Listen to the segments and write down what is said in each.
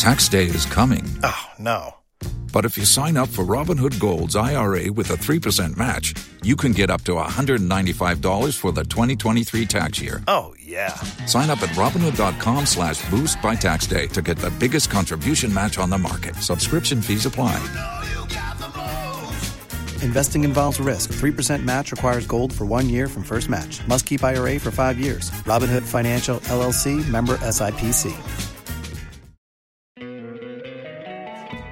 Tax day is coming. Oh, no. But if you sign up for Robinhood Gold's IRA with a 3% match, you can get up to $195 for the 2023 tax year. Oh, yeah. Sign up at Robinhood.com slash boost by tax day to get the biggest contribution match on the market. Subscription fees apply. Investing involves risk. 3% match requires gold for one year from first match. Must keep IRA for five years. Robinhood Financial LLC member SIPC.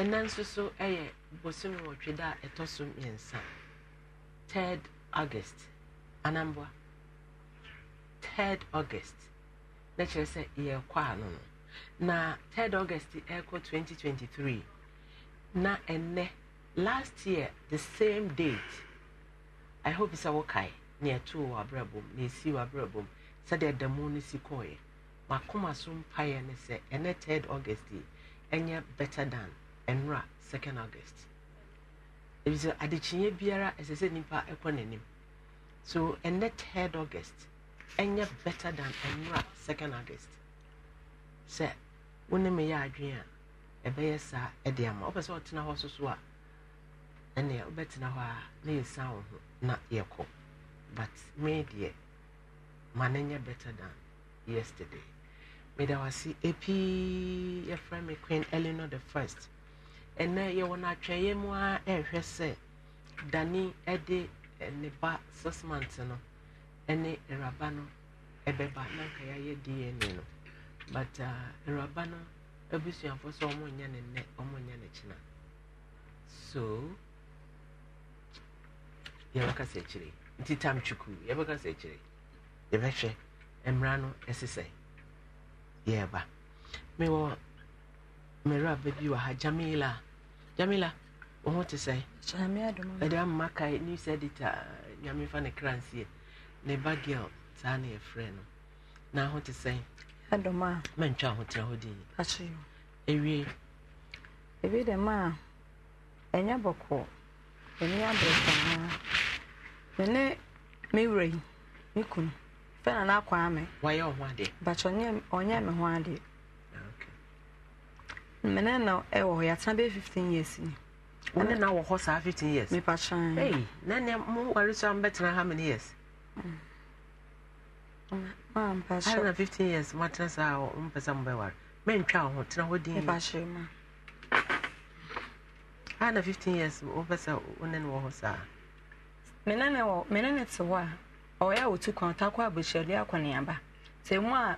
And then so ɛyɛ bosome wɔtwe da a third august Anambwa. third august na kyerɛ sɛ yɛrekɔ ano no na third august ɛrekɔ 2023 na ene last year the same date i hope sɛ wokae na ɛtoo wɔ abrabom na ɛsii wɔ abrabom sɛdeɛ si kɔɔeɛ makoma so mpaeɛ ne se ene third august yi ɛnyɛ better than nwura 2nd august ebi sɛ adekyinyɛ biara ɛsɛ sɛ nipa ɛkɔ n'anim so ɛnɛ 3rd august ɛnyɛ better than nwura 2nd august sɛ wo ne me yɛ adwene a ɛbɛyɛ saa ɛde ama wopɛ sɛ ɔtena hɔ soso a ɛnea wobɛtena hɔ a na yɛsan wo ho na yɛkɔ but me deɛ ma no nyɛ better than yesterday meda wase ɛpii yɛfrɛ me queen eleanor the first ɛnɛ yɛwɔ no atwɛeɛ mu a ɛrehwɛ sɛ dane de eh, ne ba sismant no ne awuraba no ɛbɛba na nka yɛayɛ dna no but ah, awuraba no abusuafo sɛ ɔmonyɛ ne nnɛ ɔmonyɛ ne kyena so yɛbɛka sɛ akyire nti tam twuku yɛbɛka sɛ akyire yɛbɛhwɛ mmara no ɛse sɛ yɛreba mewɔ mmerɛ aba bi wɔ ha jamila Jamila, wo ho te sɛe ɛde amma kae news editor nyame fa ne kranseɛ ne ba girl saa ne yɛfrɛ no na ho te sɛe mantwa ho tena hɔ din ɛwie ebi dɛm a ɛnyɛ bɔkɔ ɛni abrɛsanaa me ne me wura yi me na n'akɔ ame wayɛ ɔho adeɛ bakyɛ ɔnyɛ me ho adeɛ mmene na ɛwɔ hɔ yɛatena bɛyɛ fifteen years ni. wọn na wɔ hɔ saa fifteen years. mipa kyan. Hey, na ne mo wari so an bɛtena how many years. Mm. maa mpa kyɛ. ayi na fifteen years mo atena saa wɔ mo pɛ sɛ mo bɛ wari ho tena hɔ din. mipa kyɛ ma. ayi na fifteen years mo pɛ sɛ wo ne ne wɔ hɔ saa. mmene ne wɔ mmene ne te hɔ a ɔyɛ a otu kwan ɔtakɔ abɛhyɛde akɔneaba te mu a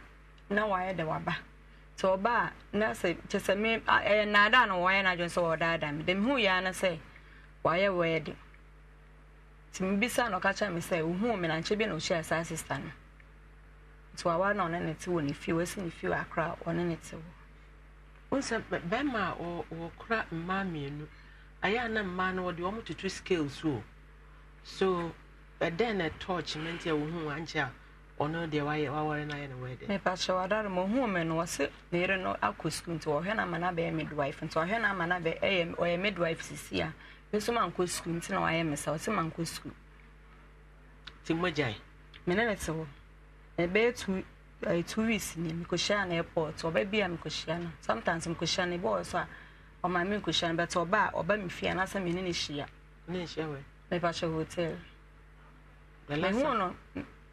na wayɛ de waba. sɛ ɔba a e, na sɛ kyɛ sɛ me ɛyɛ nnaada na wɔayɛ n'adwene sɛ wɔɔdaadaa me hu yɛ ano sɛ wɔayɛ wɔyɛ de e nti mebisa na ɔka kyerɛ me sɛ wohuu me nankyɛ bi na ɔhyia saa sista no nti wawa na ɔne ne te wɔ ne fie wasi ne fie wɔ akora ɔne ne te wɔ wosɛ bɛrima a wɔkora mmaa mmienu ayɛ a na mmaa no wɔde scales o so ɛdɛn ɔno deɛ wayɛ no ayɛ no wadare me no wɔse no akɔ sukuu nti no ama no abɛyɛ nti ɔhwɛ no ama no ɔyɛ sisi a me mankɔ sukuu nti na wayɛ me sɛ ɔse mankɔ sukuu nti mmɔgyae Mene ne te hɔ na ɛbɛyɛ two eh, two weeks ni mekɔhyia no airport ɔba a mekɔhyia no sometimes mekɔhyia no ebi so a ɔma me nkɔhyia no ne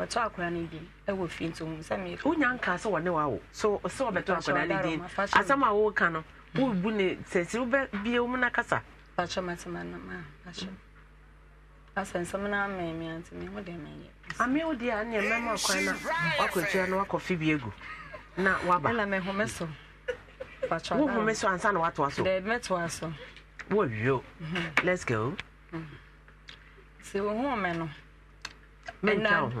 wɔtɔ akora no bi wɔ fie nti ohun sɛ mmiri. wonya nka sɛ wɔne wa wo so sɛ wɔbɛtɔ akora a no mm. ne na kasa. patrɔ matema no ma patrɔ asɛnsɛm mi mi wo ɛmɛ mu na wakɔtua no wakɔ fibie na waba. ɛna home so. home so ansa na watoa so. dɛ mɛtoa so. wɔwio mhm. let's go. Mm.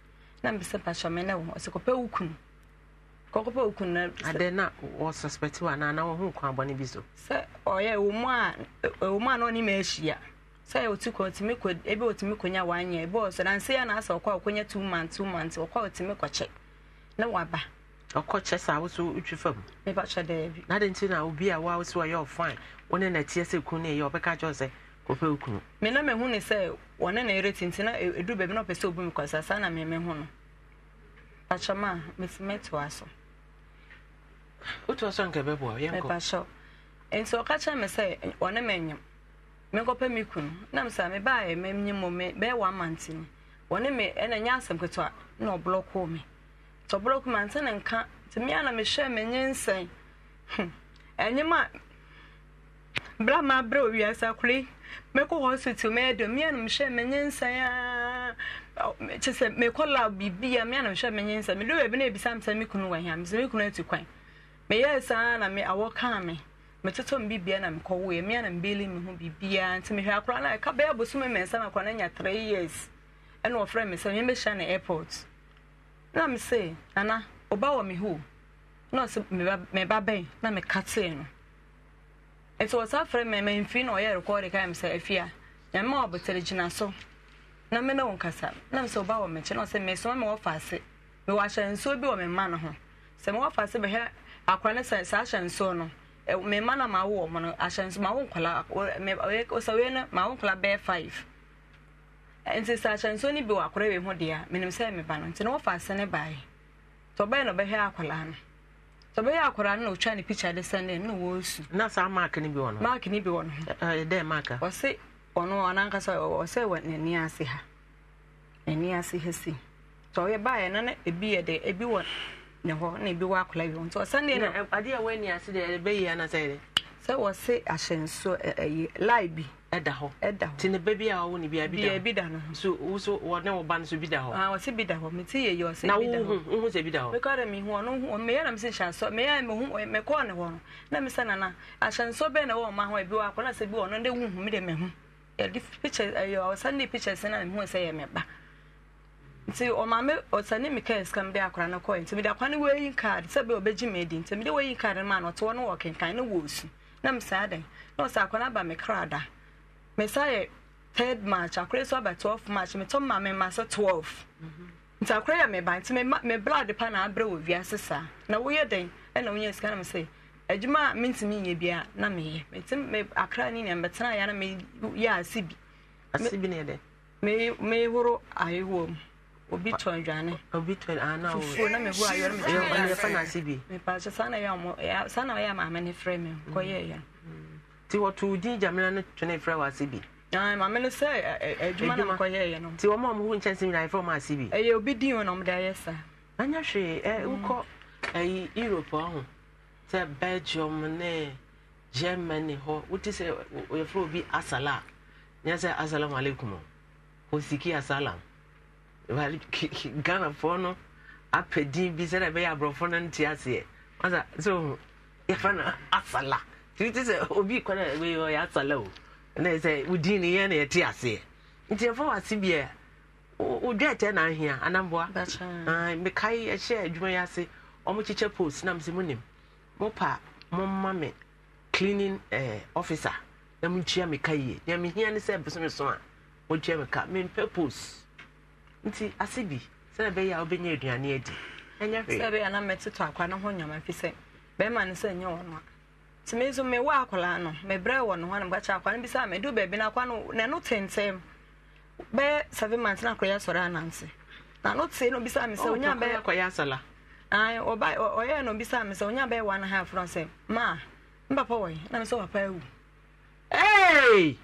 na mbese pastor mene wo se kope ukun ko na ade na wo na na wo hu bi so se oye wo a e, wo a na ma otu ko otimi ko ebe otimi nya ebe o na ya na asa okwa okonya 2 months 2 months okwa otimi che waba ɔkɔ kyɛ fam kyɛ na nti na obi a ɔfan na kun ɔpɛ okunu. me na mehu ne sɛ wɔne na ɛrɛ e-, tinti na ɛduru baabi na ɔpɛ sɛ obu mi kɔsa saa na me mehu no pakyɛm a mɛtoa so. wotoa so nka bɛboa yɛnkɔ. mepakyɛw nti ɔka kyerɛ me sɛ wɔne me nyim mekɔpɛ me kunu na mesɛ mebaeɛ ma nyim mo me bɛyɛ wɔ amante ni wɔne me ɛna nyɛ asɛm ketewa na ɔblɔkoo me nti ɔblɔkoo ante ne nka nti mea na mehwɛ menye nsɛn hmm, ɛnyɛm a bra ma bra wiasa kure mekɔ hospital mɛyɛ dɛ mia nom hyɛ menyɛ nsa a kyɛ sɛ mekɔ lab nye mia nom hyɛ nsa m sɛ kunu kwan saa na me awɔ kaa me metotɔ me bibia na mekɔwoɛ mia na mbeli me ho biribiaa nti mehwɛ akora no ɛka bɛyɛ bosome mɛnsa na akora no anya three years ɛna wɔfrɛ sɛ airport na enya sɛ nana ɔba wɔ me ho na ɔsɛ meba bɛn na nti wɔsa frɛ me mamfi na ɔyɛ rekɔɔde ka me sɛ afi a nyame ɔbotere gyina so na me ne wo nkasa na sɛ ɔba wɔ mekyi na ɔsɛ mesoma me wɔfa ase mewɔ ahyɛ nsuo bi wɔ me mma no ho sɛ mewɔfa ase bɛhwɛ akora ne sɛ saa ahyɛ nsuo no me mma na mawo wɔ mo no ahyɛ nsuo mawo nkɔla wei no mawo nkɔla bɛyɛ five nti sɛ ahyɛ nsuo no bi wɔ akora wei ho deɛ a menim sɛ meba no nti na wɔfa ase ne baeɛ nti ɔbɛyɛ na ɔbɛhwɛ akwaraa no sọ bɛyɛ akwaraa no na ɔtwa ne picture de sɛn no na wɔresu na saa mark no bi wɔ no mark no bi wɔ no dɛ mark a ɔse ɔno ɔnankasa ɔsɛ wɔ n'ani ase ha n'ani ase ha si sɛ ɔyɛ baeɛ no na ebi yɛ dɛ ebi wɔ ne hɔ na ebi wɔ akwaraa bi wɔ nti ɔsɛn no adeɛ a wɔani ase deɛ ɛbɛyi anasɛ yɛ dɛ sɛ wɔse ahyɛnso ɛyi lie bi ɛda hɔ ɛda hɔ tini bɛɛ bi a wɔwɔ ni bi a bi da hɔ bi a bi da no so woso wɔ ne wɔ ba no so bi da hɔ aa ah, wɔsi bi da hɔ mi ti yɛ yɛ ɔsi bi da hɔ na wohun wohun sɛ bi da hɔ mekɔ de mi hu ɔno hu ɔno meyɛ na mi se nhyɛnso meyɛ mi hu mekɔ ne hɔ na mi sɛ nana ahyɛnso bɛɛ na ɛwɔ ɔmo ahɔ ebi wɔ akɔ na sɛ bi wɔ ɔno de wuhu mi de mɛ hu yɛde pictures ɛyɛ ɔsan de pictures na mi hu sɛ yɛ mɛ ba nti ɔmaame ɔsane mi kaa sika mi de akora no kɔɛ nti mi de akora no wɔyi card sɛ bɛ ɔbɛgye mi adi nti mi de wɔyi card no ma ɔte hɔ no wɔ kenkan no wɔ osu na mi saa dan na ɔsɛ akora aba mi kra da mesayɛ third march akora so aba 12 march metɔ ma me ma sɛ 12 nti yɛ meba nti me blood pa na abrɛ wɔ wiase na woyɛ den ɛna wonya sika nam sɛ adwuma a mentumi nyɛ bia na meyɛ akra ne nea mɛtena na meyɛ ase bi ase ne mehoro mu obi tɔn dwane fufuo na mehoro ayehoɔ no onye ase nti wɔto din gyamena no twene frɛ wɔ ase bi maame no sɛ adwuma na mkɔyɛɛ no nti wɔma ɔmho nkyɛnsɛm nyinaa yɛfrɛ ɔma ase bi ɛyɛ obi din o na ɔmde ayɛ saa anyɛ hwee mm. wokɔ ayi europe ɔho sɛ belgium ne germany hɔ wote sɛ yɛfrɛ obi asala a nyɛ sɛ asalamu alaikum hosiki asalam ghanafoɔ no apɛ din bi sɛdɛ ɛbɛyɛ aborɔfo no nte aseɛ sɛ yɛfrɛ no asala nti sɛ obi kwan a wei asala o na sɛ wodin ne yɛ na yɛte aseɛ nti ɛfa wase bia wodwa ɛtɛ na ahia anamboa mekae ɛhyɛ adwuma yi ase ɔmokyekyɛ post na mesɛ mopa momma me cleaning eh, officer na montua meka yie nea mehia ne sɛ bosome so a motua meka mempɛ post nti ase bi sɛna ɛbɛyɛ a wobɛnya aduane adi ɛnyɛ sɛ bɛyɛ na mɛtetɔ akwa no ho nyama fi sɛ ne sɛ ɛnyɛ wɔ no a nti me nso mewɔ akwaraa no mebrɛ wɔ no ho na mekakyɛ akwaa no bi sɛ a medu baabi no akwa no n'ano tentɛm bɛyɛ seven months na akɔyɛ asɔre ananse n'ano tee no bisa me sɛ onya bɛyɛ akɔyɛ asɔla ayi ɔba ɔyɛ no bisa me sɛ onya bɛyɛ one half no sɛ maa n papa wɔ yi na me sɛ papa ewu. ɛɛɛ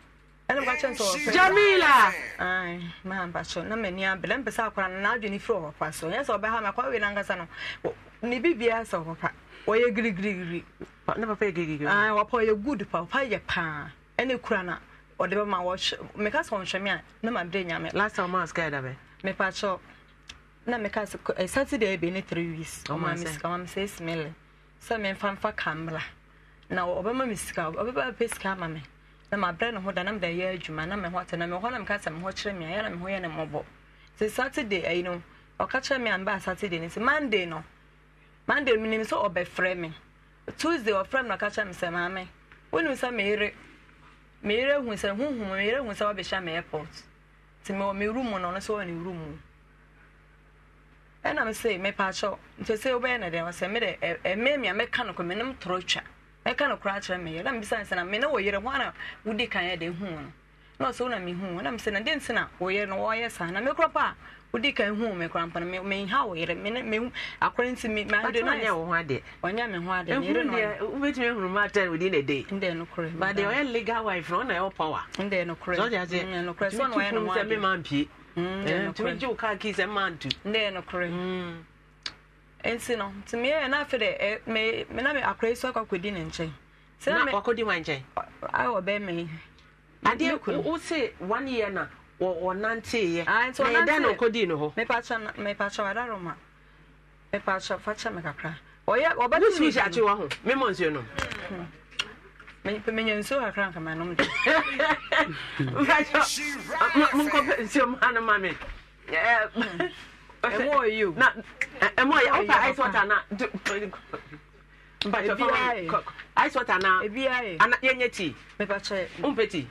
ɛna mekakyɛ nso ɔfɛ jamila ayi maa mpakyɛ na mɛ ni abɛlɛ mpɛ sɛ akwaraa no n'adwene firi ɔwɔ kwa so yɛn sɛ ɔbɛha mɛ akwaraa wei ne bibia sɛ papa wɔyɛ girigirigiri good papa yɛ paa ɛne kura na ɔde bɛ meka sɛ ɔnhwɛ a ne ma nyame last time ɔmaa sika ɛda bɛ mepa kyɛw na meka sɛ ɛ eh, saturday ebe ne three weeks ɔmaa me sika ɔmaa me sɛ esi mele sɛ memfa mfa kambra na ɔbɛma me sika ɔbɛba bɛ sika ama me na ma brɛ ho da na mede yɛ adwuma na me ho ate na me ho na meka sɛ me ho kyerɛ me a yɛ na me ho yɛ ne mmɔbɔ sɛ saturday ayi no ɔka kyerɛ me a mba saturday ne sɛ monday no monday menim sɛ ɔbɛfrɛ me tuesday ɔfrɛ me na ɔka me sɛ maame wonim sɛ meyere meyere hu sɛ huhum meyere hu sɛ wabɛhyɛ me airport nti mewɔ me e, e, room na ɔno sɛ ɔwɔ ne room mu ɛna me mepaakyɛw nti sɛ wobɛyɛ ne dɛn ɔsɛ mede ɛmɛ mi a mɛka no kɔ menem torɔ twa mɛka no koraa kyerɛ meyɛ na mebisa sɛ na mene wɔ yerɛ ho ana wodi kan yɛ de hu no na ɔsɛ wo mehu na mesɛ na dɛn nti na wɔyɛ no wɔyɛ saa na mekora a wodi ka ihu me kora me me ha wo yere me me nti me ma de no nya wo me ho ade ne ma na nde no legal wife no na power nde no so ja je no so no no ma me ma mpie nde no ji ki se ma ntu nde no ya na de me me na me so wɔnanteeɛ ah, na ɛdɛn na ɔkɔdii no hɔ mepakyɛ wadaroma mepakyɛ fakyɛ me kakra wosumi hyɛ akye wɔ ho memɔ nsuo nom hmm. menyɛ nsuo kakra nka manom de ah, monkɔpɛ nsuo ma no ma me hmm. eh, ɛmɔ ɔyi o na ɛmɔ ɔyi awo pa ice water na mpatsɛ fama ice water na ana yɛnyɛ tea mepakyɛ ompɛ tea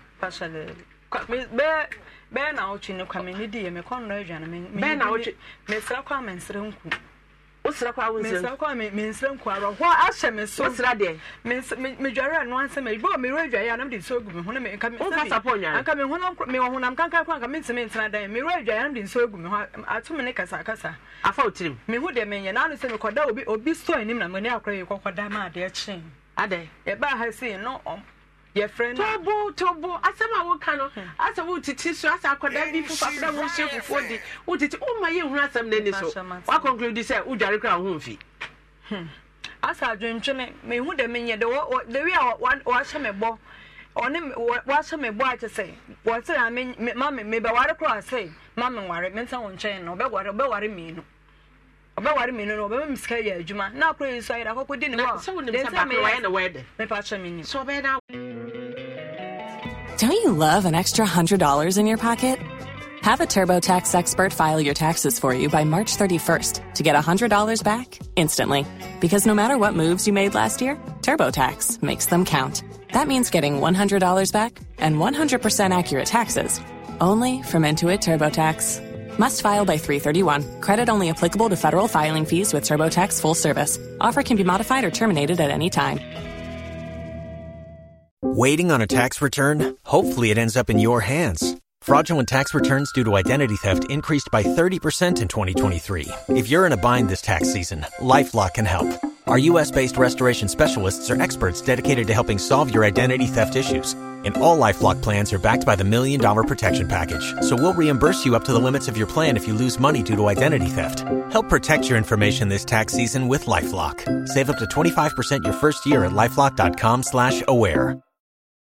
bɛɛ bɛɛ na awotwe ne kwa mene di yɛ me kɔn dɔ adwa no bɛɛ na awotwe mesra kɔ a mensrɛ nku wosra kɔ a wo nsrɛ kɔ a mensrɛ nku arɔ hɔ ahyɛ me so wosra deɛ medware ano ansɛ ma bɔ merɛ adwaeɛ anam de nsuo gu me ho na womfa sapɔ nyaa anka mewɔ honam kankan kɔ anka mentimi ntena dan merɛ adwaeɛ anam de nsuo gu me ho atome ne kasakasa afa wo tirim mehu deɛ menyɛ na ano sɛ mekɔda obi obi store anim na mene akorɔ yɛ kɔkɔda ma adeɛ kyee adɛ yɛbaa no yɛfrɛ no tobo tobo asɛm a woka no hmm. asɛ wotete so asɛ akɔdaa bi fofafra wohyɛ fufuo de wotete woma yɛhunu asɛm n'ani so woakɔnkludi sɛ wodware kora ho mfi hmm. asa adwentwene mehu dɛ menyɛ de the a wahyɛ me bɔ ɔne wahyɛ me bɔ akyɛ sɛ wɔsɛ a mame mebɛware koraa sɛ mame nware mensa wo nkyɛn no wobɛware wobɛware mmienu ɔbɛware me no ɔbɛma me yɛ adwuma na akora yi so akɔkɔ di ne hɔ Don't you love an extra $100 in your pocket? Have a TurboTax expert file your taxes for you by March 31st to get $100 back instantly. Because no matter what moves you made last year, TurboTax makes them count. That means getting $100 back and 100% accurate taxes only from Intuit TurboTax. Must file by 331. Credit only applicable to federal filing fees with TurboTax full service. Offer can be modified or terminated at any time. Waiting on a tax return? Hopefully, it ends up in your hands Fraudulent tax returns due to identity theft increased by 30% in 2023. If you're in a bind this tax season, LifeLock can help. Our U.S.-based restoration specialists are experts dedicated to helping solve your identity theft issues. And all LifeLock plans are backed by the Million Dollar Protection Package. So we'll reimburse you up to the limits of your plan if you lose money due to identity theft. Help protect your information this tax season with LifeLock. Save up to 25% your first year at LifeLock.com slash aware.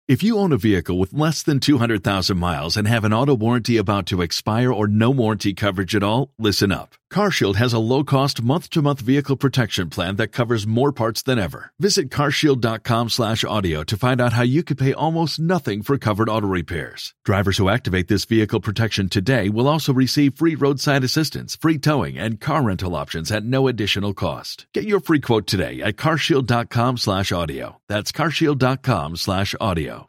If you own a vehicle with less than 200,000 miles and have an auto warranty about to expire or no warranty coverage at all, listen up. CarShield has a low-cost month-to-month vehicle protection plan that covers more parts than ever. Visit carshield.com/audio to find out how you could pay almost nothing for covered auto repairs. Drivers who activate this vehicle protection today will also receive free roadside assistance, free towing, and car rental options at no additional cost. Get your free quote today at carshield.com/audio. That's carshield.com/audio.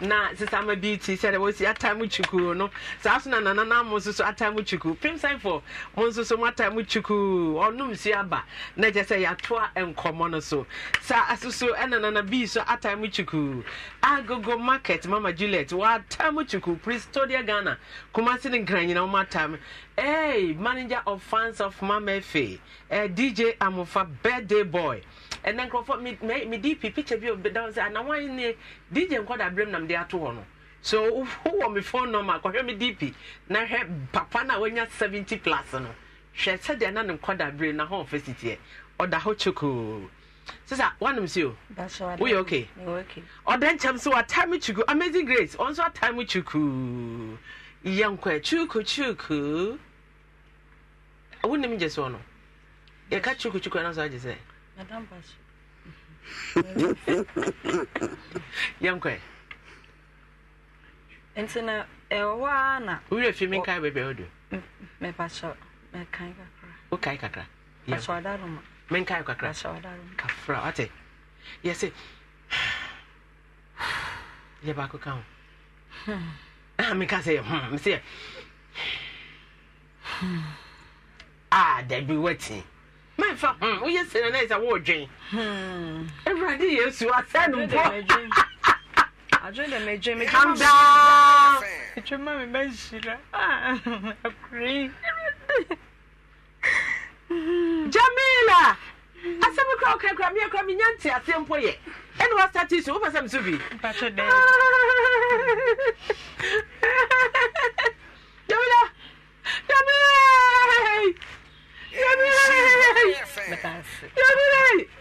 na sisa ama bi ti sɛ de wosi atamu mu no saa so na nana na mo nso so ata mu kyukuu pimsaifo mo nso mo ata mu kyukuu ɔnum si aba na kyerɛ sɛ yatoa nkɔmɔ no so saa asoso ɛna nana bi so atamu mu kyukuu agogo market mama juliet wata atamu kyukuu pristodia ghana kumasi ne nkranyina wɔn ata mu hey manager of fans of mama efe eh, dj Amufa. birthday boy ɛnɛ nkurɔfoɔ mede pi picture bi ɔbɛda sɛ anawan ne dj nkɔda berɛm na mede ato hɔ no so wowɔ me phone number kɔhwɛ me dp na hwɛ papa na a seventy 70 plus no hwɛ sɛdeɛ na ne nkɔda berɛ na hɔ ɔfɛ sitiɛ ɔda hɔ kyokoo sisa wanom si o woyɛ okay ɔda nkyɛm so watae me kyuku amazing grace ɔnso atae me kyuku yɛnkɔ kyuku kyuku wonim gye soɔ no yɛka kyuku kyuku ɛno so agye sɛ madam bashi yankɔ nti na ɛwɔ a na wowurɛ fi me nkae baabi a wodu mepakyɛ mekae kakra wokae kakra pakyɛ ɔda roma menkae kakra pakyɛ ɔda roma kafra ate yɛse yɛ baako ka ho hmm. ah, meka sɛ yɛ hmm, mesɛ hmm. a ah, dabi woatee mẹ́fà wọ́yẹ sẹ́nẹ̀ náà ẹ̀ sá wọ́ọ̀ dwen ẹ̀wúrọ̀dì yẹn su asẹ́nu pọ̀ kanda ìtwẹ́mọ́ mi bẹ́ẹ̀ ṣìlá ọkùnrin. Jamila asɛm kora woka kora meɛ kora menya nte aseɛ mpo yɛ ɛne wasate so wopɛ sɛ mso bi Jamila Jamila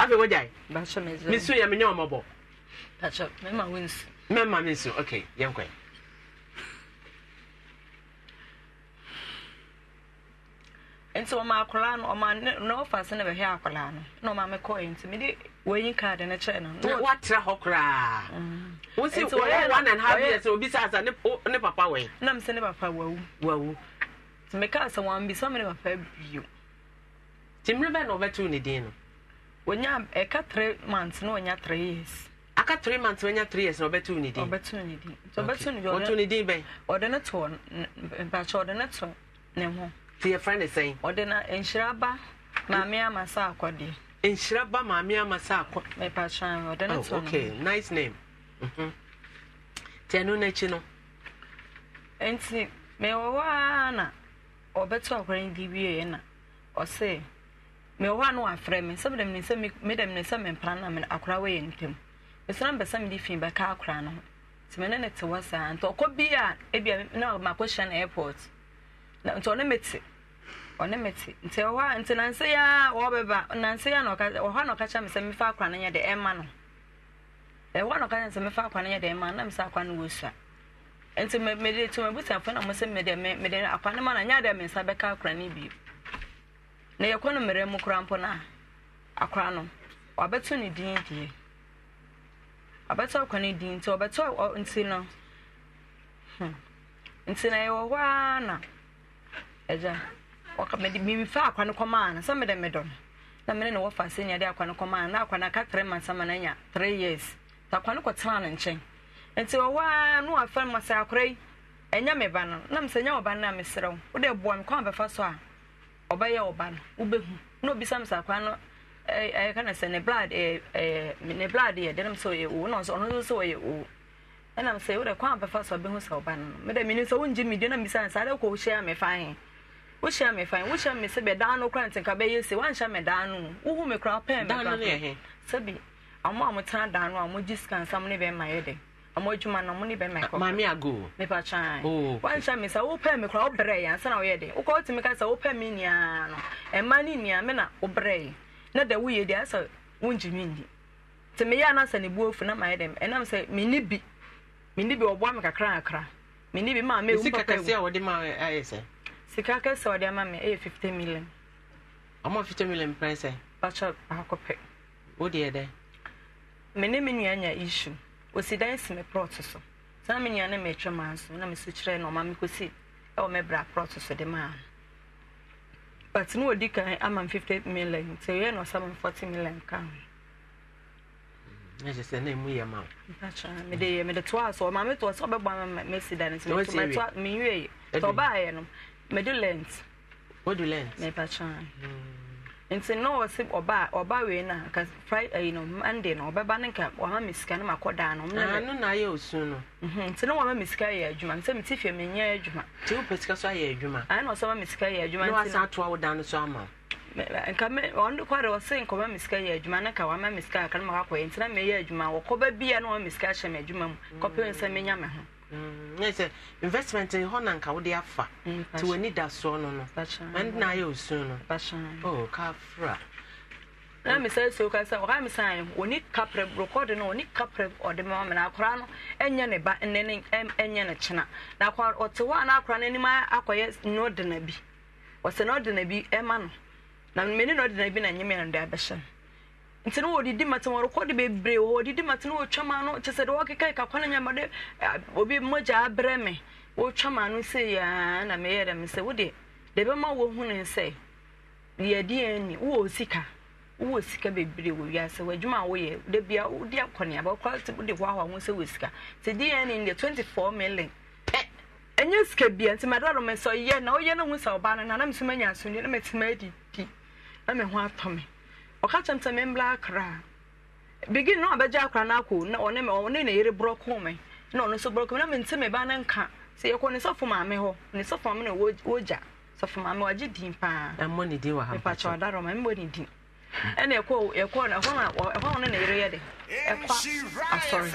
afei wagyae mesu yɛ menyɛ ɔmɔbɔ mɛma me nsu ok yɛnkɔ nti ɔma akwaraa no ɔma na ɔfa se na bɛhwɛ akwaraa no na ɔma me kɔɛ nti mede wɔnyi kaade no kyerɛ no na woatra hɔ koraa mm. wosi wɔyɛ one and half years obi sa asa ne papa wɔ na mesɛ ne papa wawu wawu nti mekaa sɛ wɔambisa me ne papa bio nti mmerɛ bɛn na wɔbɛto ne din no wonya ɛka three months na wonya three years aka three months na three years na wɔbɛto ne din wɔbɛto ne din wɔbɛto ne din wɔto ne din bɛn ɔde ne to mpakyɛ ɔde ne to ne ho ti yɛ fɛn ne sɛn ɔde na nhyira ba maame ama sa akɔdeɛ nhyira ba maame ama sa akɔ mpakyɛ ɔde ne oh, to ne okay nice name mm-hmm. ti ɛno n'akyi no nti mewɔ hɔ ara na ɔbɛto akɔrɛ ne di wie na ɔsɛ mewɔ hɔ a na wafrɛ me sɛ medam ne sɛ medam ne sɛ mempra na me akora wɔ yɛ ntam mesrɛ mbɛsɛ mede fi bɛka akora no ho nti mene ne te hɔ saa nti ɔkɔ bi a ebia na makɔhyia no airport na nti ɔne mete ɔne mete nti ɛwɔ hɔ a nti nanse yi a wɔbɛba nanse yi a na ɔka ɔhɔ a na ɔka kyerɛ me sɛ mefa akora no yɛ de ɛma no ɛwɔ a na ɔka kyerɛ me sɛ mefa akora no yɛ de ɛma no na mesɛ akora no wɔ sua nti mede to mabusuafoɔ na mo sɛ mede akora no ma na nyɛ a me nsa bɛka akora no bio na yɛkɔ no mmerɛ mu kora mpo no a akora no wabɛto ne din deɛ wabɛto akwa ne din nti wɔbɛto nti no hmm, nti na yɛwɔ hɔ ara na agya mefa akwa no kɔmaa no sɛ mede medɔ no na mene ne wɔfa sɛ nya akwa no kɔmaa no na akwa no aka tre ma nsɛma no anya three years nti akwa no kɔtenaa no nkyɛn nti wɔwɔ ara no wafɛ no ma sɛ akora yi ɛnyɛ me ba no na mesɛ nyɛ wɔ ba no na meserɛ wo wode boa me kwan bɛfa so a ɔbɛyɛ ɔba no wobɛhu na obisa me sa kwa no ɛyɛ eh, eh, eh, ka na sɛ ne blood ɛɛ ne blood yɛ dɛnɛm sɛ ɔyɛ owu na ɔno nso sɛ ɔyɛ owu ɛna e sɛ wodɛ kwan bɛfa so abɛhu sɛ ɔba no no meda menim sɛ wongye me dua na mbisa no saa dɛ wokɔ wohyia me fa he wohyia me fa he me sɛ bɛdaa no kora ntenka bɛyɛ se woanhyɛ me daa no wohu me kora pɛɛ me kora a motena daa no a mogye sika ne bɛma yɛ ɔmo adwuma no ɔmo ne bɛn mɛkɔ maame ago mepa kyan wanhyɛ me sɛ wopɛ me koraa wobrɛ ansa na woyɛ de wokɔ wotumi ka sɛ wopɛ me nyinaa no ɛma e ne nyinaa me na wobrɛ yɛ na da woyɛ deɛ asɛ wongye me nni nti meyɛ no asɛ ne buo na mayɛ dɛm ɛnam e sɛ menni bi menni bi ɔboa me kakra kakra menni bi maa mewu sika sɛ e, sika kɛseɛ wɔde ama me ɛyɛ 50 million ɔmo 50 million pɛn sɛ bakyɛ baako pɛ wodeɛ dɛ me me nua nya issue wɔsi dan si me prɔt so saa me nua ne mɛtwa maa nso na mesi kyerɛ na ɔma me kɔsi ɛwɔ me bra prɔt so de maa no but ne kan ama m fifty million nti ɛyɛ na ɔsama m forty million ka ho na kyerɛ sɛ na emu yɛ ma o. mpakyɛ mede yɛ mede toa so ɔma metɔ sɛ ɔbɛbɔ ama mesi dan nti mɛtɔ mɛtɔ menwie sɛ ɔbaa yɛ no mede lent. o du lent. mɛpakyɛ nti na ɔsi ɔba ɔba wei na nka friday eh, ɛyi no monday no ɔbɛba ne nka ɔma mi sika ne ma kɔ daa ah, no. ano na ayɛ osu no. Mhm, nti na ɔma mi sika yɛ adwuma nti mi ti fi mi nyɛ adwuma. ti o pɛ sika so ayɛ adwuma. ayi na ɔsɛ ɔma mi sika yɛ adwuma. na wasan ato awo dan no so ama. nka mi ɔno kwa de ɔsi nka ɔma mi sika yɛ adwuma ne ka ɔma mi sika aka ma kɔ yɛ nti na mi yɛ adwuma wɔkɔ bɛ bia na ɔma mi sika ahyɛ mi adwuma mu kɔpɛ nsɛm mi nya mi ho. Mm, sɛ investment hɔ na nka wode afa mm, nti w'ani da soɔ no no ɛne na ayɛ osu no oh, kafra na misa so ka sɛ ɔha misa ayɛ ɔni kaprɛ rekɔde no ɔni kaprɛ ɔde ma ma na akora no ɛnyɛ ne ba ne ne ɛnyɛ ne kyena na akora ɔte hɔ a na akora no anim akɔyɛ na ɔde na bi ɔsɛ na ɔde bi ɛma no na mene na ɔde na bi na nyɛ mɛ no de abɛhyɛ no nti no wɔdidi mate wɔrekɔde bebree wɔ wɔdidi mate no wɔtwa ma no kyɛ sɛ de wɔkeka eh, ka kwan nyama de obi mogya abrɛ me wɔtwa ma no sɛ yaa na meyɛ dɛm sɛ wode de bɛma wɔhu ne sɛ yɛdeɛ ni wowɔ sika wowɔ sika bebree wɔ wiase w'adwuma a woyɛ da bia wode akɔneaba wokora wode hoahoa ho sɛ wɔ sika sɛ deɛ ni deɛ 24 million eh, ɛnyɛ sika bia nti madaro me sɛ ɔyɛ na woyɛ no hu sɛ ɔbaa no na na mesoma nya asomdwe na matumi adidi na me ho atɔ me ɔka kyɛm sɛ membla akra nọ na ɔbɛgye akra na ɔne na ere borɔko na ọ nso borɔko me na mente me ebe no nka sɛ yɛkɔ maame hụ maame na wogya sɔfo maame din paa mbọ ha ɛna ɛkɔ ɛkɔ na ɛhɔ na dị na na yere yɛ de ɛkɔ asɔre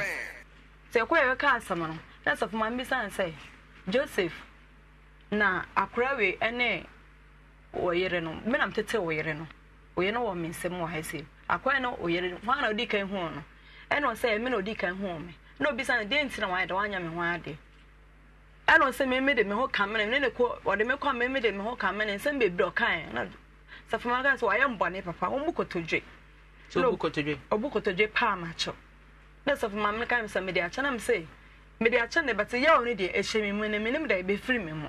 sɛ ɛkɔ yɛ asɛm no na joseph na oyɛ no wɔ me nsɛm wɔ ha sɛ akwan no oyɛ hwan na odi kan huu no ɛna ɔsɛ ɛmi na odi kan huu me na obi sa no deɛ nti na wayɛ dɛ wanya me ho adeɛ ɛna ɔsɛ mɛmi de me ho kamene ne ne ko ɔde me kɔ mɛmi de me ho kamene nsɛm bebree ɔkan na safoma kan sɛ wayɛ mbɔne papa wɔn mu kotodwe. sɛ obu kotodwe obu kotodwe paa ma kyɛw na safoma kan sɛ mɛde akyɛ na mɛ sɛ mɛde akyɛ na bɛtɛ yɛwɔ ne deɛ ɛhyɛ mi mu na mɛnim deɛ ebɛfiri mi mu.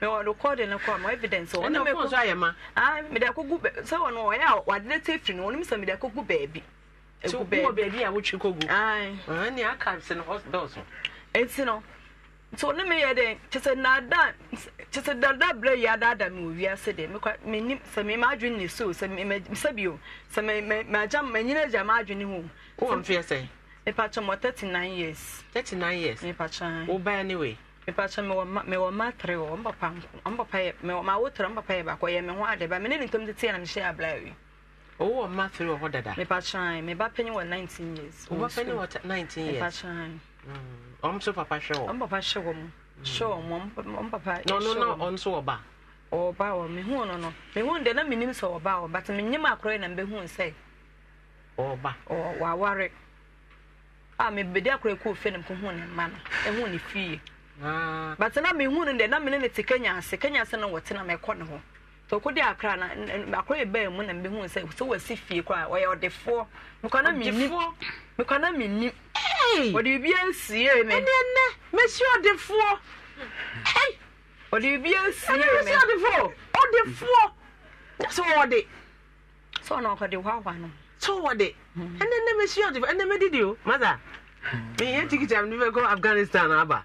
mewɔrekɔde no kɔ ma evidence ah, mede akɔgu sɛ wɔno ɔyɛ a wadene te firi no wɔnom sɛ mede akɔgu baabi ɛnti ah, no nti ɔne meyɛ dɛn kyesɛ nada kyesɛ dada berɛ yi adaada me wɔ wiase de menim sɛ mema adwene ne so sɛ bio sɛ magya manyina agya maadwene ho mepatwɛ mɔ 39 years 39 years mepatwɛ wobaɛ ne wei mepatsa mewɔ ma tere wɔ mpapa mpapa yɛ mewɔ ma awotere mpapa yɛ baako yɛ me ho ade ba me ne de tie na mehyɛ abla o wo wɔ mma tere wɔ hɔ dada me ba wa 19 years mm, wo ba panyin wa 19 years mepatsa ɔm papa papa papa me no no me de na me nim but me na Ah. but na mehu no de na mene ne kenya ase kenya ase no wɔte na mɛkɔ ne ho de na akora ɛbaa mu na mbɛhu sɛ wasi fie kora ɔyɛ ɔdefoɔ mekwana menni mekwana menni ɔde biribi asie me ɛnɛ ɛnɛ mɛsi ɔdefoɔ ɔde biribi asie me no hmm. o afghanistan aba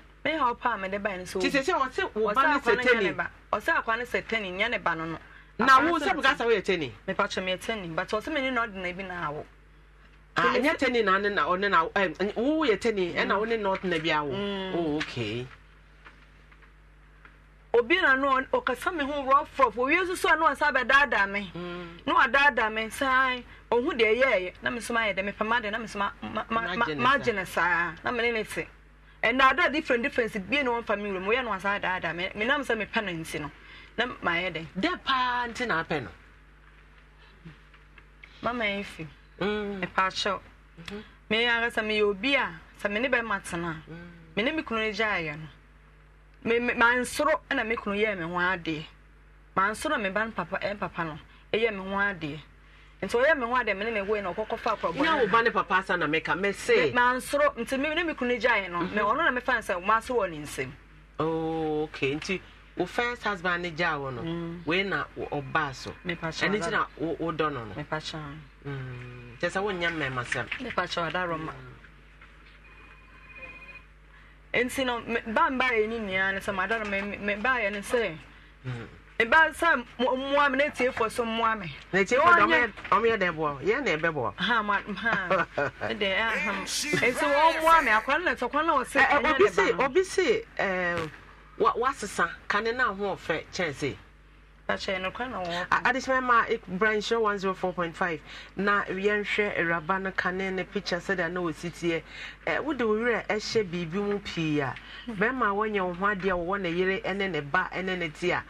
me ha ọpa mede ba ne so ti sɛ sɛ se wo ba ne sɛ tɛni ɔsɛ akwa ni se teni? nyɛ ne ba no no na wo sɛ buka sɛ woyɛ tɛni mepa kyɛ meyɛ tɛni but ɔsɛ me ne na ɔde na bi na awo nyɛ teni na ne na ɔne na wo yɛ tɛni e na wo ne na ɔde na bi awo oh okay obi na no ɔkasa me ho rough rough owie nso so a mm. na ɔsa bɛdaadaa me na wadaadaa me san ɔhu na mesoma ayɛ dɛ de na mesoma magye ne na mene Ma te ɛna ada different difference bie na wɔn fa mi wura mu yɛ no asa adaadaa mɛ mɛ nam sɛ mɛ pɛ no nti no na maa yɛ dɛ. dɛ paa nti na apɛ no. mama yɛ fi. ɛpa mm. akyɛw. mɛ mm-hmm. yɛ ara sɛ mɛ yɛ obi a sɛ mɛ ne bɛ ma tena mɛ mm. ne mi kunu ne gya ayɛ no mɛ mɛ ma nsoro ɛna mɛ kunu yɛ mɛ ho adeɛ maa nsoro mɛ ba ne papa ɛn papa no ɛyɛ mɛ ho adeɛ nti ɔyɛ mi ho a dɛm ne mi wei na ɔkɔkɔ fa akɔrɔbɔ ne. nyɛ ɔba ne papa asa na mɛka mɛ se. maa nsoro nti mi ne mi kunu gya yɛ no mɛ ɔno na mɛfa nsɛm maa nsoro wɔ ne nsam. ooo okay nti wo first husband ne gya wɔ no mm. wei na ɔbaa so ɛne ti na wo dɔ no no. mɛpakyɛ kyɛ mm, sɛ wonyɛ mmɛma sɛm. mɛpakyɛ ɔda nti no ba ba yɛ ni nua ne sɛ maa da no mɛ ba yɛ ne sɛ. Mm ba sa mmoa me ne tie fo so mmoa me na tie fo dɔm ɔmo yɛ dɛn boɔ yɛ na ɛbɛ boɔ ha ma ha ɛdɛ ɛham esi wɔn mmoa me akwan na tɔkwan na ɔsi ɛnyɛ ne ba no obi si ɛɛ wa wasesa na ho ɔfɛ kyɛnse. akyɛn no na wɔn. adesina ma e, branch one zero four point five na kane ne picture sɛdeɛ na wɔsi tie ɛ wode wo werɛ ɛhyɛ biribi mu pii a bɛrima a wɔnyɛ wɔn ho adeɛ a wɔwɔ ne yere ɛne ne ba ɛne ne ti a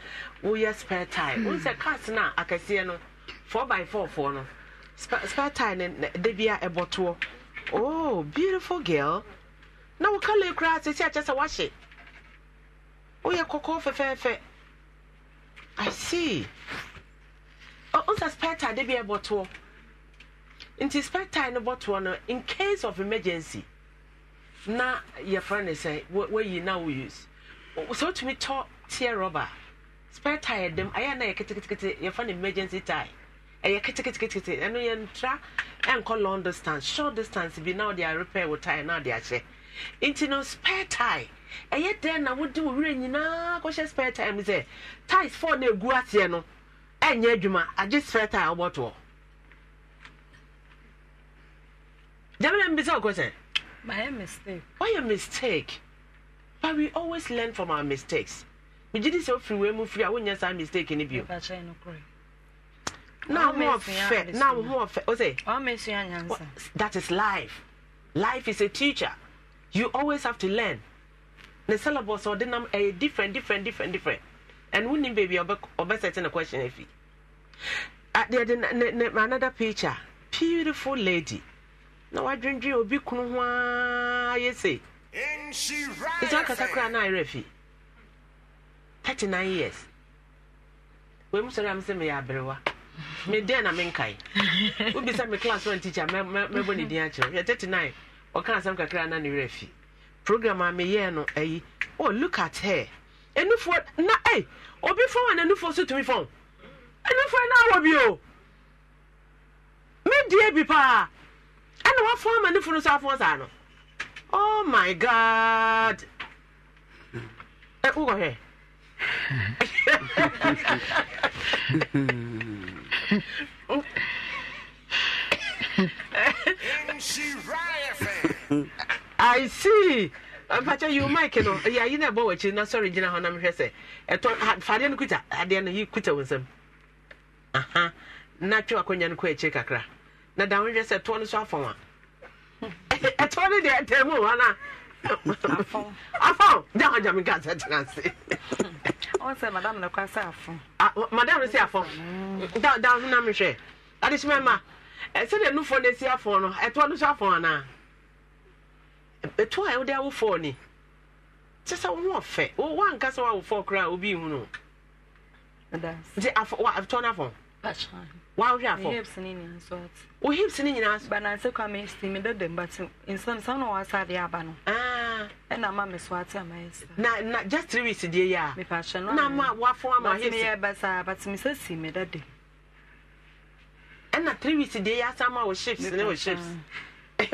woyɛ spare tire hmm. wohu sɛ cars na a akɛseɛ no 4 by 4 foɔ no spare tire no da bi a ɛbɔtoɔ oh beautiful girl na wo kala koraa sɛsi akyɛ sɛ woahye woyɛ kɔkɔɔ fɛfɛɛfɛ i see wohu sɛ spare tire da bi a ɛbɔtoɔ nti spare tire no bɔtoɔ no in case of emergency na yɛfrɛ no sɛ woayi na wo use sɛ wotumi tɔ teɛ rɔba a spare tire dɛm ayɛ na yɛ ketekete yɛfa no emergency tire ɛyɛ ketekete ɛno yɛntra ɛnkɔ long distance short distance bi na ɔde repair wo tire na ɔde ahyɛ nti no spare tire ɛyɛ dɛn na wode wo werɛ nyinaa kɔhyɛ spare tire mu sɛ tires four na egu aseɛ no ɛnyɛ adwuma agye spare tire ɔbɔtoɔ gyamina mbisa ɔkɔ sɛ mayɛ mistake Why your mistake but we always learn from our mistakes megye di sɛ wofiri wei mu firi a wonyɛ saa mistake no bio that is life life is a teacher you always have to learn ne syllabus ɔde nam ɛyɛ different different different different and wonim baabi a ɔbɛsɛte ne question afi yɛde another picture beautiful lady na wadwendwen obi kunu ho a yɛ sɛ ɛsɛ akasa koraa na ayerɛ fii thirty nine years wei mu sɔrɔ ya mi sɛ mi yɛ aberewa mi den na mi nkae obi sɛ mi class one teacher Me mɛ mɛ bɔ ne din akyerɛ yɛ thirty nine ɔka asɛm kakra na ne werɛ fi program a mi yɛ no ɛyi oh look at her enufoɔ na ɛy obi fɔn wa na enufoɔ so tumi fɔn enufoɔ na awɔ bi o mi die bi paa ɛna wafɔn ma enufoɔ no so afɔn sa no oh my god ɛ wokɔ hɛ. I see. mpakyɛ yi o mike no ɛyɛ ayi na ɛbɔ wɔ akyiri na sɔre gyina hɔ na mehwɛ sɛ ɛtɔ fadeɛ no kuta adeɛ no yi kuta wɔ nsam aha na twe akonnwa no kɔ akyiri kakra na da ho hwɛ sɛ ɛtoɔ no so afɔn a ɛtoɔ no deɛ ɛtɛm wɔ no a afɔw jaa jaa mi ka sɛ tena se. ɔn sɛ madam na kɔ sɛ afɔ. madam si afɔ da da huna mi hwɛ adesima ma ɛsɛ de nufɔ na esi afɔ no ɛtoɔ no so afɔ ana ɛtoɔ a ɛwɔde awo fɔɔ ni kyɛ sɛ wɔn ɔfɛ wɔn ankasa wɔn awo fɔɔ koraa obi ihu no nti afɔ wa ɛtoɔ na afɔ wahwɛ afɔ hips ni ni nsɔt o oh, hips ni nyinaa so bananse kwa mi si mi bɛ dɛm bati nsɛm sanu wa sa de aba no ɛna ah. e ma mi so ati ama yɛ e sa na na just three weeks die yɛ a mipa ahyɛ no na ma wafɔ ama hips bati mi yɛ basa bati mi sɛ si mi dɛ dɛm ɛna e three weeks die yɛ asa ma o shapes ne o shapes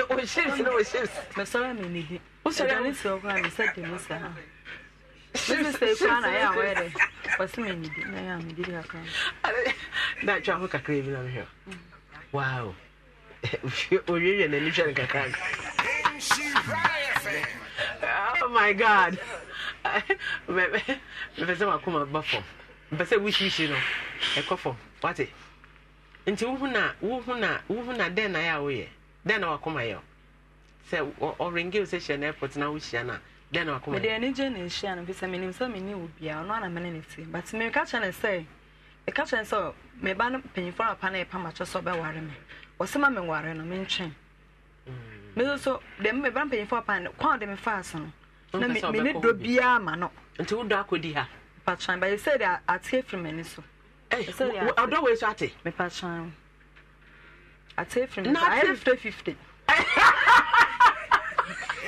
o shapes ne o shapes mɛ sɔrɔ mi ni di ɛdani si ɔkura mi sɛ dɛm sa. na-achọ ahụ kakra ebi na mhịa wow na enisha nka ka oh my god mepese makụ ma ba fọm mepese wishi wishi nọ ekọ fọm wati nti na na na den na ya den na ma na na na dɛn na wakɔ mede ani gye ne nhyia no fisɛ menim sɛ menni wɔ biaa ɔno ana mene ne ti but meka kyerɛ ne sɛ meka kyerɛ ne sɛ meba no mpanyimfoɔ no apa no ɛpa makyɛ sɛ ɔbɛware me ɔsɛ ma menware no mentwɛn meso mm. so deɛ meba mpanyimfoɔ apa no kwan de mefaa so no na mene dɔ biaa ma no nti wodɔ akɔdi ha mpatran bɛyɛ sɛ de ate afiri m'ani so ɔdɔ wei so ate mepatran ate afiri m'ani so ayɛ 50 50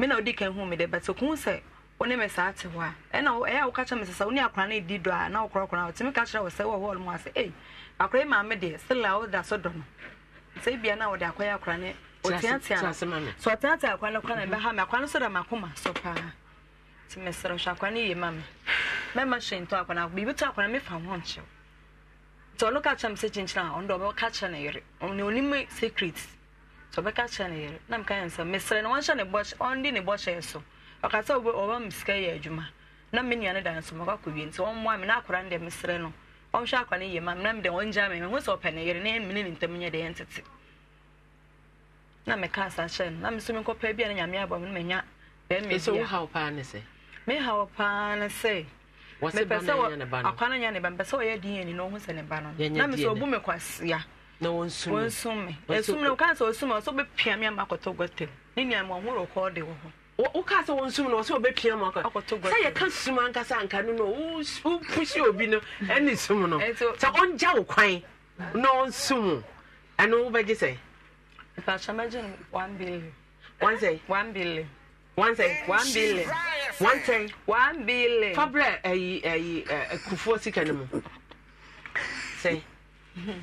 me na odi kan hu me de but ko sɛ wone me saa te hɔ a ɛna ɛyɛ a woka kyerɛ me sɛ sɛ wone akora no ɛdi dɔ a na wokorakora wotumi ka kyerɛ wo sɛ wɔhɔ no mu ase ei akora maame deɛ sela woda so dɔ no sɛ bia na wode akɔyɛ akora ne ɔteatea sɛ ɔteatea akora no kora na ɛbɛha me akora no so da makoma so paa nti mesrɛ hwɛ akora no ye ma me mɛma hyɛ ntɔ akora no biribi to akora mefa ho nkyew nti ɔno ka kyerɛ me sɛ kyinkyina a ɔno dɛ ɔbɛka kyerɛ no yere ɔne onim secrets so bɛka kyerɛ ne yere na meka yɛ nsɛm mesrɛ no wɔnhyɛ ne bɔhyɛ ɔnde ne bɔhyɛ so ɔkasa wobɛ ɔba me yɛ adwuma na me nua da nso mɔkɔ akɔwie nti ɔmmoa me na akora no deɛ no ɔnhwɛ akwa no yie ma me na mede ɔngya me mehu sɛ ɔpɛ ne yere na ɛmmene ne ntam nyɛ deɛ ɛntete na meka asa kyerɛ no na meso menkɔpɛ bi a na nyame abɔ me no manya bɛmmɛ mehaw paa ne sɛ mepɛ sɛ akwa no nyɛ ne ba mepɛ sɛ ɔyɛ din ani na ɔhu sɛ ne ba no na mesɛ ɔbu me kwasea na wɔn sum wɔn sum mi esum na ɔka sɛ ɔsum na ɔsɛ ɔbɛpia mi ama akɔtɔ gɔtɛm ne nua mu ɔho rɔkɔɔ de wɔ hɔ. woka sɛ wɔn sum na ɔsɛ ɔbɛpia mu akɔtɔ gɔtɛm sɛ yɛka sum ankasa anka no na wopusi obi no ɛne sum no sɛ ɔngya wo kwan na ɔnsum ɛno wobɛgye sɛ. mpatsɔ mɛgye no one billion. one sɛ. one billion. one sɛ. one billion. one sɛ. one billion. fabrɛ ɛyi ɛyi ɛkufuo sika no mu sɛ.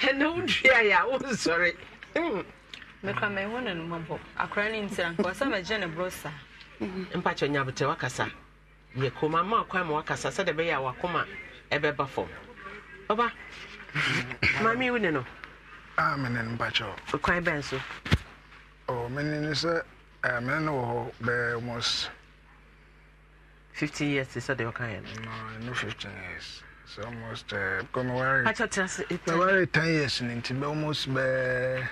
ɛna wodua yɛ a wonsɔre mekra mɛhɔ no hmm. nomabɔ akora no ntira nka sɛ magye ne borɔ saa mpakyɛ nyabotɛ wakasa yɛ koma ma kwan ma wakasa sɛde bɛyɛ a wakoma ɛbɛba fam ɔba mame wo ne no mene no mpakyɛ kwan bɛn so mene no sɛ mene no wɔ hɔ bɛɛ 15 years sɛdeɛ no It's almost uh, away. I thought it was ten years and almost bare. Uh,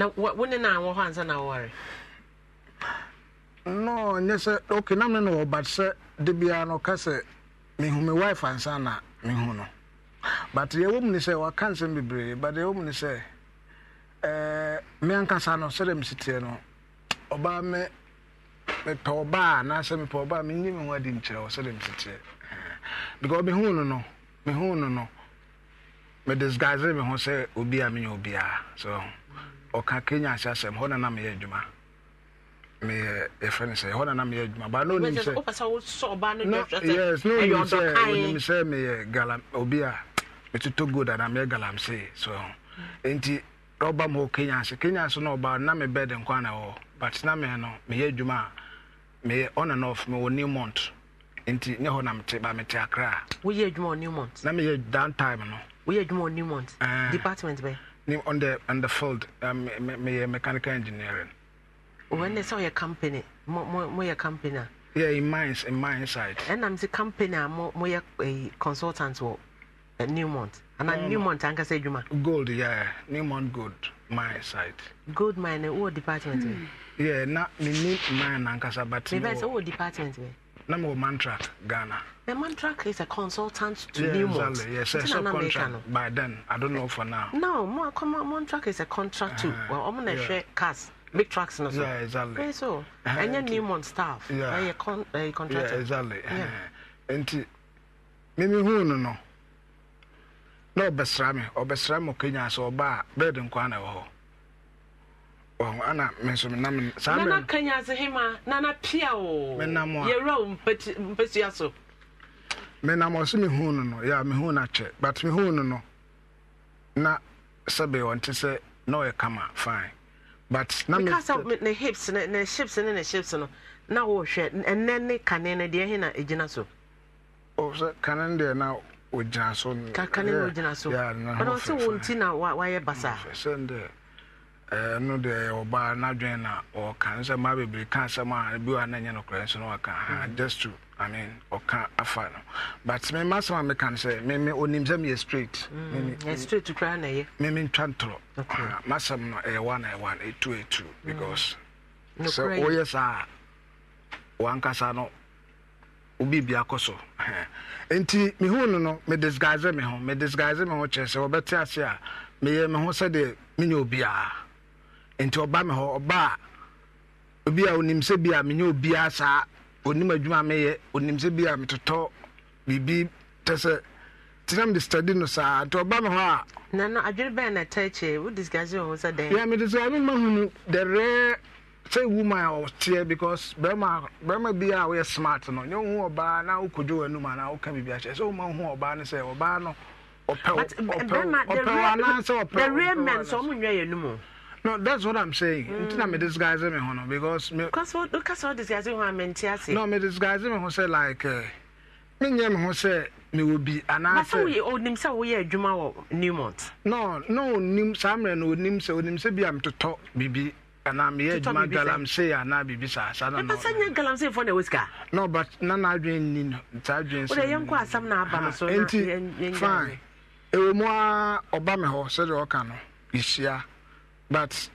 now, what wouldn't I want hands and I worry? No, yes, okay, no, no, no, but sir, the piano cassette, me who my wife and son, me who no. But the woman is a cancer, be brave, but the woman is a me and Cassano, said him sitting on Obama, me me, me ho no no me disguise me ho sɛ obi a menyɛ obiara so ɔka kenya ase asɛm hɔ na na meyɛ adwuma meyɛ yɛfrɛ no sɛ hɔ na na meyɛ adwuma ba na onim sɛyes na onim sɛ onim sɛ meyɛ galam obi a metotɔ gold ana meyɛ galamsee so enti ɔba m hɔ kenya ase kenya ase na ɔba na me bɛde nkwa na ɛwɔ but na me no meyɛ adwuma a meyɛ on mewɔ new month nti nyɛ hɔ na mete ba mete akra woyɛ adwuma ɔ newmont na meyɛ downtime no woyɛ adwuma ɔ newmont uh, department bɛ on the on the field um, meyɛ mechanical engineering wɔn ne sɛ ɔyɛ company moyɛ company a yeah in mines in mine site. ɛnam sɛ company a moyɛ eh, consultant wɔ eh, newmont ana um, anka ankasa adwuma gold yeah newmont gold mine site. gold mine wɔ department bɛ hmm. yeah na menim mine nankasa but mebɛ sɛ wɔ department bɛ na mewɔ mantrak ghana The mantrak is a consultant to yeah, Newmont. Exactly. Yes, it's a contract. By then, I don't know for now. No, ma, come mantrak is a contract uh too. Uh-huh. Well, I'm gonna yeah. share cars, big trucks, and so. Yeah, exactly. Yeah, so, uh-huh. and your Newmont staff, yeah, uh, con- uh, Yeah, exactly. Yeah. Uh-huh. and huh mimi who no no. bestrami or me, Kenya so ba, bed in na wo. ana mɛnso menam saa nana kanya ase hema nana pia o menam a yɛwura wo mpɛtua so menam ɔse mehu no no yɛ mehu no akyɛ but mehu no no na sɛbe ɔnte sɛ na ɔyɛ kama fine but na me kasa ne hips ne ne hips ne ne hips no na wo hwɛ ɛnɛ ne kane ne deɛ he egyina so o sɛ kane deɛ na ogyina so kane na ogyina so ɔno sɛ wo nti na wayɛ basa sɛ ndɛ ɛno deɛ ɔbaa n'adwene na ɔka nsɛ mmaa bebree ka asɛm a bi wa no nokorɛ nso na ɔka ha mhm. just to i mean ɔka afa no but me ma asɛm a meka no sɛ meme onim sɛ meyɛ straight mm, straight koraa na ɛyɛ meme ntwa ntorɔ masɛm no ɛyɛ one ɛyɛ one ɛtu ɛtu mm. because sɛ woyɛ saa a wankasa no obibi akɔ so nti mehu no no medisguise me ho medisguise me ho kyerɛ sɛ wɔbɛte ase a meyɛ me ho sɛdeɛ menyɛ obiara nti ɔba mi hɔ ɔba a obi a onim sɛ bi a menyɛ obiara saa onim adwuma meyɛ onim sɛ bi a metotɔ biribi tɛ sɛ tena mede study no saa nti ɔba me hɔ a nano adwene bɛn na ta kyɛ wo disgase wɔ ho sɛ dɛn yɛ mede sɛ mema hunu the rare sɛ woman a ɔteɛ because bɛrima bɛrima bi a woyɛ smart no nyɛ wohu ɔbaa na wokɔdwo w'anum anaa woka biribi akyɛ sɛ woma wohu ɔbaa no sɛ ɔbaa no ɔpɛw ɔpɛw anaasɛ ɔpɛw the real men sɛ ɔmo nwɛ yɛ no mu no that's what i'm saying mm. nti na me disguise me ho no because me because what because what disguise ho am ase no me disguise me ho say like eh, me nyɛ me ho sɛ mewɔ bi anaasɛ onim oh, sɛ woyɛ adwuma wɔ newmont no na onim saa mmerɛ no onim sɛ onim sɛ bi a metotɔ biribi anaa meyɛ adwuma galamsey anaa biribi saa saa nanɛpɛ sɛ nyɛ galamseyfoɔ na ɛwɔ sika no but na naadwen nni no saa adwen sɛ yɛnkɔ asɛm no aba no ah, so nti fine ɛwɔ mu a ɔba me hɔ sɛdeɛ ɔka no yɛhyia but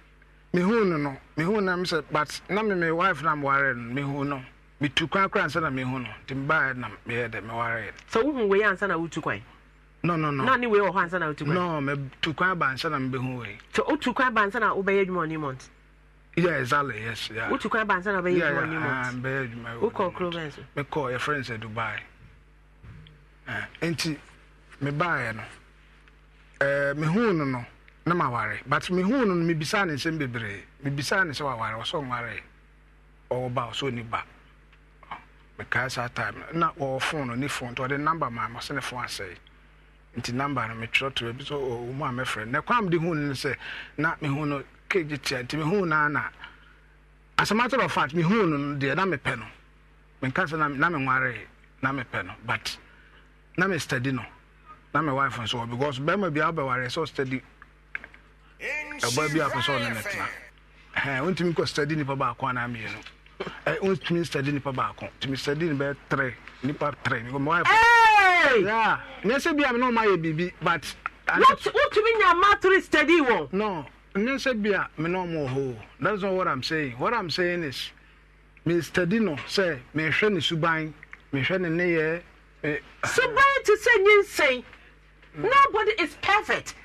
mehu no no mehu na me sɛ but na me me wife na meware no mehu no metu kwan kora ansa na mehu no nti mebaɛ na meyɛ dɛ mewareɛ no sɛ wohu wei ansa na wotu kwan e? no no no na ne wei wɔ hɔ ansa na wotu kwan e? no metu kwan ba ansa na mebɛhu wei sɛ wotu kwan ba ansa na wobɛyɛ adwuma ɔne mont yeah exactly yes yeah wotu kwan ba ansa na wobɛyɛ adwuma ɔne mont mbɛyɛ call wokɔ kuro bɛn so mekɔ yɛfrɛ no sɛ dubai eh, nti mebaɛ no mehu no no na ma ware but me hu no me bisa ne nsɛm bebree me bisa ne sɛ waware ɔsɔ nware ɔwɔ ba ɔsɔ ni ba time na o phone no ni phone to the number ma ma phone ne fon asɛe nti number no metwerɛtwerɛ so sɛ ɔmu a friend. na kwan mede hu no na mehu no kegye tia nti mehu na. na as a matter of fact mehu no no na me no menka sɛ na menwaree na mepɛ no but na me study no na me wife nso wɔ because bɛrima biara wobɛwareɛ so ɔstudy ɛbɔ bi apɛ sɛ ɔne ne tena wontumi kɔ study nipa baako anaa mmienu wontumi study nipa baako tumi study ne bɛyɛ trɛ nipa trɛ nyɛ sɛ bia me ne ɔmayɛ biribi but wotumi nya matore study wɔ no nyɛ sɛ bia me ne ɔmɔ hɔ that's not what i'm saying what i'm saying is me study no sɛ mehwɛ ne suban mehwɛ ne nneyɛ suban te sɛ nyinsɛn nobody is perfect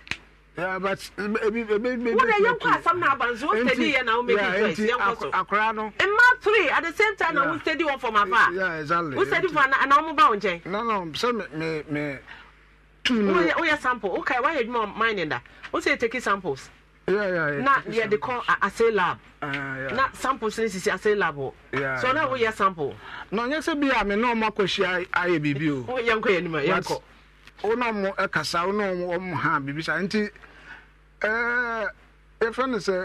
Yeah, wọ́n yẹ are asam náà abansi wọ́n steady yẹ na wọ́n make it first yẹn kọ́ so akora no mma three at the same time I'm wọ́n one for my father. Yeah, exactly. Who ana ana wọ́n bá wọn jẹ. nana sẹ mi mi mi me ni. wọ́n yẹ sample okay why you edwuma mine that? wọ́n say take samples. Yeah, yeah, yeah. na they call a ase lab yeah. na samples ni sisi ase lab Yeah. so now we yẹ sample. na n yẹ sẹ bi a mi náà I akọ ṣe ayé bíbí o. wọ́n yẹ nkọ yẹ wọn ọmụ eh, kasa wọn ọmụ ha bibisa nti yɛfrɛ no sɛ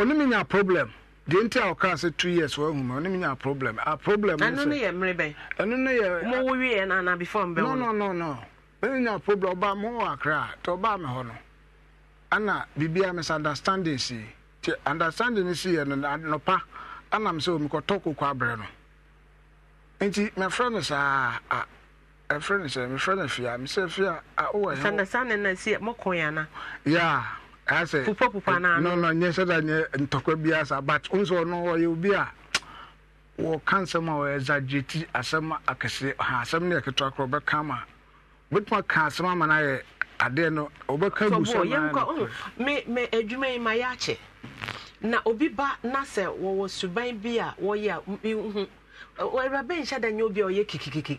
ɔne menya problem di nti a ɔkaa sɛ two years wahu ma ɔne menya problem a problem ɛno enunu yɛ mmerɛ bɛn ɛno no yɛ mowo wieɛ no before mbɛ no no no no menya problem mụ mowɔ akra a nti ɔbaa me hɔ no m sị misunderstanding si ti understanding si yɛ no nɔpa anam sɛ ɔmekɔtɔ kokɔ abrɛ nti mɛfrɛ no saa ah, ah, ɛfrɛ no sɛ mefrɛ no a mesɛ fie a wowɔyɛ sɛ da nyɛ ntɔkwa biara saa but ɔno ɔyɛ obi a wɔka nsɛm a wɔyɛ zagyeti asɛm akɛseɛ ha asɛm no yɛketewa korɔ wobɛka ma ka asɛm ama no ayɛ adeɛ no wobɛka bu sɛ adwuma yi ma yɛakyɛ na obi ba na sɛ wɔwɔ suban bi a wɔyɛ a mehu nhyɛ da nyɛ obi a ɔyɛ kikikiki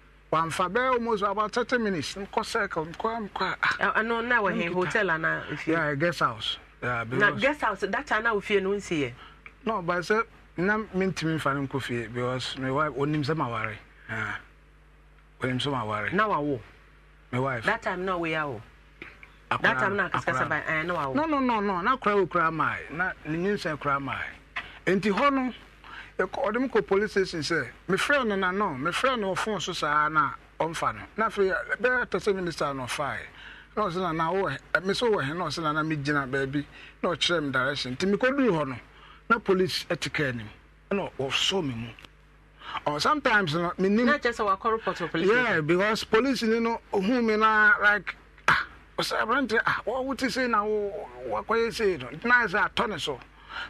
wamfa bɛyɛ almost about thirty minutes nkɔ circle nkɔ nkɔ a. ɛnu na wɔ hɛn hotel ana ofie. yeah guest house. Yeah, na guest house that time na ofie no nsi yɛ. no but sɛ na mi ntumi nfa ne nkɔ fie because my wife onim sɛ ma ware onim sɛ ma ware. na wa wo. my wife. that time na oye awo. akora that time na kasikasa ba ɛn eh, na wa wo. no no no no na kura wo kura maa na ne nyinsɛn kura maa nti hɔ no. ɔde mu kɔ police station sɛ mefrɛ no nano mefrɛ no ɔfon so saa na ɔmfa no na afei bɛyɛ tɛ sɛ minister no ɔfae na ɔsɛ nana wowɔ me sɛ wowɔ he na ɔsɛ nana megyina baabi na ɔkyerɛ me direction nti mekɔduru hɔ no na police ati kaa anim ɛna wɔsɔ me mu or sometimes no me nim not just our report to police yeah because police you know who me na like ah o ɔsɛ aberante ah wɔwote say na wɔkɔyɛ sei no na ɛsɛ atɔ ne so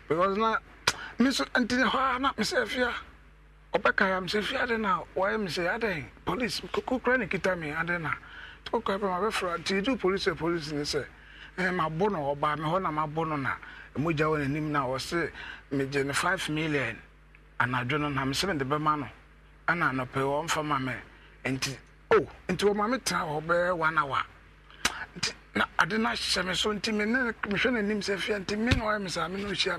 because na nso nti hɔ a na mesɛ fia ɔbɛka ya mesɛ fia de na wɔyɛ mesɛ adịghị polisi kokokora ne kita na tokokora pɛ mabɛfra nti du police a polisi ne sɛ mabo no ɔbaa na mabo no na mogya wɔ n'anim na ɔse megye ne five million anadwo no na mesɛ bɛma no ma nti o nti tena na ade no ahyɛ me so nti mehwɛ n'anim sɛ fia nti me na wayɛ me saa hyia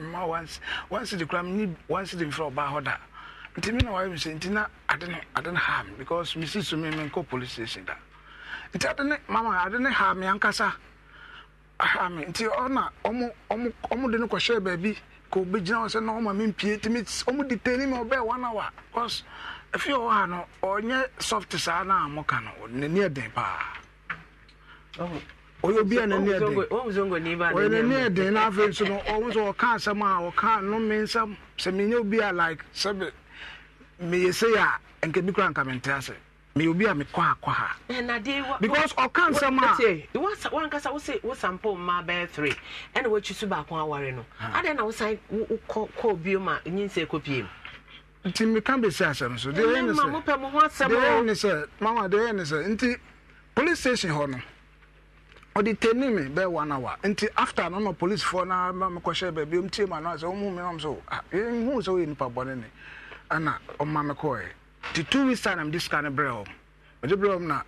kora mfrɛ ɔbaa hɔ da nti me na wayɛ sɛ nti na ade no ade ha me because mesi so da nti mama ade ha me aha me nti ɔna ɔmo de no kɔhyɛ baabi hɔ sɛ na ɔma mempie nti ɔmo detani me ɔbɛɛ one hour because ɔwɔ ha no ɔnyɛ soft saa na a moka ɔyɛ obi a n'ani ɛden ɔyɛ n'ani ɛden na afei nso no ɔmo nso ɔka asɛm a ɔka nnome nsɛm sɛ menyɛ obi a like sɛbi meyɛ sei a nka bi kora nka mente ase meyɛ obi a mekɔ akɔ ha eh, because ɔka nsɛm a wankasa wose wosampɔ mma bɛyɛ three ɛna woakyi so baako aware no adɛn na wosan wokɔ bio ma nyinsɛ kɔ pie mu nti meka bɛsi asɛm so deɛ ɛne sɛ deɛ ɛne sɛ mama deɛ ɛne sɛ nti police station hɔ no ɔde tani mi bɛɛ one hour nti after no na police foɔ na mekɔhyɛ baabi ɔm tie ma no sɛ ɔmu ah, me eh, nam so hu sɛ woyɛ nipa bɔne ne ana ɔma me kɔɛ nti two weeks time mede sika no brɛ ɔm mede brɛ ɔm na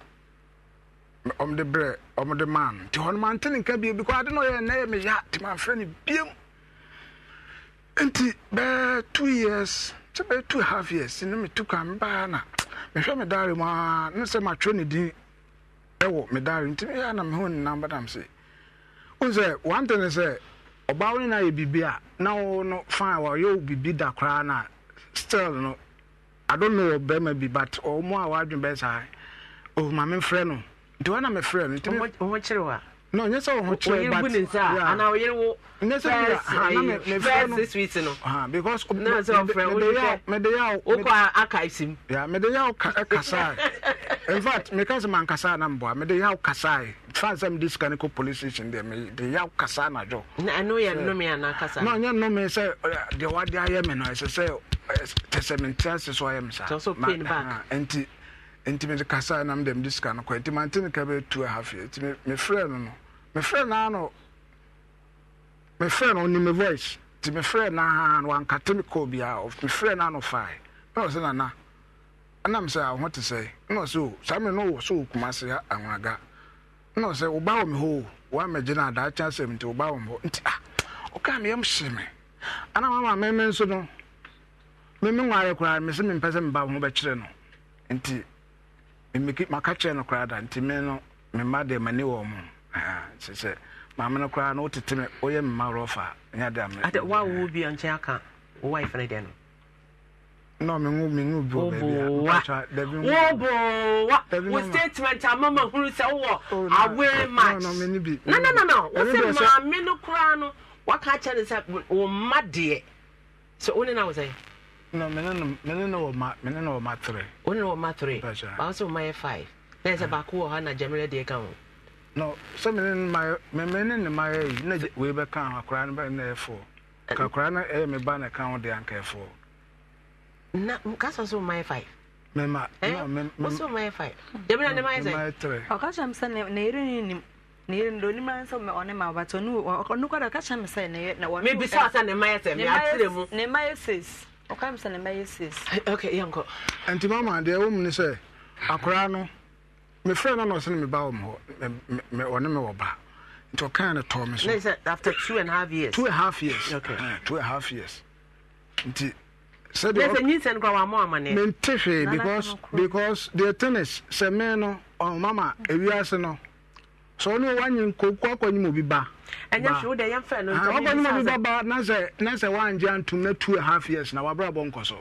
ɔmde brɛ ɔmde maa no nti hɔno mante ne nka bio bikɔ ade na ɔyɛ nnɛ yɛ meya nti mamfrɛ no biam nti bɛɛ two years kyɛ bɛɛ two half years ne metu kan mbaa na mehwɛ me dare mu a ne sɛ matwerɛ ne din ɛwɔ medare nti ɛyɛ na me ho nenam badam se wo sɛ wante ne sɛ wo ne no ayɛ biribi a na wo no fine wɔyɛ wo biribi da koraa no still no i don't know ɔbɛrima bi but ɔmo a wɔadwen saa oh no nti wɔna mefrɛ no nti no nyɛ sɛ wo ho kyerɛ but ne nsa ana wo yere wo nyɛ sɛ na me fɛ no sweet no ha because na sɛ wo fɛ wo fɛ me de yaw wo kɔ aka isim ya me de yaw ka kasa in fact me ka sɛ man kasa na mboa me de yaw kasa fa sɛ me dis kan ko police station de me de yaw kasa na jo na no yɛ no me ana kasa no nyɛ no me sɛ de wa de ayɛ me no sɛ sɛ tɛsɛ me ntɛsɛ so ayɛ me sa so pain back enti enti me de kasa na me de me dis kan ko enti man tin ka be 2 half year enti me frɛ no no mefrɛ naano mefrɛ no onim voice nti mefrɛ naa no wankate me kɔɔ biaa mefrɛ naano fae ɛwɔ sɛ nana ɛnam sɛ awo ho te sɛ na ɔsɛ o oh, saa no wɔ sɛ wɔkuma se awaga na ɔsɛ wo wɔ me hɔ o woamagye no adaakye asɛm nti wo wɔ me hɔ nti ah, a meyɛm hye me ana mama meme nso no meme nware koraa me sɛ mempɛ sɛ meba ho bɛkyerɛ no nti maka kyerɛ nti me no m'ani kyerɛ maame no koraa na wotete me woyɛ mema rɔfa ɛnyɛ de ame wa nkyɛn aka wo wife no deɛ no statement ama ma hunu sɛ wowɔ oh, away match no no no no wo sɛ maame no koraa no waka akyɛ ne sɛ wo mma deɛ sɛ wo ne na wo sɛ no mene ne wɔ ma mene ne ma tere ma tere ba sɛ ma ah. baako wɔ hɔ na gyamere deɛ ka ho No, some in my men in my age, no way back on a crown by an air for. Cacrana air me ban account the anchor for. No, Cassa so my five. Mema, no, Mema, so my five. Debra and my three. I'll catch him sending near him. Near the man some on him, but on you or no, I'll catch him saying, no, maybe Sassa my three. Nema says, Okay, I'm sending my says. Okay, uncle. And to mamma, the woman say, Acrano me friend na ɔsɛ no ba wɔ m me ɔne me wɔ ba nti ɔkaa no tɔɔ me so after two and a half years two and a half years okay. uh, two and a half years nti mente hwee because because the tennis sɛ me no ɔmama ewiase no sɛ ɔne wanye nkɔku akɔnyim obi ba ah, ɔkɔnyim obi ba ba na sɛ na sɛ wangye antom na two and a half years na wabrabɔ nkɔ so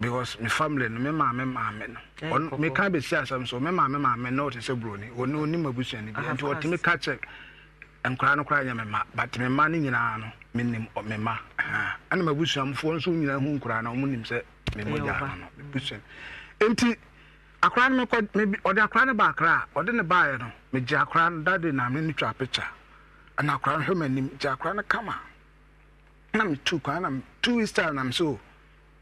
because my family no me maame maame no ɔno eh, me ka besi asɛm so me maame maame no ɔte sɛ buroni ɔno onim abusua no bi nti ɔtumi ka kyɛ nkora no koraa nyɛ me ma but me ma no nyinaa no menim me ma ɛna mabusuamfoɔ nso nyinaa hu nkora no ɔmo nim sɛ me mogya no mebusua nti akora no mekɔ mebi ɔde akora no ba akra a ɔde ne baeɛ no megye akora no dade na me no twa picture ɛna akora no hwɛ m'anim gye akora no kama na metu kwan na two weeks time na me so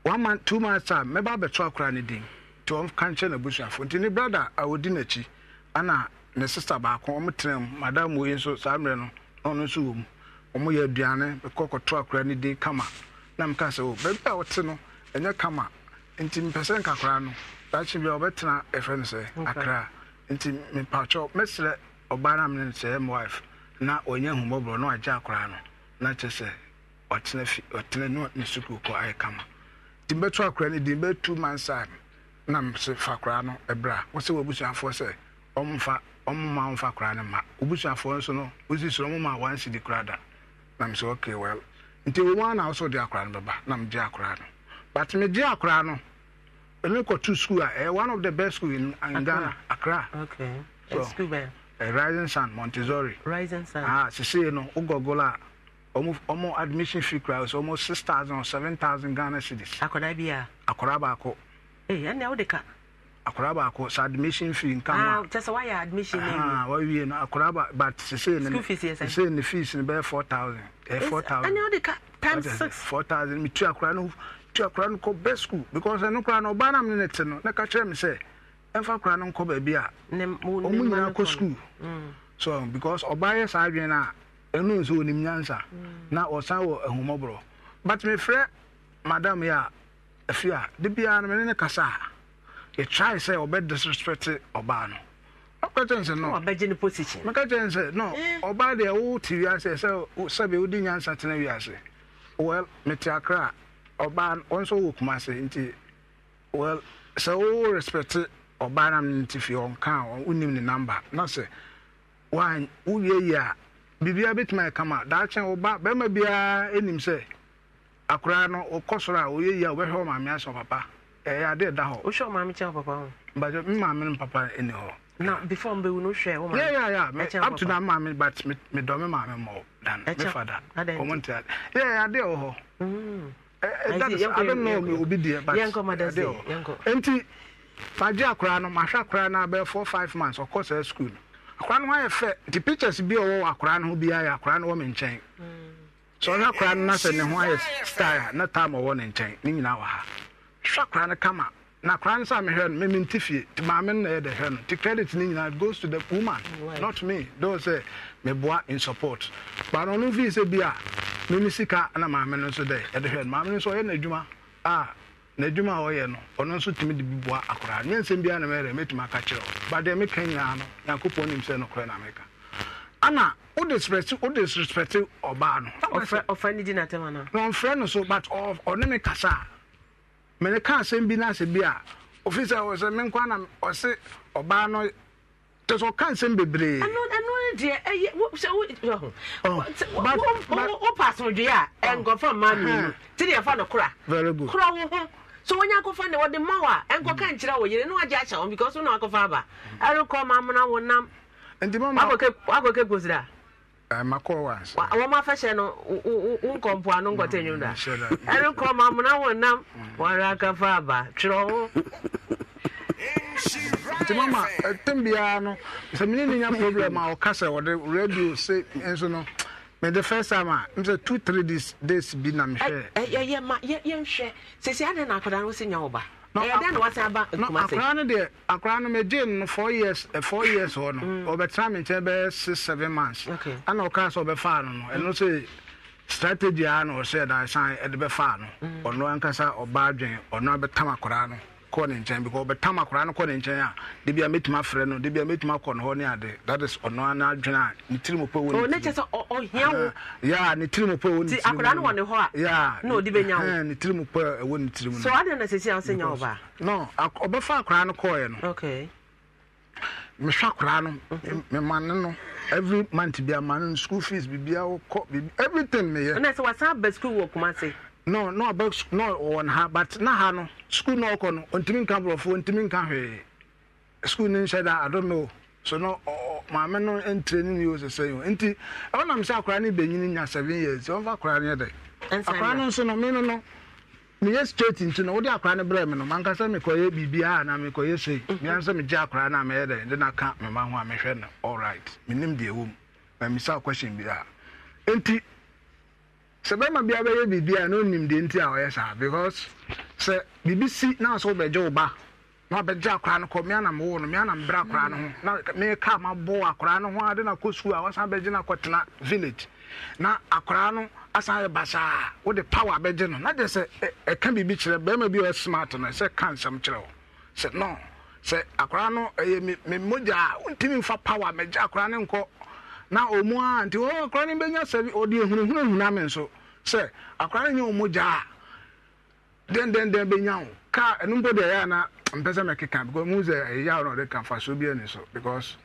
one month, two months time, mmɛba abɛto akora ne din nti wɔn ka nkyɛn na busuafo nti ne brada a odi n'akyi ana ne sista baako wɔn tena mu madam wo yi nso saa mmerɛ no na ɔno nso wɔ mu wɔn yɛ aduane kɔ kɔto akora ne din kama na mka sɛ o oh, baabi a wɔte no ɛnyɛ kama nti mpɛsɛ nkakora no daakye bi a wɔbɛtena ɛfrɛ no sɛ akra nti mpakyɛw mɛsrɛ ɔbaa na mene sɛ ɛm wife na ɔnyɛ ahummɔborɔ na wagye akora no na kyerɛ sɛ ɔtena fi ɔtena ne sukuu kɔ ayɛ kama nti mbɛto akora no din bɛyɛ two months a nam se fa koraa no ɛbrɛ a wɔsɛ wɔ abusuafoɔ sɛ ɔmfa ɔmoma ɔmfa koraa no ma obusuafoɔ nso no wosi soro ma a si di koraa da nam sɛ okay well nti wɔn a na wɔsɛ ɔde akora no bɛba nam gye akora no but me gye akora no ɛmi kɔtu school a eh, ɛyɛ one of the best school in Ghana Accra okay so ɛyɛ eh, rising sun Montessori rising sun ah sise no ogɔgɔla a. ɔmo admission fee kura ɔmo six thousand or seven thousand ghana cedis. akwadaa bi a. akwadaa baako. ee eh, ɛnna ɛwɔ de ka. akwadaa baako sa admission fee nka mu a. Ah, kyɛ sɛ wayɛ admission ah, na ewie. aa wawie no akwadaa ba but sese ne school fees yɛ sɛ. sese ne fees ne bɛyɛ four thousand. ɛɛ eh, four thousand. ɛnna ɛwɔ de ka times six. four thousand mi tu akwadaa no tu akwadaa no kɔ school because ɛnu kura no ɔbaa nam ne ne te no ne ka kyerɛ mi sɛ ɛnfa akwadaa no nkɔ baabi a. ne mu ne mu ɔmo nyinaa kɔ school. Mm. so because ɔbaa yɛ saa adwene na ɛnu nso onim nyansa mm. na ɔsan wɔ ahumɔborɔ but mefrɛ madam yi a afi a de biara no mene ne kasa a yɛtrae sɛ ɔbɛdisrespect ɔbaa no ɔka kyɛn sɛ no meka kyɛn sɛ no eh. ɔbaa deɛ wote wiase sɛ sɛbe wodi nyansa tena wiase well mete akra a ɔbaa ɔnso wɔ kuma nti well sɛ wowo respect ɔbaa nam no nti fie ɔnka a wonim ne number na sɛ wowie yi a biribiara bɛtumi akama daakye woba bɛrima biara anim sɛ akoraa no wokɔ soro a woyɛ yi a wobɛhwɛ maame asɛ papa ɛyɛ ade da hɔ wohwɛ maame kyɛ papa ho mbagye mmaame no papa ɛni hɔ na before mbɛwu no wohwɛ wo maame yɛ yɛ up to na maame but medɔme maame mmɔ dan mefa da ɔmo nte ade yɛ yɛ ade wɔ hɔ ade mm. no obi deɛ but ade wɔ nti akora no ho ayɛ fɛ nti pictures bi a ɔwɔ akora no ho biara yɛ akora no wɔ me nkyɛn sɛ ɔhwɛ akora no na sɛ ne ho ayɛ style na time ɔwɔ ne nkyɛn ne nyinaa wɔ ha hwɛ akora no kama na akora no sɛ mehwɛ no meme nte fie nti maame no na yɛ de hwɛ no nti credit no nyinaa goes to the woman not me though sɛ boa in support but ɔno fii sɛ bi a meme sika na maame no nso dɛ yɛde hwɛ no maame no nso ɔyɛ no adwuma ah, na adwuma a ɔyɛ no ɔno nso tumi de bi boa akora nye nsɛm biara na mɛyɛ mɛtumi aka kyerɛ wo ba deɛ meka nyinaa no nyankopɔn nim sɛ nokorɛ na meka ana wode sprɛte wode sprɛte ɔbaa no na ɔmfrɛ no so but ɔne me kasa a mene ka asɛm bi no asɛ bi a ɔfiri sɛ ɔsɛ menkwa na ɔse ɔbaa no tɛ sɛ ɔka nsɛm bebree deɛ ɛyɛ sɛ wo oh, wopɛ asomdwee a oh. ɛnkɔfa mmaa mmienu uh-huh. te deɛ ɛfa no kora kora wo ho so wɔnyɛ akɔfa ne wɔde ma wo a ɛnkɔka nkyerɛ wɔ yere ne wagye akyɛ wɔn because wona wakɔfa aba ɛrekɔ ma amona wo nam wakɔkɛ kosira makɔɔ wa wɔn afɛhyɛ no nkɔ mpoano nkɔtɛ nwom da ɛrekɔ ma amona wo nam wɔre akɔfa aba twerɛ ho nti mama ɛtɛm eh, biara no sɛ mene ne nya problem a ɔka sɛ wɔde radio se nso no me the first time a m sɛ two three days days bi na mehwɛ yɛyɛ ma yɛnhwɛ sɛsi adɛn na akwadaa no wosi nya wo ba ɛdɛn na wase aba kumase akwadaa no deɛ akwadaa no megye no four years uh, four years hɔ no mm. ɔbɛtena me nkyɛn bɛyɛ six seven months ana ɔkaa sɛ ɔbɛfaa no no ɛno sɛ strategy a na ɔsɛ da san ɛde bɛfaa no mm. ɔno ankasa ɔbaa adwen ɔno abɛtam akwadaa no kɔ ne nkyɛn because bɛtam akwaraa no kɔ ne nkyɛn a debi a mɛtumi afrɛ no debi a mɛtumi akɔ ne hɔ ne ade that is ɔno ana adwene a ne tiri mu pɛ wɔ ne oh, tiri mu. ne kyɛ sɛ ɔhia wo. Ah, ya ne tiri mu pɛ wɔ ne tiri mu. ti akwaraa no wɔ ne hɔ a. ya na odi bɛ nya wo. ne tiri mu pɛ wɔ ne tiri mu. so adi na sisi an nya ɔba. no ɔbɛfa akwaraa no kɔɔ yɛ no. okay. mehwɛ akwaraa no memane no every month bi amane no school fees biribiara wokɔ everything meyɛ. ɛnna sɛ wasan abɛ school wɔ kumase. no na ɔbɛ ha but na ha no sukuu na ɔkɔ no ntumi nka borɔfo ntumi nka hwee sukuu ni nhyɛ da adome so na ɔ maame no ntire ne neo sɛsɛ yi o nti ɔnam sɛ akwaraa nya seven years akwaraa akwaraa no nso no no no straight nti no akwaraa brɛ mhm. no a na sei akwaraa dɛ na ho a no deɛ question bi a sɛ bɛrima bia bɛyɛ biribi a na onim deɛ nti a ɔyɛ saa because sɛ biribi si na sɛ wobɛgye wo ba na wabɛgye akwaraa no kɔ mmea nam wo no mmea nam brɛ akwaraa no ho na meka mabɔ akwaraa no ho na kɔ sukuu a wasan bɛgye no akɔtena village na akwaraa no asan yɛ basaa wode power no na deɛ sɛ ɛka biribi kyerɛ bɛrima bi ɔyɛ smart no sɛ ka nsɛm kyerɛ wo sɛ no sɛ akwaraa no ɛyɛ me mogya na ɔmu a nti ɔ akora no bɛnya sɛ ɔde ahunahunahuna me nso sɛ akora no nyɛ ɔmu gyaa dɛndɛndɛn bɛnya wo kaa ɛno mpo deɛ ɛyɛ na mpɛ sɛ mɛkeka because mu sɛ ɛyɛ wo na ɔde ka fa so bi ani so because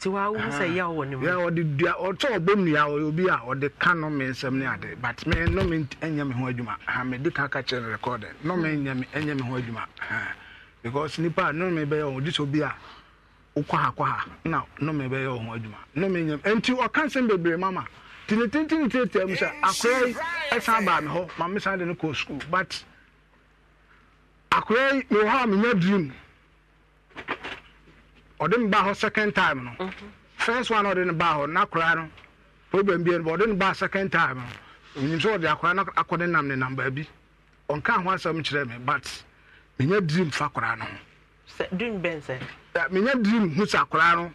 ɔde dua ɔbɔ obi a ɔde ka no nsɛm ne ade but ɛnyɛ ho adwuma ha ka no hmm. ɛnyɛ ho adwuma because nipa bɛyɛ a wokɔha kɔha na nome bɛyɛ ya ọhụrụ adwuma enyem nyam ọ ɔka nsɛm bebree mama nti ne tentenetietia mu sɛ eh, akora yi ɛsan baa m hụ ma mesan de no kɔɔ sukuu but akora yi mewɔ hɔ a menya dream ọ dị m baa hụ second time no mhm. first one ɔde no baa hɔ na akora no problem bia no ɔde no baa second time no onyim sɛ ɔde akora no akɔde nam ne nam baabi ɔnka ho asɛm kyerɛ me but menya dream fa akora no ho dream bɛn sɛ. menya dream hu sɛ akwaraa no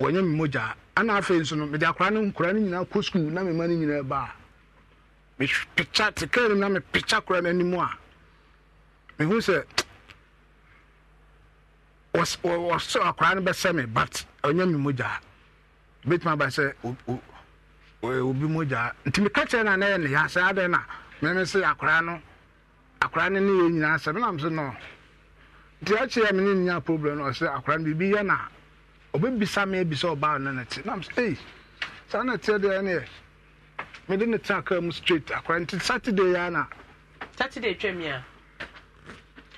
wɔnyɛ mi mogya ana afei nso no mede akwaraa no nkwaraa no nyinaa kɔ sukuu na ma no nyinaa baa mepikya tekaa no na mepikya koraa no anim a mehu sɛ wɔsɛ akwaraa no bɛsɛ me but ɔnyɛ mi mogya bɛtumi aba sɛ obi mogya nti meka kyerɛ no a na yɛ ne yɛ asɛ adɛn na meme sɛ akwaraa no akwaraa no ne yɛ nyinaa sɛ menam so no nti akyerɛ me ne nya problem no ɔsɛ akwara no biribi yɛ na ɔbɛbisa me abisa ɔbaa no no te nam sɛ ei saa na teɛ deɛ neɛ mede ne tena kaa mu straight akwara nti saturday yɛ na saturday twam a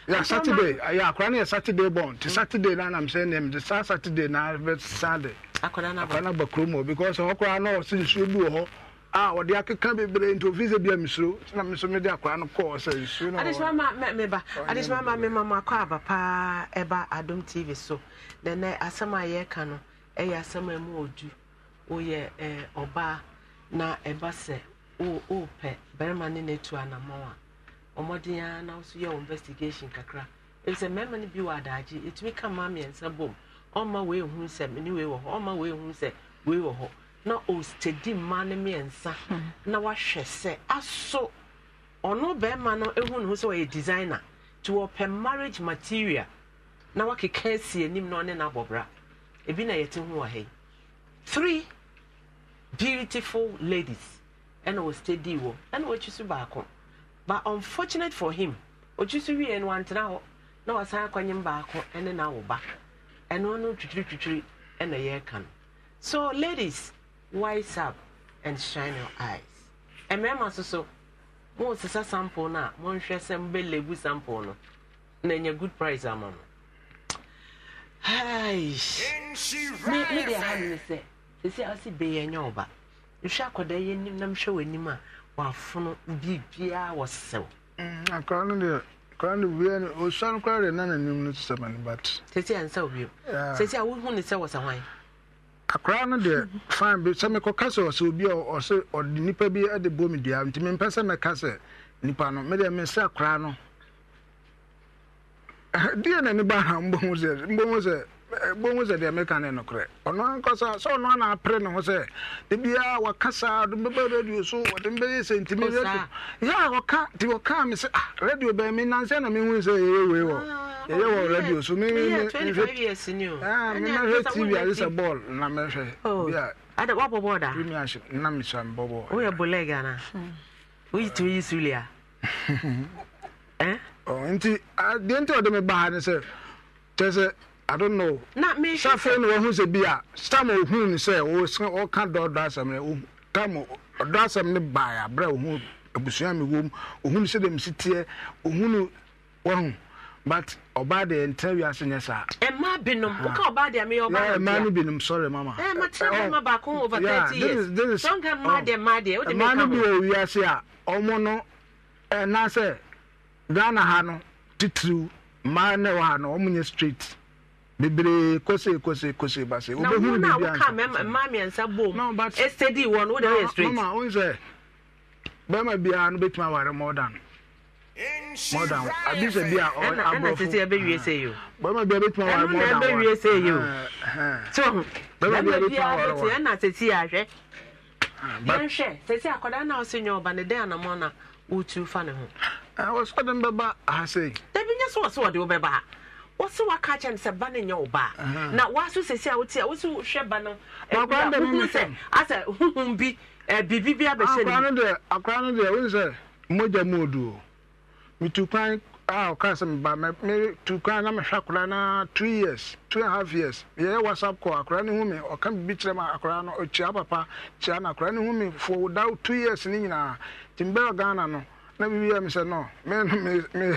yɛ saturday yɛ akwara no yɛ saturday bɔn nti saturday no anam sɛ neɛ mede saa saturday na bɛsa de akwara no aba kurom hɔ because ɔkoraa na ɔse nsuo bi wɔ hɔ a wɔde akeka bebree nti ofi sɛ bia mesuro na me nso mede akwaa no kɔɔ sɛ nsuo no adesomameba adesoma ma me mama akɔ aba paa ɛba adom tv so na na asɛm a yɛreka no ɛyɛ asɛm a mu ɔdu woyɛ ɔbaa na ɛba sɛ wopɛ barima ne no atu anamɔn a ɔmmɔden a na wo so yɛ investigation kakra ɛfi sɛ mmarima no bi wɔ adaagye ɛtumi ka ma mmiɛnsa bom ɔmma wei hu sɛ mene wei wɔ hɔ ɔmma wei hu sɛ wei wɔ hɔ na ɔstedi mmaa no mmiɛnsa hmm. na wahwɛ sɛ aso ɔno bɛrima no ehu ne ho sɛ ɔyɛ designer to open marriage material na wakeka asi anim na ɔne n'abɔbra ebi na yɛte ho wɔ ha yi three beautiful ladies ɛna steady wɔ ɛna wɔakyi so baako but unfortunate for him ɔkyi so wie no wantena hɔ na wasan akɔnyem baako ɛne n'awoba ɛno no twitwiritwitwiri ɛna yɛreka no so ladies. wise up and shine your eyes mmarima nso so wɔresesa sample no a wɔnhwɛ sɛ mbɛlɛbu sample no na ɛnyɛ good price ama no me me ha hand me say. a wɔsi bɛyɛ ɛnyɛ ɔba nhwɛ akɔda yɛ anim na mhwɛ w'anim a wafono biribiara wɔsɛw akɔra no deɛ akɔra no wia no ɔsua no koraa deɛ na n'anim no sɛ ma no bat sɛsi a nsa wo bio sɛsi a wohu ne sɛ akwaraa no deɛ fan bi sɛ mekɔka sɛ ɔsɛ obi a ɔsɛ ɔde nipa bi de bɔ me dua nti mempɛ sɛ mɛka sɛ nipa no mede mesɛ akwaraa no deɛ na ne ba ha mbɔ ho sɛ mbɔ sɛ bonwu sɛ deɛ meka ne nokorɛ ɔno ankasa sɛ ɔno na apere ne ho sɛ dabiaa wɔka saa de mbɛbɛ radio so wɔde mbɛyɛ sɛ ntimi radio yɛ a wɔka nti wɔkaa me ah radio be me nansɛ na mehu sɛ yɛyɛ wei wɔ yɛyɛ wɔ radio so mehwɛ tv ade sɛ ball na mɛhwɛ bia ada wa bɔbɔ da mi na mi sɛ bɔbɔ o yɛ bɔlɛ gana o yi tu yi sulia ɛn ɔ nti deɛ nti ɔde baa ne sɛ kyɛ I don't know. Na me safe no hu se bia stam ohun ni se wo se o ka do do asem ne o tam do asem ne ba abra ohun abusua me wom ohun se dem sitie ohun wo but ọba de ntẹ wi ase nyɛ saa. ẹ má binom o ka ọba de ẹ mi ọba de. ẹ má ni binom sọrọ mama. ẹ ma tí wọn baako over thirty years don ka má de ma de o de mi ka mo. ẹ má ni bi o wi ase a ọmọ no ẹ n'asẹ ghana ha no titiriw mmaa ne wa ha no ọmọ nyɛ straight. bebree kose kose kose base obehuru bi na mmaa mmiɛnsa bom ɛsɛdi wɔ no e wode yɛ straight mama wɔn sɛ bɛrima biara no bɛtumi wari more than more than abi sɛ bi a ɔyɛ aborɔfo ɛna tete ɛbɛwie sɛ yi o bɛrima biara bɛtumi wari more than one ɛna ɛbɛwie sɛ yi o so bia biara bɛtumi aware one ɛna tete na ɔsɛ nyɛ ɔba ne dɛn na wotu fa ne ho ɛwɔ uh, sɔden bɛba ahasɛ yi dabi nyɛ ha wɔsi waka kyɛn sɛ ba ne nyɛ wo na waso sisi a wotia wosi hwɛ ba no ɛhunu sɛ asɛ huhun bi bibi bi abɛhyɛ ne. akora no deɛ akora no deɛ wosi sɛ mogya mu odu o mitu kwan a ɔka sɛ mba mɛ tu kwan na mehwɛ akora na two years two and a half years yɛyɛ whatsapp call akora ne hu mi ɔka bibi kyerɛ mu akora no ɔkyia papa kyia na akora ne hu mi fo da two years ne nyinaa timbɛ ghana no na bibi yɛ mi sɛ no me me me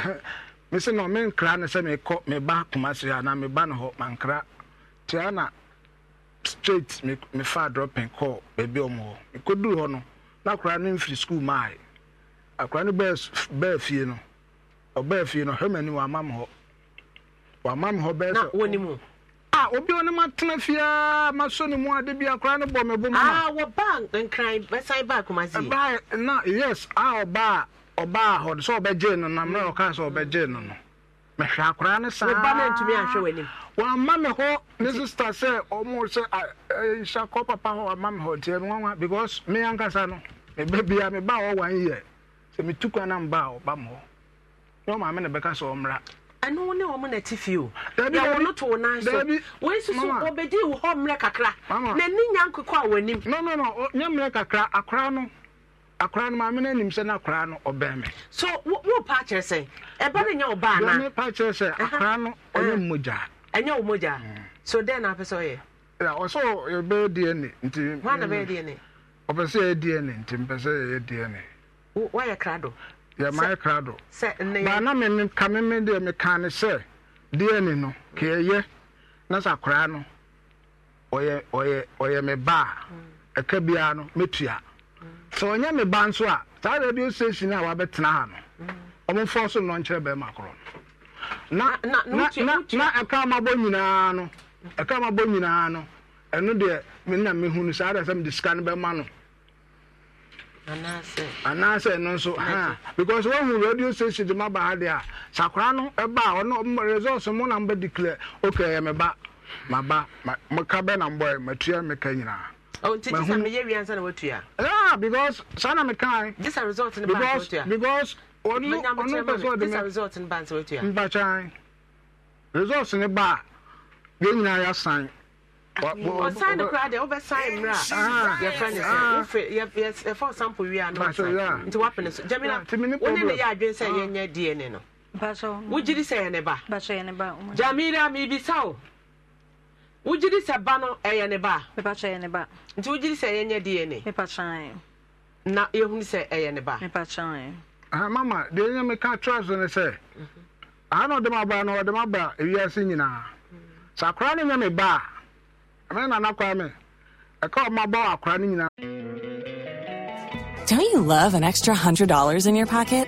mese na menkra ne sɛ mekɔ meba kumase a na meba no hɔ mankra tia na straight mefa dropen kɔɔ baabi ɔm hɔ mekɔduru hɔ no na akora no mfiri skul maae akora no bɛɛ fie no ɔbɛɛ fie no hɛmani wama m hɔ wama m hɔ bɛɛ sɛ a obi a ɔnim atena fiaa maso ne mu ade bi akora no bɔ me bo mu na wɔba nkran bɛsan ba akomase ɛbaa na yes a ɔbaa ɔbaa hɔ sɛ ɔbɛgye na mmerɛ sɛ ɔbɛgye no no mehwɛ akoraa ne saa me hɔ ne sister sɛ ɔmo sɛ nhyɛ papa hɔ wamma me hɔ ntiɛ me because me ankasa no meba bia hɔ wan yɛ sɛ metu kwa ɔba hɔ ne ne bɛka sɛ ɔmmra ɛno ne ɔmo na ti fio to so wei ɔbɛdi hɔ mmerɛ kakra na akwaraa no maame no sɛ no no ɔbɛn so wopa kyerɛ sɛ ɛba no nyɛ ɔbaa na paa kyerɛ sɛ akwaraa no ɔyɛ mmogya ɛnyɛ mm. so dɛn na apɛ sɛ ɔyɛ ɔsɛ dna nti hɔana bɛyɛ dna ɔpɛ sɛ yɛyɛ dna nti mpɛ sɛ dna krado krado na ka deɛ ne sɛ dna no na sɛ akwaraa no sɛ ɔnyɛ me ba nso a saa radio station a wabɛtena ha no mhm. ɔmomfa so nnɔnkyerɛ bɛrima korɔ no na ɛka mabɔ nyinaa no ɛka mabɔ nyinaa no ɛno deɛ mena mehu no saa deɛ sɛ mede sika no bɛma no anaasɛ ɛno nso ha because wahu radio station de maba ha deɛ a sakora no ɛba a ɔno resɔs mo na mbɛdeclare okay ɛyɛ me ba maba meka bɛ na mbɔɛ matua meka nyinaa Oh, teacher, I'm here. We Yeah, because son of a kind. This a result in the because because only only person a result in bands what you are. Mbachan. Results in the bar. Then na ya sign. ɔsan no koraa deɛ wobɛsan mmerɛ a ah. yɛfrɛ ne sɛ yɛfa sample wie a na nti wapene so gyamina wone ne yɛ adwene sɛ ah. yɛnyɛ dna no wogyiri sɛ yɛne ba gyamira mebisa wo sɛ ba no ɛyɛ eh, ne ba nti sɛ na yɛhunu sɛ ɛyɛ eh, ne ba ah, mama deɛ meka sɛ na ɔde m aba no ɔde m aba ewiase nyinaa sɛ akora no nyɛ me ba a ɛmɛ me ɛka ɔma ba akora no nyinaa Don't you love an extra $100 in your pocket?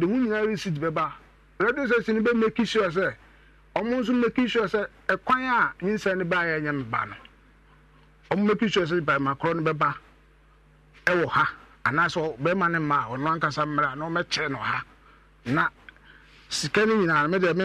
de mu nyinaa receipt bɛba radio station no bɛ make sure sɛ ɔmo make sure sɛ a nyinsɛn no baayɛ nyɛ mba no ɔmo make sure sɛ bɛrima korɔ no bɛba ha anaasɛ bɛrima ne mma a ɔno ankasa mmerɛ a na ɔmɛkyerɛ ha na sika no nyinaa no mɛdeɛ me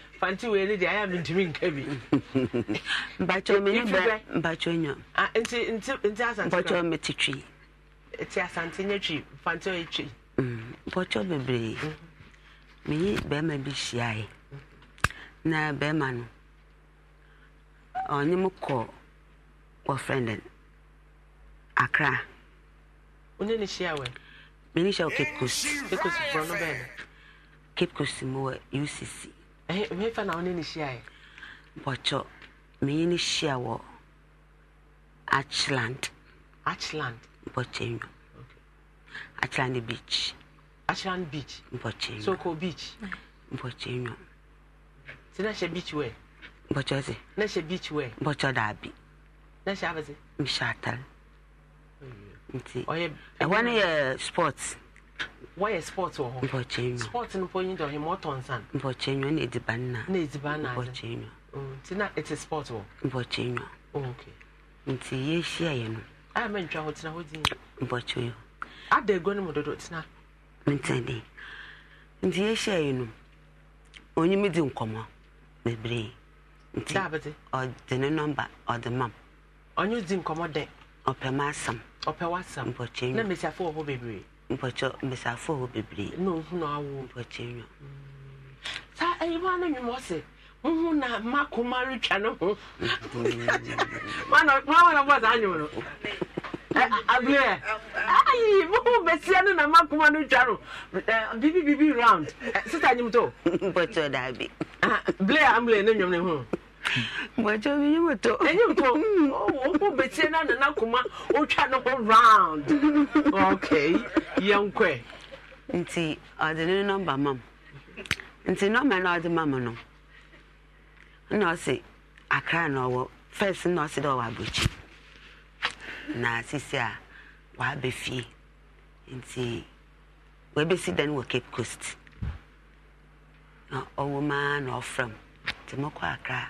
fanti wei ne deɛ ayɛ mentumi nka bi mpakyɛ mete twi nti asante nyɛ twi fanti ɔyɛ twi mpakyɛ mm, bebree mm. meyi bɛrima bi hyiaeɛ na bɛrima no ɔnye m kɔ wɔfrɛ no akra wone ne hyia wɛ mene hyɛ wɔ cape coast cape coast mowɔ ucc Eh, mefa na wone ne hyiaɛ bɔkyɔ menye ne hyia wɔ achland achland bɔkyɛ nwu achland beach achland beach bɔkyɛ nwu soko beach bɔkyɛ nwu oh, nti na oh, hyɛ beach wɛ eh, bɔkyɔ se na hyɛ beach wɛ bɔkyɔ daabi na hyɛ abɛse mehyɛ atal nti ɛhɔ no yɛ sports wɔyɛ sport wɔ hɔ mpɔkyɛnwa sport no mpo nyi dɛ ɔtɔ nsa no mpɔkyɛnwa na nna na nna mpɔkyɛnwa mm, nti na ɛte sport wɔ mpɔkyɛnwa oh, okay nti yɛhyia yɛ no a ah, mɛntwa hɔ tena hɔ din mpɔkyɛnwa ada egua no mu dodo tena ntɛn nti yɛhyia yɛ no onyim di nkɔmɔ bebree nti ɔde ne nɔmba ɔde mam mpɔkyɛ mbɛsafo wɔ bebree na ohun na awo mpɔkyɛ nwa saa ɛyiwa no nwuma ɔsɛ muhu na mma kuma retwa ne ho mana wana bɔ saa nwom no abiria ayi muhu besia no na mma kuma no twa no bibi bibi round sisa nyimto mpɔkyɛ daabi ah, blair ambulance ne nwom ne ho. Wacha bi nyima to. Enyi to. Mm. Oh, wo kuma otwa ho round. Okay. Yenkwe. Nti ade ne number mam. Nti number na ade mam no. Na ɔse na ɔwɔ first na ɔse dɛ ɔwɔ Na sisi a Nti dan Cape Coast. Na ɔwɔ maa na akra.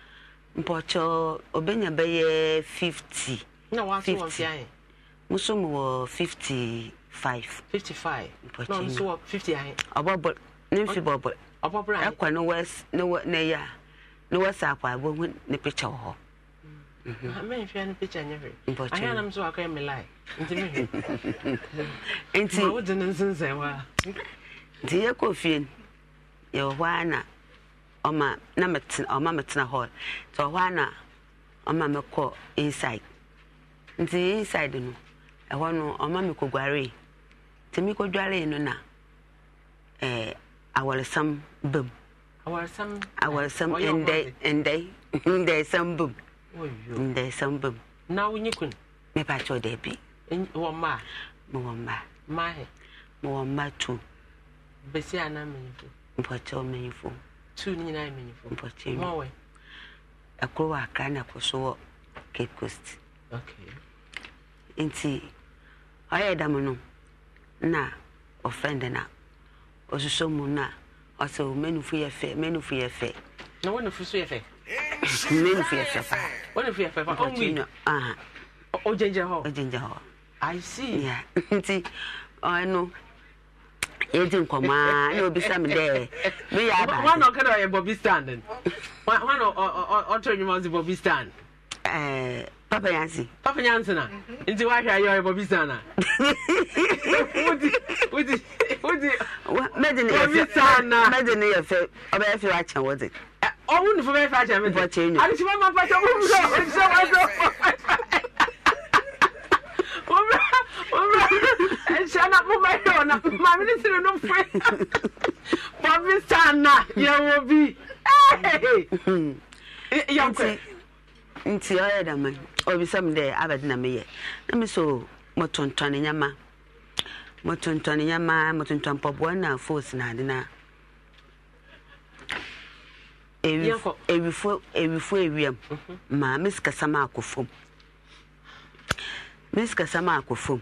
mpɔkyɛ ɔbɛnya uh, bɛyɛ fifty. na wa nso wɔ fia yɛ. nso mu wɔ fifty five. fifty five mpɔkyɛ na nso wɔ fifty ayɛ. ɔbɔbɔ ne nfi bɔbɔ. ɔbɔbɔ ayɛ ɛkɔ ne wɛs ne wɛ ne ya ne wɛs akɔ abɔ hu ne picture wɔ hɔ. mɛn fia ne picture nyɛ hwɛ. mpɔkyɛ ayɛ anam so akɔ ɛmi lai nti mi hwɛ. nti ma wo di ne nsinsɛn wa. nti yɛ kɔ fie yɛ wɔ hɔ ana. Ọma na ọma ɔma mɛtena hall nti ɔhɔ na ọma mɛkɔ inside nti inside no ɛhɔ no ɔma mɛkɔguare nti mɛkɔguare no na ɛɛ awɔresɛm bam awɔresɛm awɔresɛm ndɛ ndɛ ndɛsɛm bam ndɛsɛm bam na wonyi kun mɛpa kyɛw dɛbi wɔ mmaa mɛwɔ mmaa mmaa hɛ mɛwɔ mmaa tu besi na mɛnyinfo mpɔkyɛw mɛnyinfo. two ni nyinaa mmanyinfo mpɔtɛmu ɔwɔ ɛkoro wɔ akra na ɛkoro so wɔ cape coast nti ɔyɛ dam no na ɔfrɛnd na ɔsosɔ mu na ɔsɛ o oh, mmanufo yɛ fɛ mmanufo yɛ fɛ. na wɔn nufu so yɛ fɛ. mmanufo yɛ fɛ paa. wɔn nufu yɛ fɛ paa ɔnwi ɔgyingyina hɔ. ɔgyingyina hɔ. i see. nti ɔno yɛdi nkɔmɔ a na obi sami dɛ mi yɛ aba. wọn n'ɔkɛ dɛ ɔyɛ bɔbi stand n wọn ɔtɔ ɛnyuma ɔsi bɔbi stand. ɛɛ eh, papa yansi. papa yansi na nti wahwɛ ayɛ ɔyɛ bɔbi stand na. wudi wudi wudi. mɛdi ni yɛ fɛ bɔbi stand na. mɛdi ni yɛ fɛ ɔbɛyɛ fɛ wa kyɛn wɔdi. ɔwúni fún bɛyɛ fɛ akyɛn mi. bɔ kyɛn nyo. àti sɛ wọn máa pàṣẹ wọn mú sọ wọn sọ wọn sọ. ɛhyɛ na ɔna ne sere no foe yɛwɔ bi nti ɔyɛ dama obisa dɛ abɛde meyɛ na me so mɔtontɔne nyama mɔtontɔne nyama mɔtontɔn pɔboa na fos na na mhm. ma mesikasam akɔ fom akɔ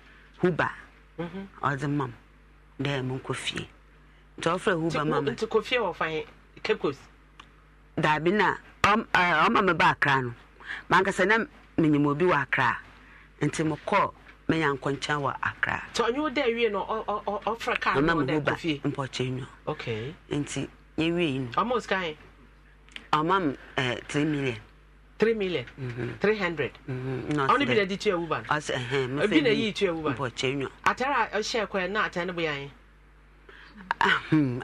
huba mhm. ɔdze ma dɛ monkɔ fie nti ɔfrɛ huba ma na ɔma me ba akra no na menyim obi wɔ akra nti mekɔɔ menya wɔ akra me huba mpɔkyɛ nwa nti yɛwie ɔma m 3 million 3 million 300 ni bi na de tua wuban bi na yii tua wuban a na atare ya boyɛ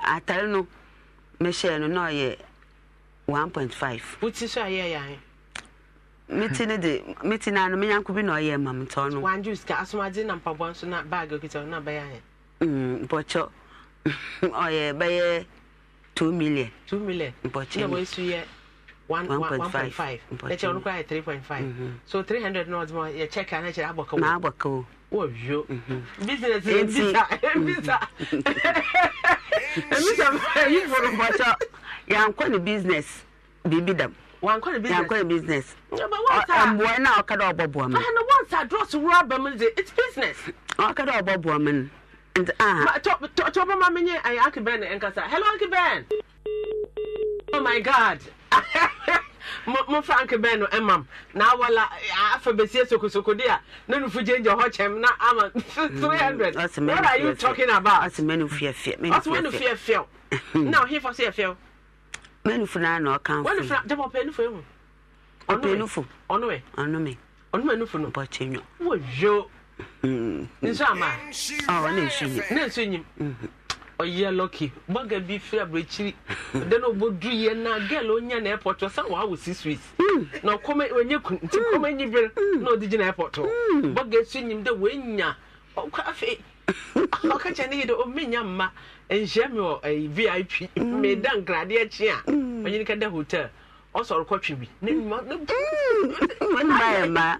atare no mehyɛɛ no na ɔyɛ 1.5 woti so ayɛ yɛ meti ne na no menyanko bi na ɔyɛ ma metɔ no wanju ka na mpaboa nso na okita na million million na 1.5 no koraa yɛ 3.5 so 300 no ɔde ma yɛ check na kyerɛ abɔka wo na abɔka wo wɔwio business ɛbisa ɛbisa ɛbisa yifo no bɔkyɛ yɛankɔ ne business biribi dam wankɔ ne business yankɔ ne business mboa na ɔka dɛ ɔbɔ boa mu ɛna wɔn sa drɔs wura ba mu de it's business ɔka dɛ ɔbɔ boa mu no nti aha tɔ tɔ bɔ ma mi nye ayi akibɛn nkasa hello akibɛn oh my god. mo frank bɛn no ɛmam na awala afa besie sokosoko de a ne nufu gye gye hɔ kyɛm na ama mm, three hundred what are you talking about. ɔsi mɛnu fiyɛ fiyɛ mɛnu fiyɛ fiyɛ ɔsi mɛnu fiyɛ fiyɛ na ɔhin fɔ si yɛ fiyɛ o. mɛnu funa na ɔkan fun. mɛnu funa jɛbɔ ɔpɛ nufu ehu. ɔpɛ nufu ɔnume ɔnume ɔnume nufu no. bɔtɛ nyɔ. wo yo. Mm. nsu ama. ɔ ne nsu nyim. ne nsu nyim. Mm-hmm ɔyɛ lɔki bɔga bi firi aburokyiri de na ɔbɔ duru yɛ na gɛl onya na airport ɔsan wɔ awɔ six weeks na ɔkɔmɛ onye kun nti kɔmɛ nyi bere na ɔdi gyina airport hɔ bɔga esu enyim de wɔenya ɔkɔ afei ɔka kyɛ ne yi de ɔmenya mma nhyia mi wɔ ɛyi vip mmeda nkradeɛ akyi a ɔnyini ka da hotel ɔsɔre kɔtwe bi ne mma ne mma yɛ mma.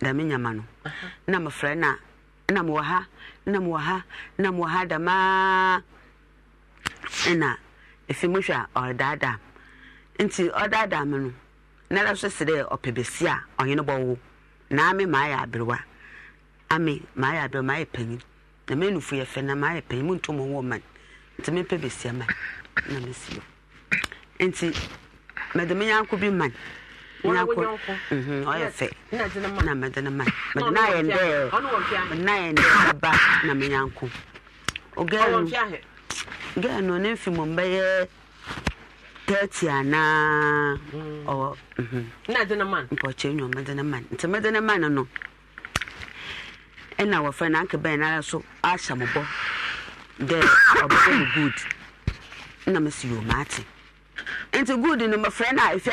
dame nyama no na mefrɛ na na mewɔ ha na mewɔ ha na mewɔ ha damaa ɛna ɛfi mohwɛ a ɔredaadaa nti ɔdaadaa me no na da so se dɛ ɔpɛ bɛsi a ɔhene bɔwo na ame maayɛ aberewa ame maayɛ aberewa maayɛ panyin na menufo yɛ fɛ na maayɛ panyin muntu mo wɔ man nti mepɛ bɛsia man na mesi nti mede me yanko bi man ɔyɛ fɛ na mede no ma mede no ayɛ ndɛ mede no ayɛ ndɛ aba na menyanko ɔgɛl gɛl no ne mfi mma bɛyɛ thirty anaa ɔwɔ mpɔkyɛ nwom mede no ma nti mede no ma no no ɛna wɔfrɛ mm. oh, no anke na nti a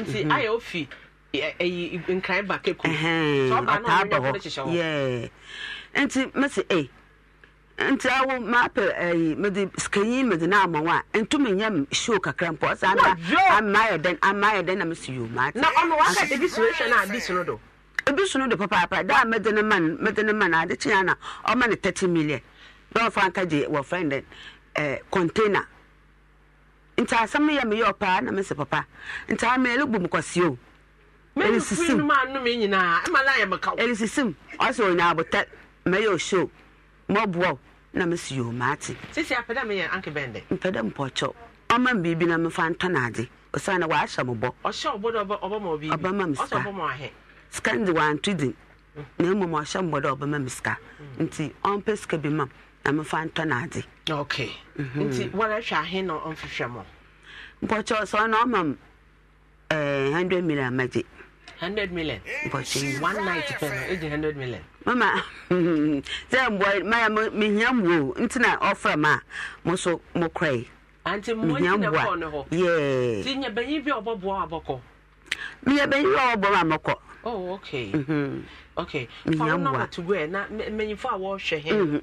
nti mhm. ayɛ ofi ɛyi e, e, e, nkran ba keku so ɔba no ɔnyɛ nti mesi e nti awo maapɛ ɛyi mede sikanyi mede na ama wa ntumi nyɛ show kakra mpɔ ama ayɛ ama ayɛ na mesi yo maa ti na ɔno waka ebi sunu ehwɛ na adi sunu do ebi sunu do papaapa daa ne ma ne ma na ɔma ne thirty million dɔw fa nka gye wɔ nti asɛm yɛ meyɛ ɔpaa na mese papa nti ameɛle bom kwasee o ɛlisisim ɔsɛ ɔnya abotɛ mɛyɛ ɔhyɛ o mɔboa na mese yɛ maate mpɛ dɛ mpɔkyɛw ɔma m biribi na mefa ntɔ no ade ɔsiane waahyɛ mo bɔ m sika sika nde wanto din na mmom ɔhyɛ mbɔ dɛ ɔbɛma m sika nti ɔmpɛ sika bi mam na mefa ntɔ n'adze. ok mhm. nti wɔrehwɛ ahe na ɔmfehwɛ mo. mpɔkyɛ sɛ ɔna ɔma m ɛɛ eh, hundred million amagye. hundred million. mpɔkyɛ one night pɛ no ɛgye e hundred million. mama sɛ mbɔ maya mehia mbuo nti na ɔfrɛ m a mo so mo kora yi. anti mo nyi na kɔɔ ne hɔ. yɛɛ. ti nyɛ bɛnyin bi a ɔbɔbɔ abɔkɔ. meyɛ oh okay. Mm -hmm. okay. mehia mbuo. to where? na wɔtugu ɛ na wash a wɔrehwɛ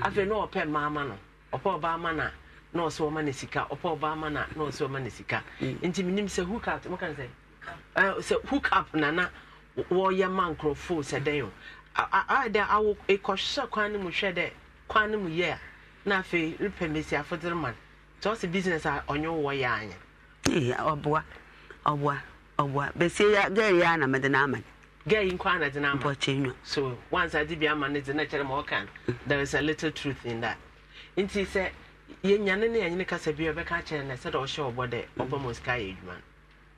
afei na ɔpɛ mmaa ma no ɔpɛ ɔbaa ma na na ɔsɛ ɔma no sika ɔpɛ ɔbaa ma na na ɔsɛ ɔma no sika mm. nti menim sɛ hook up moka sɛ sɛ hook up nana wɔyɛ ma nkurɔfoɔ sɛ dɛn o dɛ awo ɛkɔhwɛ kwan no mu hwɛ dɛ kwan no mu yɛ a na afei repɛ mmesiafo dere ma no nti ɔsɛ business a ɔnyɛ wowɔ yɛ anyɛ ɔboa ɔboa ɔboa gaa gɛɛyɛ ya na mede no ama girl in kwana de nama. So once I did be a man is the nature of can. There is a little truth in that. In she said, Yen Yanin and Nicasa be a becacher and I said, Oh, sure, what the mm. Obama's carriage man.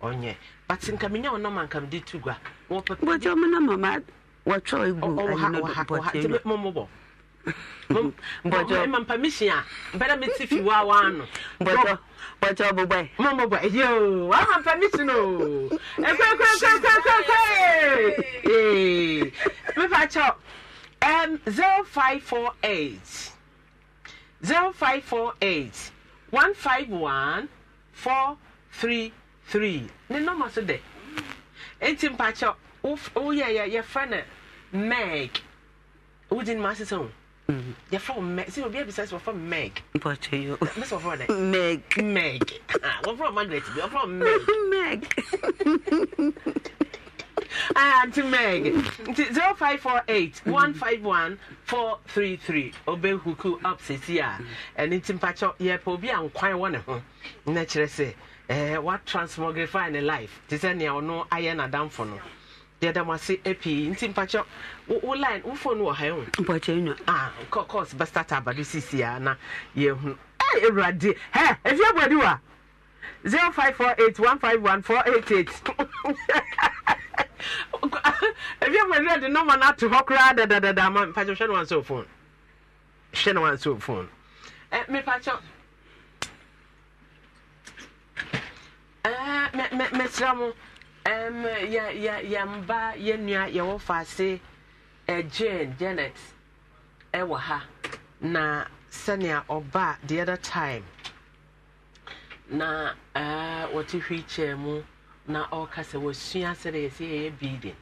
Onye. Oh, but in Camino, no man can do two gua. What your mamma, what Troy, what mbɔjɔ ma permission a bɛrɛ mi ti fi waa waa no. Eh, mbɔjɔ mo bɔ bɔ ye eh. o permission o ekwe ekwe ekwe ekwe ekwe ekwe mi fa kyɛw ɛm zero five four eight zero five four eight one five one four three three ne nɔɔma so dɛ eti mpa kyɛw wo yɛ yɛ yɛ fɛ no meg wudin ma sisan Mm-hmm. You're from meg sɛ obi abisa sɛ from meg But mɛ sɛ wɔfrɛ from meg meg wɔfrɛ margaret bi from meg meg Auntie Meg, 0548 mm-hmm. 151 433. Obey Huku up Sia, ah. mm-hmm. and it's in Pacho, Yepobi eh, eh, and Quai one of them. Naturally, what transmogrify in life? Tisania or no iron a damn no. deɛ dam ase eh, pii nti mpakyɛ wo line wo phone wɔ ha wo eh, mpakyɛ nwa ah course bɛstart abado sisi a na yɛhu ɛy eh, awurade hɛ ɛfi abɔdi wa 0548151488 ɛfi abɔdi de nɔma no ato hɔ koraa dadadada ama mpakyɛ hwɛ no wansi wo phone hwɛ no wansi phone ɛ mepakyɛ ɛɛ mɛ mɛ mɛ kyerɛ um, ya yɛwɔ ya ase eh, Jane Janet ɛwɔ ha na sɛnea ɔba the other time na uh, wɔte wheelchair mu na ɔka sɛ wɔsua sɛdeɛ yɛsɛ yɛyɛ building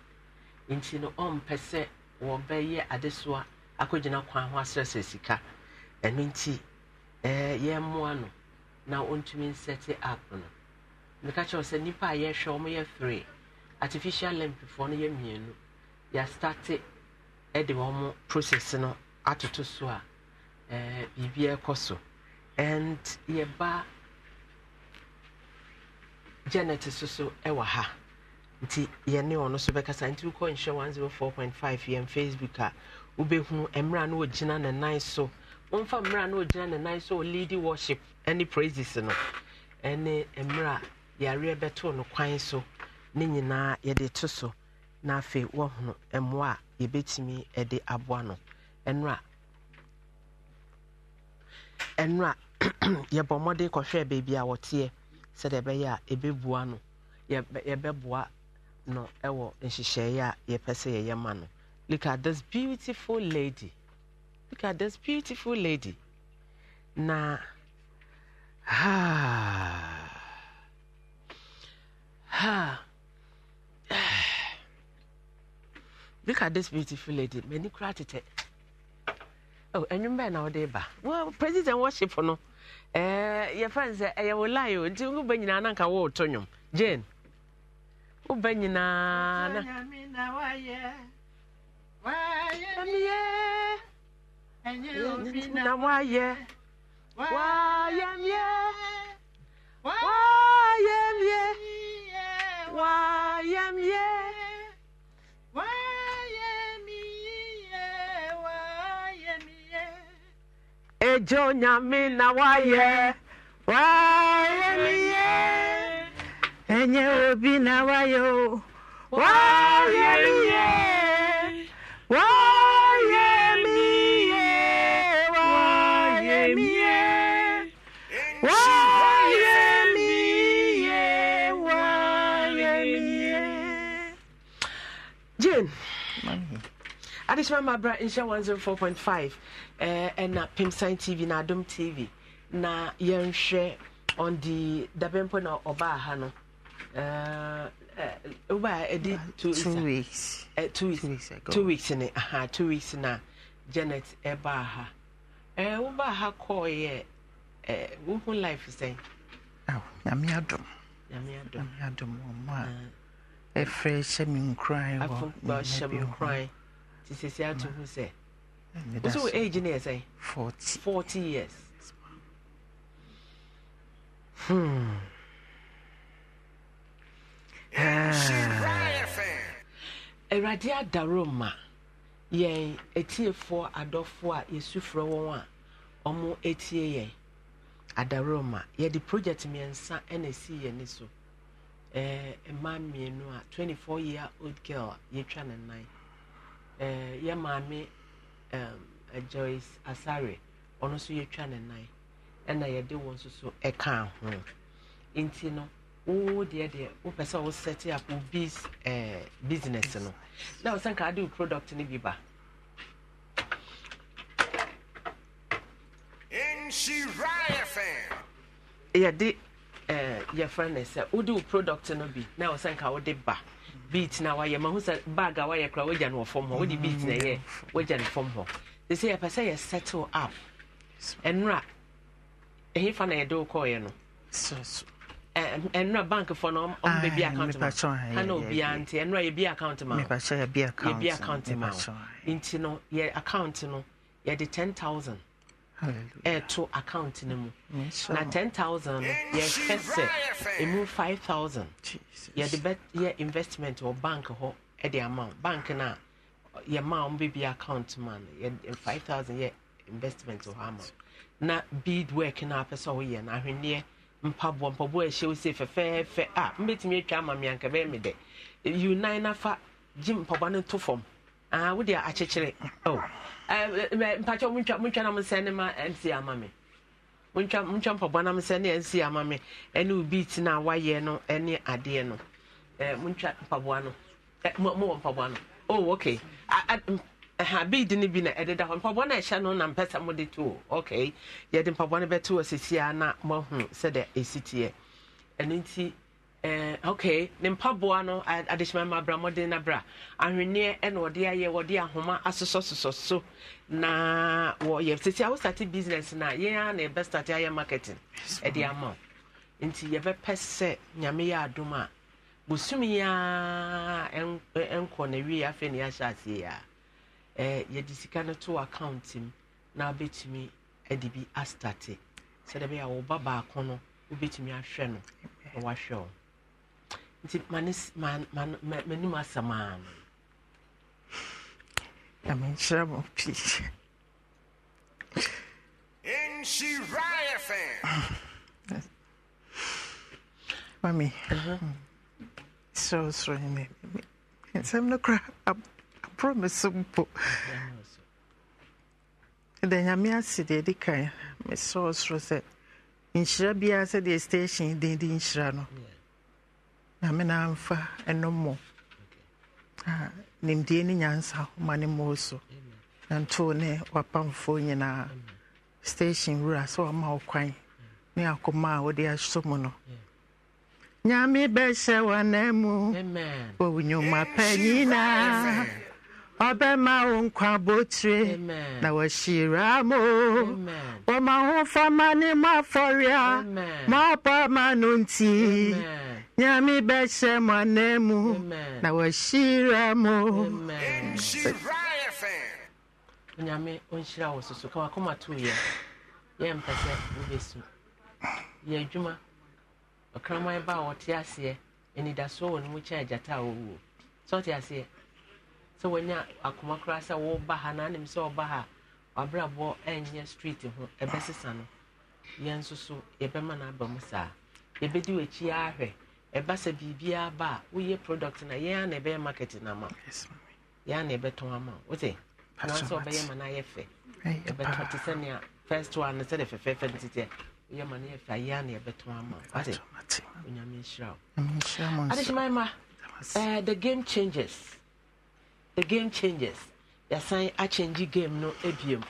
nti no ɔmpɛ sɛ wɔbɛyɛ adesoa akɔgyina kwan ho asrɛsrɛ sika ɛno nti eh, yɛmmoa no na ɔntumi nsɛte up no meka kyerɛ sɛ nnipa a yɛhwɛ wɔn yɛ three artificial lampifoɔ no yɛ mmienu yɛastate de wɔn process no atoto so a ɛɛ eh, biribi ɛrekɔ so and yɛba janet soso so wɔ ha nti yɛne ɔno nso bɛkasa nti wokɔ nhyɛ 104.5 yɛn facebook a wobɛhu mmerɛ no ɔgyina ne nan so wɔmfa mmerɛ no ɔgyina ne nan so ɔleadi worship ne praises no ɛne mmerɛ yɛareɛ bɛtoo no kwan so ne nyinaa yɛde to so na afei wɔhono mmoa a yɛbɛtumi de aboa no ɛno ɛno a yɛbɔ mmɔden kɔhwɛ baabi a wɔteɛ sɛdeɛ ɛbɛyɛ a ɛbɛboa no yɛbɛboa no ɛwɔ nhyehyɛeɛ a yɛpɛ sɛ yɛyɛ ma no look at this beautiful lady look at this beautiful lady na haa. Ah ha look at this beautiful lady Many kura oh enwum bɛn na ɔde ba well president worship no Eh, your friends, sɛ ɛyɛ wɔ line o nti n ba nyinaa nanka wɔ ɔtɔ nwom jane wo ba nyinaa na. na wayɛ wayɛ miɛ wayɛ miɛ. Why Why Why YMYA. Ejo nyame na Why wayɛ miyɛ ɛnyɛ obi na Why o wayɛ Why. wayɛ. adesima mabra nhyɛ 104.5 ɛɛ ɛna pimsan tv na adom tv na yɛnhwɛ on the dabɛmpo na ɔbaa ha no ɛɛ eh, ɛdi eh, eh, two weeks two weeks ɛ two weeks two weeks ne aha two weeks na janet ɛbaa ha ɛɛ ɔbaa ha kɔɔ yɛ ɛɛ wohun life sɛn. awo nyame adom nyame adom nyame adom wɔn mu a ɛfrɛ hyɛ mi nkran wɔ nyame bi wɔn ti sese ato ho sɛ woso wo age ne yɛ sɛn forty years hmm. awurade adaro ma yɛn etiefoɔ adɔfoɔ a yɛsufrɛ wɔn a ɔmo etie yɛn adaro ma yɛde project mmiɛnsa ɛna esi yɛn ni so ɛɛ mmaa mmienu a twenty four year old girl a yɛtwa ne nan ɛɛ eh, yɛ maame ɛɛm eh, Joyce Asare ɔno nso yɛtwa ne nan ɛna yɛde wɔn nso so ɛka ho nti no wo deɛ deɛ wopɛ sɛ wo set up wo biz ɛɛ eh, business no na wo sɛ nka ade wo product ni bi ba. yɛde ɛɛ yɛfrɛ ne sɛ wode wo product no bi na wo sɛ nka wode ba. beat na wayɛ ma ho sɛ bag a wayɛ kora wagya no wɔ fam hɔ wode mm. beat na ɛyɛ wagya no fam hɔ te sɛ yɛpɛ sɛ yɛ settle up ɛnora ɛhefa na yɛde wo kɔɔyɛ no ɛnora bank fɔ no ɔmbɛbi account ma ana obiaa nti ɛnora yɛbi account ma yɛbi account ma nti no yɛ account no yɛde 10000 ɛto account no mu na 10000 no yɛhwɛ sɛ ɛmu 5000 yɛde bɛyɛ investment wɔ bank hɔ de ama bank no a yɛma wɔn bɛbi account ma no 5000 yɛ investment wɔ hɔ ama na bead work no a pɛ sɛ woyɛ no ahwenneɛ mpaboa mpaboa a ɛhyɛ wo se fɛfɛɛfɛ a mbɛtumi atwa ama me anka bɛyɛ me dɛ unan nafa gye mpaboa no to fam Ah, wode akyekyere oh. ah, mpakyɛ montwa na mosɛ ne ma mc ama me montwa mpɔbɔ na mosɛ ne mc ama me ɛne obi tena a wayɛ no ne adeɛ no eh, montwa mpaboa no eh, mowɔ mpaboa no oh okay ha bead no bi na ɛdeda hɔ mpaboa no ɛhyɛ no na mpɛ sɛ mode to okay yɛde mpaboa no bɛto wɔ sesia na moahu sɛdeɛ ɛsi teɛ ɛno nti Eh, ok ne mpaboa no adehyema ma abra mmɔden no bra ahwenneɛ na wɔde ayɛ wɔde ahoma asosɔsosɔ so na wɔyɛ tete a wostate business no a yɛn a na ɛbɛ state ayɛ marketing ɛde ama wo nti yɛbɛpɛ sɛ nyame yɛ adom a bosumi a ɛnkɔ na wie afei ne yɛahyɛ aseɛ a eh, yɛde sika no to account mu na wobɛtumi de bi astate sɛdeɛ bɛyɛ a wo baako no wobɛtumi ahwɛ no na wahwɛ wo nti m'anim asɛm a no nyamenkyerɛ mo pii mami uh-huh. hmm. sorosoro ne nsɛm no kora aborɔ me so mpo da nyame ase deɛ ɛdi kan mesorosoro sɛ nhyira biara sɛdeɛ station den de nhyira no yeah nyame na amfa ɛnommɔ nimdie ne nyansa ma ne mmɔɔ so na ntoo ne wapamfoɔ nyinaa station wura sɛ wama wo kwan ne akoma a wode ahyɛ mu no nyame bɛhyɛ w'anamu wɔ wo nnwuma pa nyinaa ọbẹ̀ma nkwa botire na wàhyira mo wọ́n ahofama ne mo afọria mo abọ́ ma nti nyame bɛhyɛ na wàhyira mo. nyame ɔnhyira wɔ soso ka wakoma to yɛ yɛ mpɛ sɛ wanya akoma koraa sɛ woba ha na anim sɛ ɔba ha wabrabɔ ɛnyɛ street ho ɛbɛsesa no yɛn nso so yɛbɛma no aba mu saa yɛbɛdi w'akyi ahwɛ ɛba sɛ biribiara ba a woyɛ product na yɛn a na ɛbɛyɛ market na ama yɛn a na ɛbɛtɔn ama wote anaasɛ ɔbɛyɛ ma no ayɛ fɛ ɛbɛtɔ te sɛnea first one sɛde fɛfɛɛfɛ no titiɛ woyɛ ma no yɛ fɛ a yɛn a na ɛbɛtɔn ama wote onyame nhyira wo adehyemaema the game changes the game changes yɛsan akyɛngye game no abiem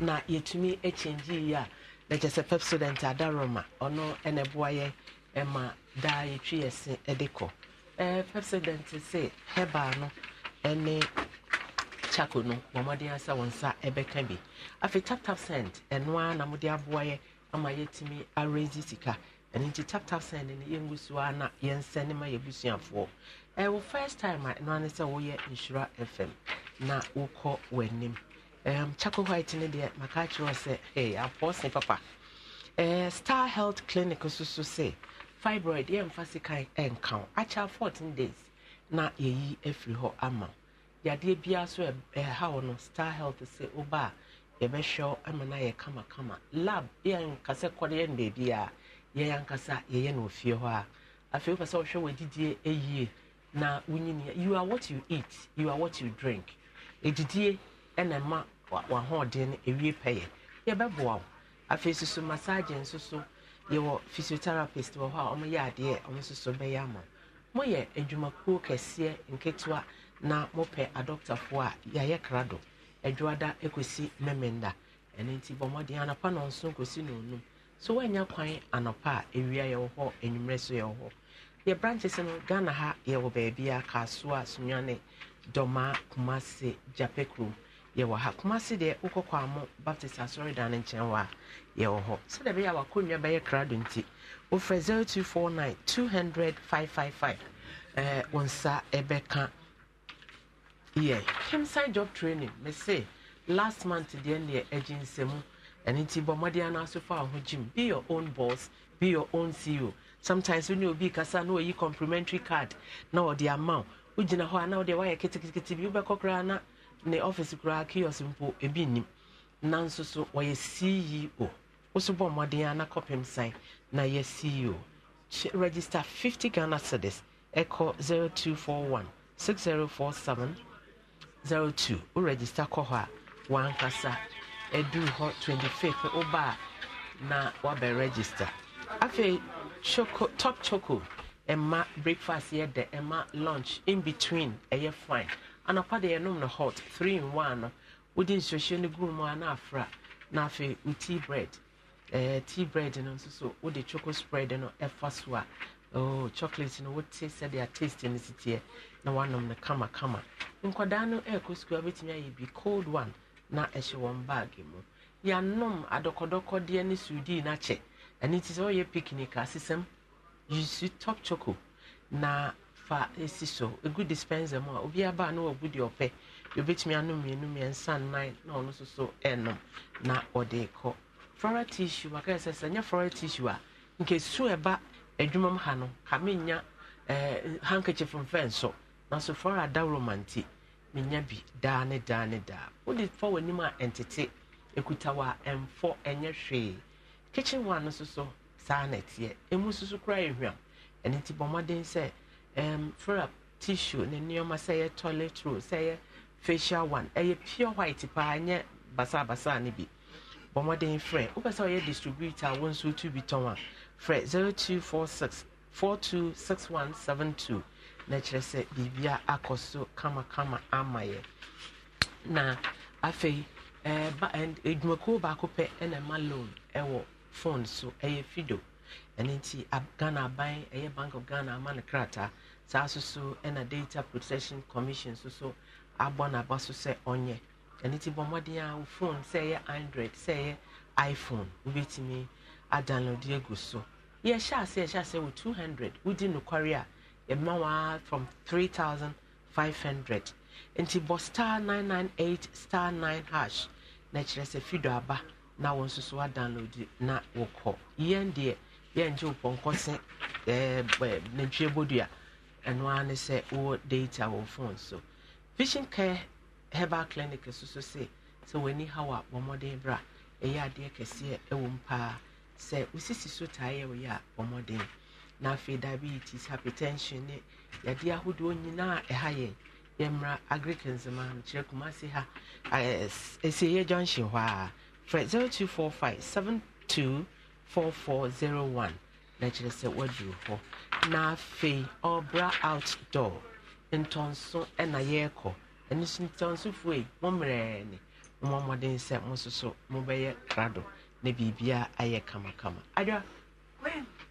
na yɛtumi akyɛngye yi a na kyɛ sɛ pep student adaroma ɔno ɛna ɛboa yɛ ɛma daa yɛtwi yɛ se ɛde kɔ ɛɛ pep student se hɛbaa no ɛne chako no wɔn mmɔden asɛ wɔn nsa ɛbɛka bi afei tap tap send ɛnoa na wɔde aboa yɛ ama yɛtumi arrange sika ɛne nti tap tap send no yɛngu so a na yɛnsɛ ne ma yɛ ɛwɔ first time a ɛno ane sɛ woyɛ nhyira fm na wokɔ w'anim um, chako white no deɛ maka kyerɛ sɛ hey, apɔse papa uh, star health clinic nso so sɛ fibroid yɛmfa sikan ɛnka wo akyɛ 14 days na yɛyi afiri hɔ ama yadeɛ biara so ɛha wo no star health sɛ woba a yɛbɛhwɛ wo ama no ayɛ kamakama lab yɛnkasɛ kɔde yɛn baabi a yɛyɛ ankasa yɛyɛ no ofie hɔ a afei wopɛ sɛ wohwɛ w'adidie ɛyie na wonyinia you are what you eat you are what you drink edidie ɛna ma w'ahoɔden no ewie pɛyɛ yɛbɛboa wo afei soso massage nso so yɛwɔ physiotherapist wɔ hɔ a wɔyɛ adeɛ wɔn soso bɛyɛ ama mo yɛ adwumakuo kɛseɛ nketewa na mopɛ adɔktafoɔ a yɛayɛ krado adwoada ekosi mmemmenda ɛno nti bɔ mmɔden anapa na nso kosi na onum so wɔanya kwan anapa a ewia yɛwɔ hɔ enwummerɛ so yɛwɔ hɔ yɛ branches no ghana ha yɛwɔ baabi a kasoa sunyane dɔma kumase jape kurom yɛwɔ ha kumase deɛ wokɔkɔ amo baptist asɔredan no nkyɛn wɔ a yɛwɔ hɔ sɛdeɛ bɛyɛ a wakɔnnwa bɛyɛ krado nti wofrɛ 0249 200 555 eh, wo nsa ɛbɛka yɛ hemside job training me last month deɛ neɛ agye nsɛmu ɛno nti bɔ mmɔden anaso fa wo ho gyim be your own boss be your own ceo sometimes wone obi kasa na wayi complimentary card na ɔde ama wo wogyina hɔ a na wode woayɛ ketekete bi wobɛkɔ koraa na ne office koraa kios mpo ebi nim. nanso so wɔyɛ ceo woso bɔ mmɔden a na kɔpem san na yɛ ceo register fifty ghana cedis ɛkɔ seven zero two. wo register kɔ hɔ a wankasa ɛduru hɔ twenty fifth. a na wabɛ register afei choco top choco ɛma breakfast yɛ dɛ ɛma lunch in between ɛyɛ fine anapa deɛ yɛnom no hot three in one no wode nsuohyɛ no gu mu a na afra na afei wo tea bread ɛɛ eh, tea bread no nso so wode choco spread no ɛfa so a oh chocolate no wote sɛdeɛ taste no si teɛ na wanom no kamakama nkwadaa no ɛrekɔ sukuu abɛtumi ayɛ bi cold one na ɛhyɛ wɔn baage mu yɛanom adɔkɔdɔkɔdeɛ ne sudi no akyɛ ɛno nti sɛ ɔyɛ picnic asesɛm yusu top choco na fa esi so egu dispenser mu a obi aba na wagu deɛ ɔpɛ deɛ obetumi anum mmienu mmiɛnsa nnan na ɔno nso so ɛnum na ɔde kɔ floral tissue waka ɛsɛ sɛ nyɛ floral tissue a nkesu ɛba e, adwuma e, mu ha no kame nya ɛɛ eh, handkerchief mfɛn so nanso floral adaworo manti menya bi daa ne daa ne daa wode fa w'anim a ɛntete ekuta wa ɛnfɔ ɛnyɛ e, hwee kitchen one no soso saa na ɛteɛ emu soso kura ehwam ɛne ti bɔ mmɔden sɛ ɛm frap tissue ne nneɛma sɛ ɛyɛ toilet roll sɛ ɛyɛ facial one ɛyɛ pure white paa nyɛ basabasa ne bi bɔ mmɔden frɛ wopɛ sɛ ɔyɛ distributor a wɔn nso tu bi tɔn a frɛ zero two four six four two six one seven two na kyerɛ sɛ biribia akɔ so kamakama ama yɛ na afei ɛɛ ba ɛdwumakuo baako pɛ ɛna ɛma loan ɛwɔ phone so ɛyɛ fido ɛno nti ghana aban ɛyɛ eh, bank of ghana ama no krataa saa nso so ɛna eh, data protection commission nso so abɔ n'aba so sɛ ɔnyɛ ɛno nti bɔ mmɔden a wo phone sɛ ɛyɛ android sɛ ɛyɛ iphone wobɛtumi adownload agu so yɛhyɛ ase yɛhyɛ ase wɔ 200 wodi nokware a yɛma waa from 3500 nti bɔ star 998 star 9 hash na kyerɛ sɛ fido aba na wɔn nso so adownload na wɔkɔ yɛn deɛ yɛn gye pɔnkɔ se ɛɛ ɛɛ nantwie bodua ɛno ara ne sɛ wɔ data wɔ phone so vision care herbal clinic nso so se sɛ wɔn ani haw a wɔn mɔden bra ɛyɛ adeɛ kɛseɛ ɛwɔ mu paa sɛ osisi so taa yɛ wɔyɛ a wɔn mɔden na afei diabetes hypertension ne yadeɛ ahodoɔ nyinaa ɛha yɛn yɛmmra agric nzema kyerɛ kumasi ha ɛɛ esieɛ junction hɔ a. frɛ 0245 724401 na kyerɛ sɛ woaduru hɔ na afei ɔbra outdoor ntɔnso ɛna yɛrekɔ ɛno so ntɔnsofoɔ yi mo mmerɛɛ ne mo mmɔden sɛ mo nso so mobɛyɛ Nebibia na biribiara ayɛ kamakama adwa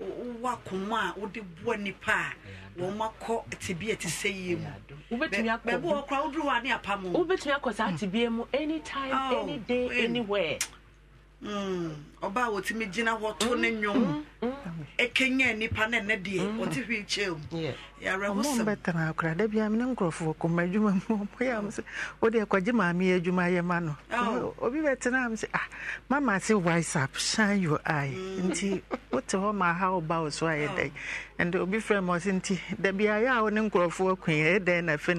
wowɔ akoma a wode boa nipa a wɔn akɔ tibia te sɛ yie mu bɛɛbi wɔkora woduru hɔ a ne apam wobɛtumi akɔ saa tibia mu anytime any day anywhere Hmm. a wɔtumi gyina hɔ to ne nwom ɛkenya mm, mm, mm. e nipa ne ne deɛ ɔte akora da bia kɔma adwuma mu ɔmɔyɛ m sɛ wode ɛkɔgye maame adwuma yɛ ma oh. obi bɛtena ah mama se shine your eye nti wote hɔ ma ha woba wo so oh. obi frɛ ma ɔse nti da a wo ne na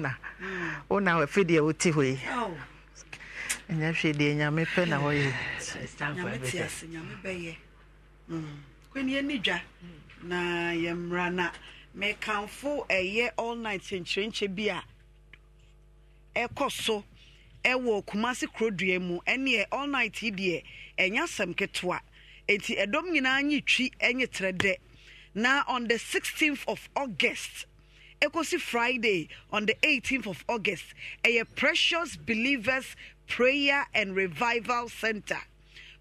na na afe deɛ wote hɔ yi oh. ɛnyɛ hwɛ deɛ nyame pɛ na wɔyɛ kwenye ni mm. dwa na yɛmmra na mekamfo ɛyɛ all night nkyerɛnkyɛ bi a ɛkɔ so ɛwɔ kumase kurodua mu ɛneɛ all night yi deɛ ɛnyɛ asɛm ketewa enti ɛdɔm nyinaa nye twi ɛnye trɛ dɛ na on the sixteenth of august ekosi friday on the eighteenth of august ɛyɛ precious believers Prayer and Revival Center.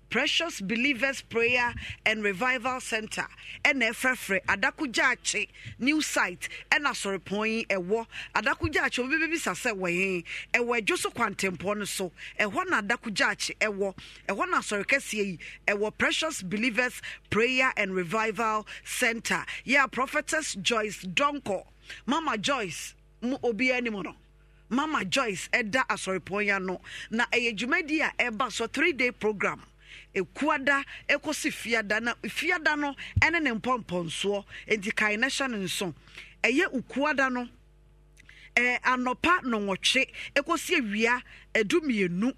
Precious Believers Prayer and Revival Center. NFFRE, Adakujache, new site, and Asorepoi, Ewo, Adakujache, Obibi Sasewe, Ewe Joso Quantempono, so, Ewana Adakujache, Ewo, Ewana Sorekesi, Ewo Precious Believers Prayer and Revival Center. Yeah, Prophetess Joyce Donko, Mama Joyce, Mu Obi Animono. mama joyce ɛda asɔrepɔnya no na ɛyɛ dwumadi a ɛba so three day program ekuada ekosi fiada na fiada no ɛne ne mpɔmpɔnsoɔ nti kae na hyɛ ne nso ɛyɛ ukuada no ɛɛ anɔpa nɔnwɔtwe ekosi ewia edu mmienu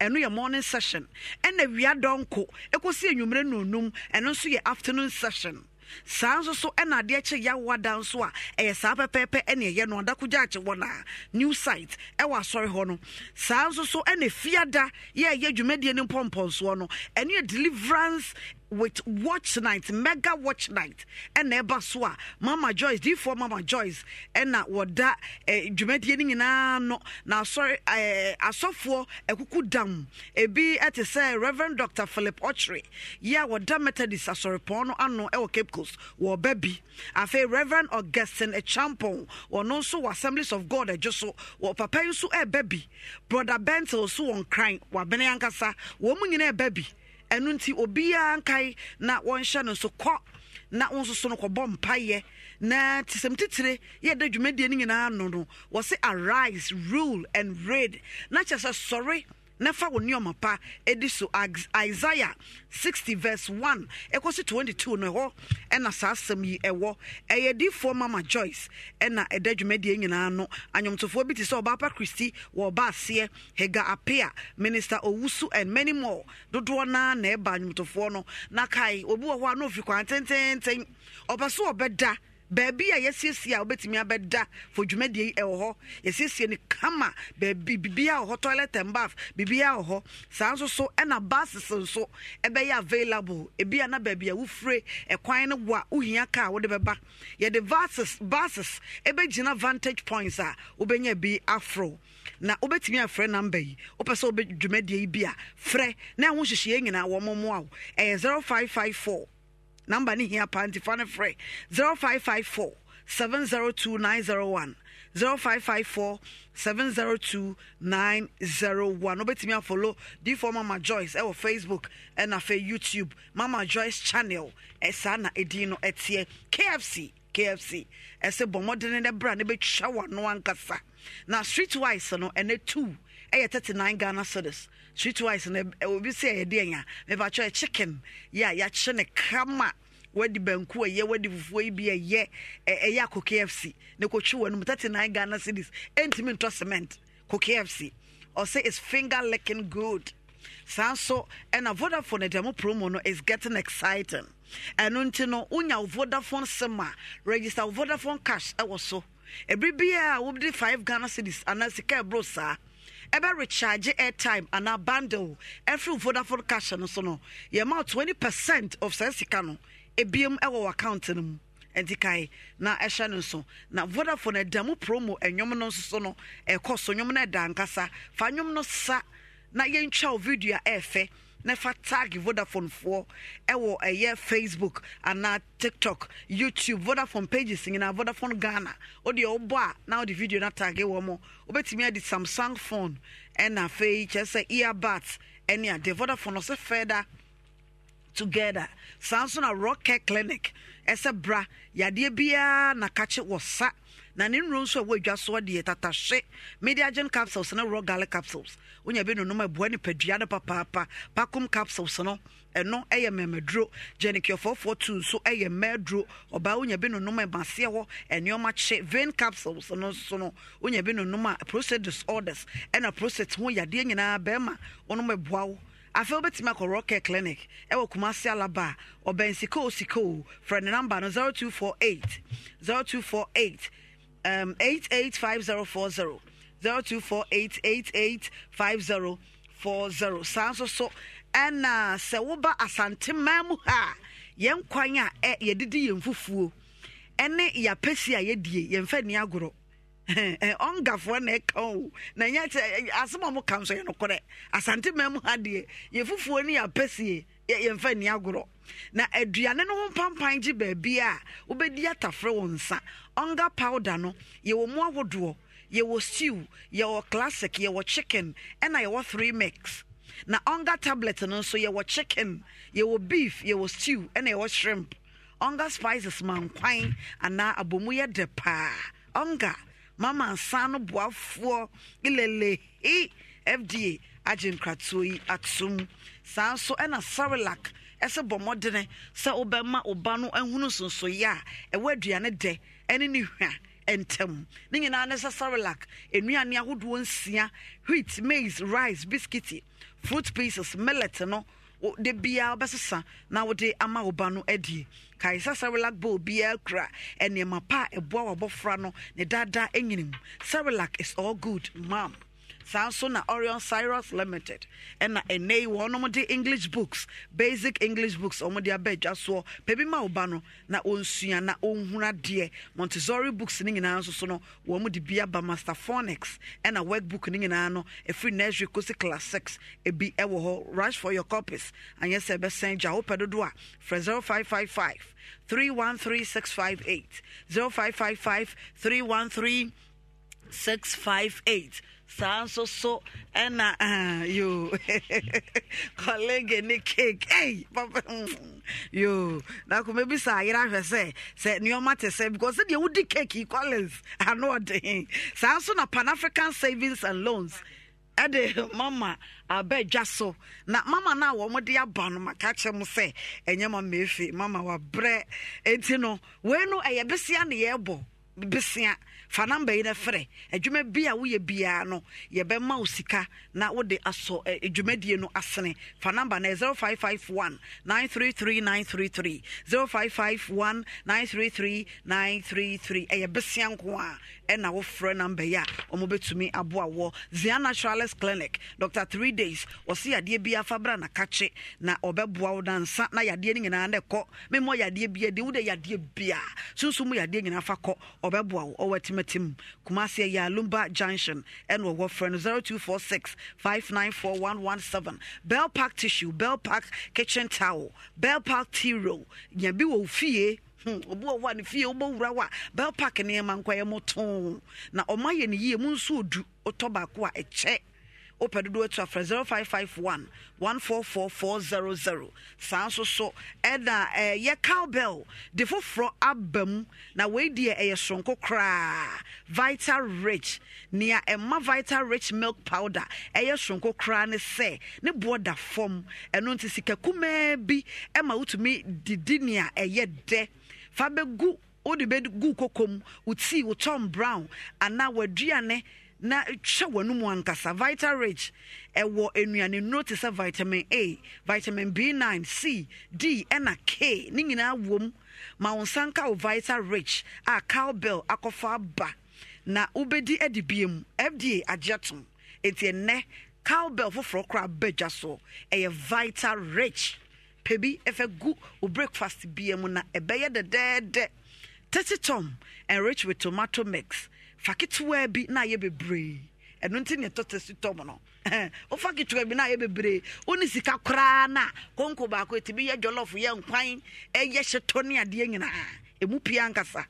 ɛno yɛ morning session ɛna ewia dɔnko ekosi enwumere nonum ɛno nso yɛ afternoon session saa nso so ɛna adeɛ kye yawoa da nso a ɛyɛ saa pɛpɛɛpɛ ɛne ɛyɛ no adakogya akye wɔ na new site ɛwɔ asɔre hɔ no saa nso so ɛna fiada yɛ ɛyɛ dwumadie ne mpɔmpɔnsoɔ no ɛne yɛ deliverance with watch night, mega watch night, and eba soa, Mama Joyce, D for Mama Joyce, and na wada eh dwumadie na no now sorry eh asofo ekuku dam ebi ete eh, say Reverend Dr. Philip Ochre, ya wada Methodist asorepon no ano e Cape Coast, wo baby. Afa Reverend Augustine Echampon, ono so Assemblies of God ejoso, wo papa nso e baby. Brother Bentel so on crying, wa bene ankasa, wo mu baby. ɛno nti obiara nkae na wɔnhyɛ no nso kɔ na wo nso so no kɔbɔ mpayɛ na tisɛm titire yɛda dwumadie no nyinaa no no wɔse arise rule and raid na kyerɛ sɛ sɔre na fa wo nneɛma pa ɛdi so isaiah 60 verse 1 ɛkɔ so 22 no ɛhɔ ɛna saa asɛm yi ɛwɔ ɛyɛ difoɔ mama joyce ɛna ɛda dwumadie nyinaa no anwomtofoɔ bi te sɛ ɔbaapa kristi wɔ ɔba aseɛ hega apea minister owusu and many more dodoɔ naa na ɛba anwomtofoɔ no na kae obi wɔ hɔ a na ofi kwan tententen ɔba so ɔbɛda baabi a yɛsiesie a wobɛtumi abɛda fo dwumadie yi ɛwɔ hɔ yɛsiesie no kama baabi biribiaa wɔ hɔ toilet and bath biribiaa wɔ hɔ saa nso so ɛna buses nso ɛbɛyɛ available ebi a na baabi a wofire ɛkwan no wo a wohia kaa wode bɛba yɛde bases buses ɛbɛgyina vantage points a wobɛnya bi aforo na wobɛtumi afrɛ namba yi wopɛ sɛ wobɛ dwumadie yi bi a frɛ na ɛho hyehyeɛ nyinaa wɔ mo wo ɛyɛ 0554 number ni hia pa nti free ne 0554 702901 901 0554 702 901 follow afolo difo mama joyce ɛwɔ eh, oh, facebook ɛna eh, fe youtube mama joyce channel ɛsaa eh, na ɛdin kfc kfc ese bomodene ne bra ne bɛtwa wano ankasa na streetwise no ene 2 ɛyɛ 39 ghana cedis sweet rice na obi sɛ yɛde ɛnya mepakyɛ chicken yɛ a yɛakyɛ ne krama wadi banku ɛyɛ wadi fufuo yi bi ɛyɛ ɛyɛ akɔ kfc na kɔtwi wɔ no mu thirty nine ghana cities ɛntumi ntɔ cement kɔ kfc ɔsɛ is finger licking good saa nso ɛna vodafone dɛm promo no is getting exciting ɛno nti no wonya vodafone sim a register vodafone cash ɛwɔ so ebiribiara a wobde five ghana cities anaa sika ɛboro saa ɛbɛ recharge airtime anaa bundle ɛfiri vodafone cash no so no yɛma twenty percent of saa sika no ebiem ɛwɔ account no mu nti kae na ɛhyɛ no nso na vodafone ɛda mu promo ɛnwom no nso so no ɛkɔ so nwom no ɛda nkasa fa nwom no sa na yɛntwa wo video a ɛɛfɛ na fa tag vodafone foɔ ɛwɔ ɛyɛ facebook anaa tiktok youtube vodafone pages nyinaa vodafone ghana wodeɛ wobɔ a na wode video na tag wɔ mɔ wobɛtumi ade samsung phone ɛna afei kyerɛ sɛ earbat ɛne adeɛ vodafone ɔsɛ fɛda together saa nso na rocket clinic ɛsɛ bra yadeɛ biara na kakye wɔ sa na ne nnuro nso a wɔadwa soɔ deɛ tatahye mediagen capsules ne raw garlic capsules wonya bi nonom ɛboa nipadua no papaapa pacom capsules no ɛno yɛ mmamaduro gyanikiɔfoɔfoɔ tu nso yɛ mmaaduro ɔbaa wonya bi nonom ɛmaseɛ hɔ nneɛma kye vein capsules no nso no wonya bi nonom a prostate disorders ɛna prostate ho yadeɛ nyinaa bɛrima wɔnom ɛboa wo afei wobɛtumi akɔ rocket clinic ɛwɔ kumase alaba a ɔbɛn sikoo sikoo frɛ ne namba no 0248 0248 um, 885040 0248885040 saa nso so ɛna sɛ woba asanteman mu ha a yɛn kwan a ɛ yɛdidi yɛn fufuo ɛne yɛapɛsi a yɛdie yɛmfa ni agorɔ ɔngafoɔ na ɛka o na nyɛ asɛm a mo ka nso yɛ nokorɛ asanteman mu ha deɛ yɛfufuo ne yɛapɛsie yɛmfa ni agorɔ na aduane no ho mpampan gye baabi a wobɛdi atafrɛ wɔ nsa ɔnga powder no yɛwɔ mu ahodoɔ yɛwɔ stew yɛwɔ classic yɛwɔ chicken ɛna yɛwɔ three mix na ɔnga tablet no nso yɛwɔ chicken yɛwɔ beef yɛwɔ stew ɛna yɛwɔ shrimp ɔnga spices mankwan anaa abomu yɛ dɛ paa ɔnga mama nsa no boafoɔ ilelehi fda agye nkratoɔ yi atom saa nso ɛna sarelac ɛsɛ bɔ mmɔdene sɛ wobɛma oba no ahunu sonsoyɛ a ɛwɔ aduane dɛ ɛne ne hwa ntɛm ne nyinaa ne sɛ sarelac nnuane ahodoɔ nsia wheat maize rice biscuity fruit pieces millet no de biara wobɛsesa na wode ama wo ba no adie kae sɛ sarelac bowl biara kura nneɛma pa a ɛboa wabɔfra no ne daadaa nyinimu sarelac is all good mam saa na orion cyrus limited ɛna ɛnɛ yi wɔn nom de english books basic english books wɔn de abɛ adwa soɔ baabi ma ɔba no na ɔnsua na ɔnhuna deɛ montessori books ne nyinaa nso so no wɔn de bi aba master phonics ɛna workbook ne nyinaa no ɛfiri nursery kɔsi class six ebi ɛwɔ hɔ rush for your copies anyɛ sɛ ɛbɛsɛn gya wopɛ dodo a frɛ zero five five five three one three six five eight zero five five five three one three. six five eight saa nso so ɛna uh, yo kɔlege ne cake ei papa mm, yo na kò mẹbi sá ayé ahwẹ sẹ sẹ nneɛma te sẹ because sẹ deɛ wodi cake yi collins ano ɔden saa nso na pan african savings and loans. ɛde mama abɛdwa so na mama no a wɔn de aba no maka kyerɛ mu sɛ ɛnyɛ mama efe mama wabrɛ eti no wei no ɛyɛ besia na yɛrebɔ besia fa namba yi no frɛ adwuma bi a woyɛ biara no yɛbɛma wo sika na wode asɔ adwumadie no asene fa namba no 0551 ɛyɛ besia nko a ɛna wofrɛ namba yi a ɔmobɛtumi aboa wɔ zia naturalist clinic dr 3 days ɔse yadeɛ bi afa bra nakakye na ɔbɛboa wo dansa na yadeɛ no nyinaa na ɛkɔ memmɔ yadeɛ bia de wode yadeɛ bia sunsum yadeɛ nyinaa fa kɔ ɔbɛboa wo ɔwɔ atimi amatem kumase ɛyɛ junction ɛna ɔwɔ frɛ no 0246 594117 bell park tissue bell park kitchen towel bell park tea roll nya bi wɔ fie hmm, obi wɔ hɔ a ne fie wobɛwura wo a bell park nneɛma nkɔyɛ mo too na ɔma yɛ ne yie mu nso ɔdu ɔtɔ baako a ɛkyɛ wopɛ dodoɔ tu afrɛ 0551 144400 saa nso so ɛna eh, cowbell de foforɔ aba mu na wei deɛ ɛyɛ soronko koraa vital rich nea ɛma vital rich milk powder ɛyɛ soronko koraa ne sɛ ne boɔ da fam ɛno nti sika kumaa bi ɛma wotumi didi nea ɛyɛ dɛ fa bɛgu wode bɛgu kokom wo tii wo tom brown anaa w'aduane na twɛ wɔn mu ankasa vital rich ɛwɔ nnuane nnuro te sɛ vitamin a vitamin b9 c d ɛna k ne nyinaa wɔm ma wɔn nsa nka wɔ vital rich a cowbell akɔfa aba na wobɛdi adi bie mu fda agye tom eti nnɛ cowbell foforɔ koraa badwa soɔ ɛyɛ vital rich pɛ bi ɛfɛ gu o breakfast bie mu na ɛbɛyɛ dɛdɛɛdɛ tete tom enrich with tomato mix fa ketewa bi na ayɛ bebree ɛno nti ne ɛtɔtɛ si tɔm no wofa ketewa bi na ayɛ bebree wone sika koraa na konko baako ɛtumi yɛ jɔlɔfo yɛ nkwan ɛyɛ hyetɔ ne adeɛ nyinaa ɛmu pia nkasa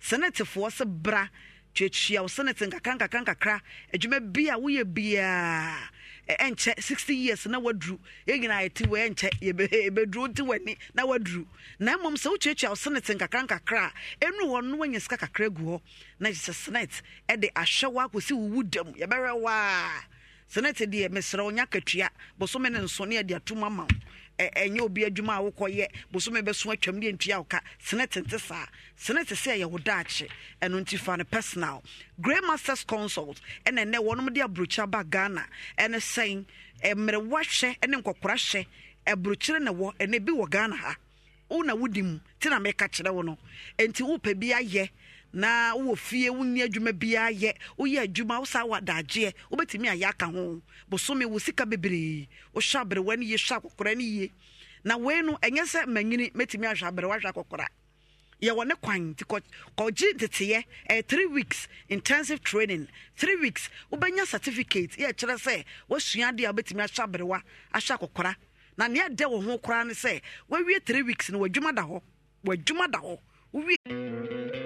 senetefoɔ se bra tuatua wo senete nkakra nkakra nkakra adwuma bi a woyɛ biaa ɛnkyɛ sixty years na waduru yɛn nyinaa yɛte wɔ ɛnkyɛ yɛbɛduru nti w'ani na waduru na mmom sɛ wotuatua wo senate nkakra nkakra a ɛnu hɔ no wanya sika kakra gu hɔ na gyesɛ senate ɛde ahwɛ wo akɔsi wo wu dam yɛbɛhwɛ wo a senate deɛ mesrɛ wo katua bosome ne nso ne yɛde atom ama wo ɛnyɛ obi adwuma a wokɔyɛ bosome bɛso atwam ne antua woka sene tente saa sene te sɛ ɛyɛ wo daakye ɛno nti fa no personal grey masters consult ɛna ɛnɛ wɔnom de aburokyi ba ghana ɛne sɛn mmerewa hyɛ ne nkɔkora hyɛ aburokyire na wɔ ɛna bi wɔ ghana ha wo na wodi mu nti na meka kyerɛ wo no nti wopɛ bi ayɛ na wowɔ fie wonni adwuma biara yɛ woyɛ adwuma wo saa wadagyeɛ ayɛ aka ho wo sika na wei no ɛnyɛ sɛ manyini mɛtumi ahwɛ aberewa hwɛ akɔkora yɛwɔ ne kwan nti kɔgye teteɛ ɛyɛ three weeks intensive training three weeks wobɛnya certificate yɛ kyerɛ sɛ woasua a wobɛtumi aberewa akɔkora na nea ɛdɛ wɔ ho koraa ne sɛ woawie three weeks no wadwuma da hɔ wadwuma da hɔ wowie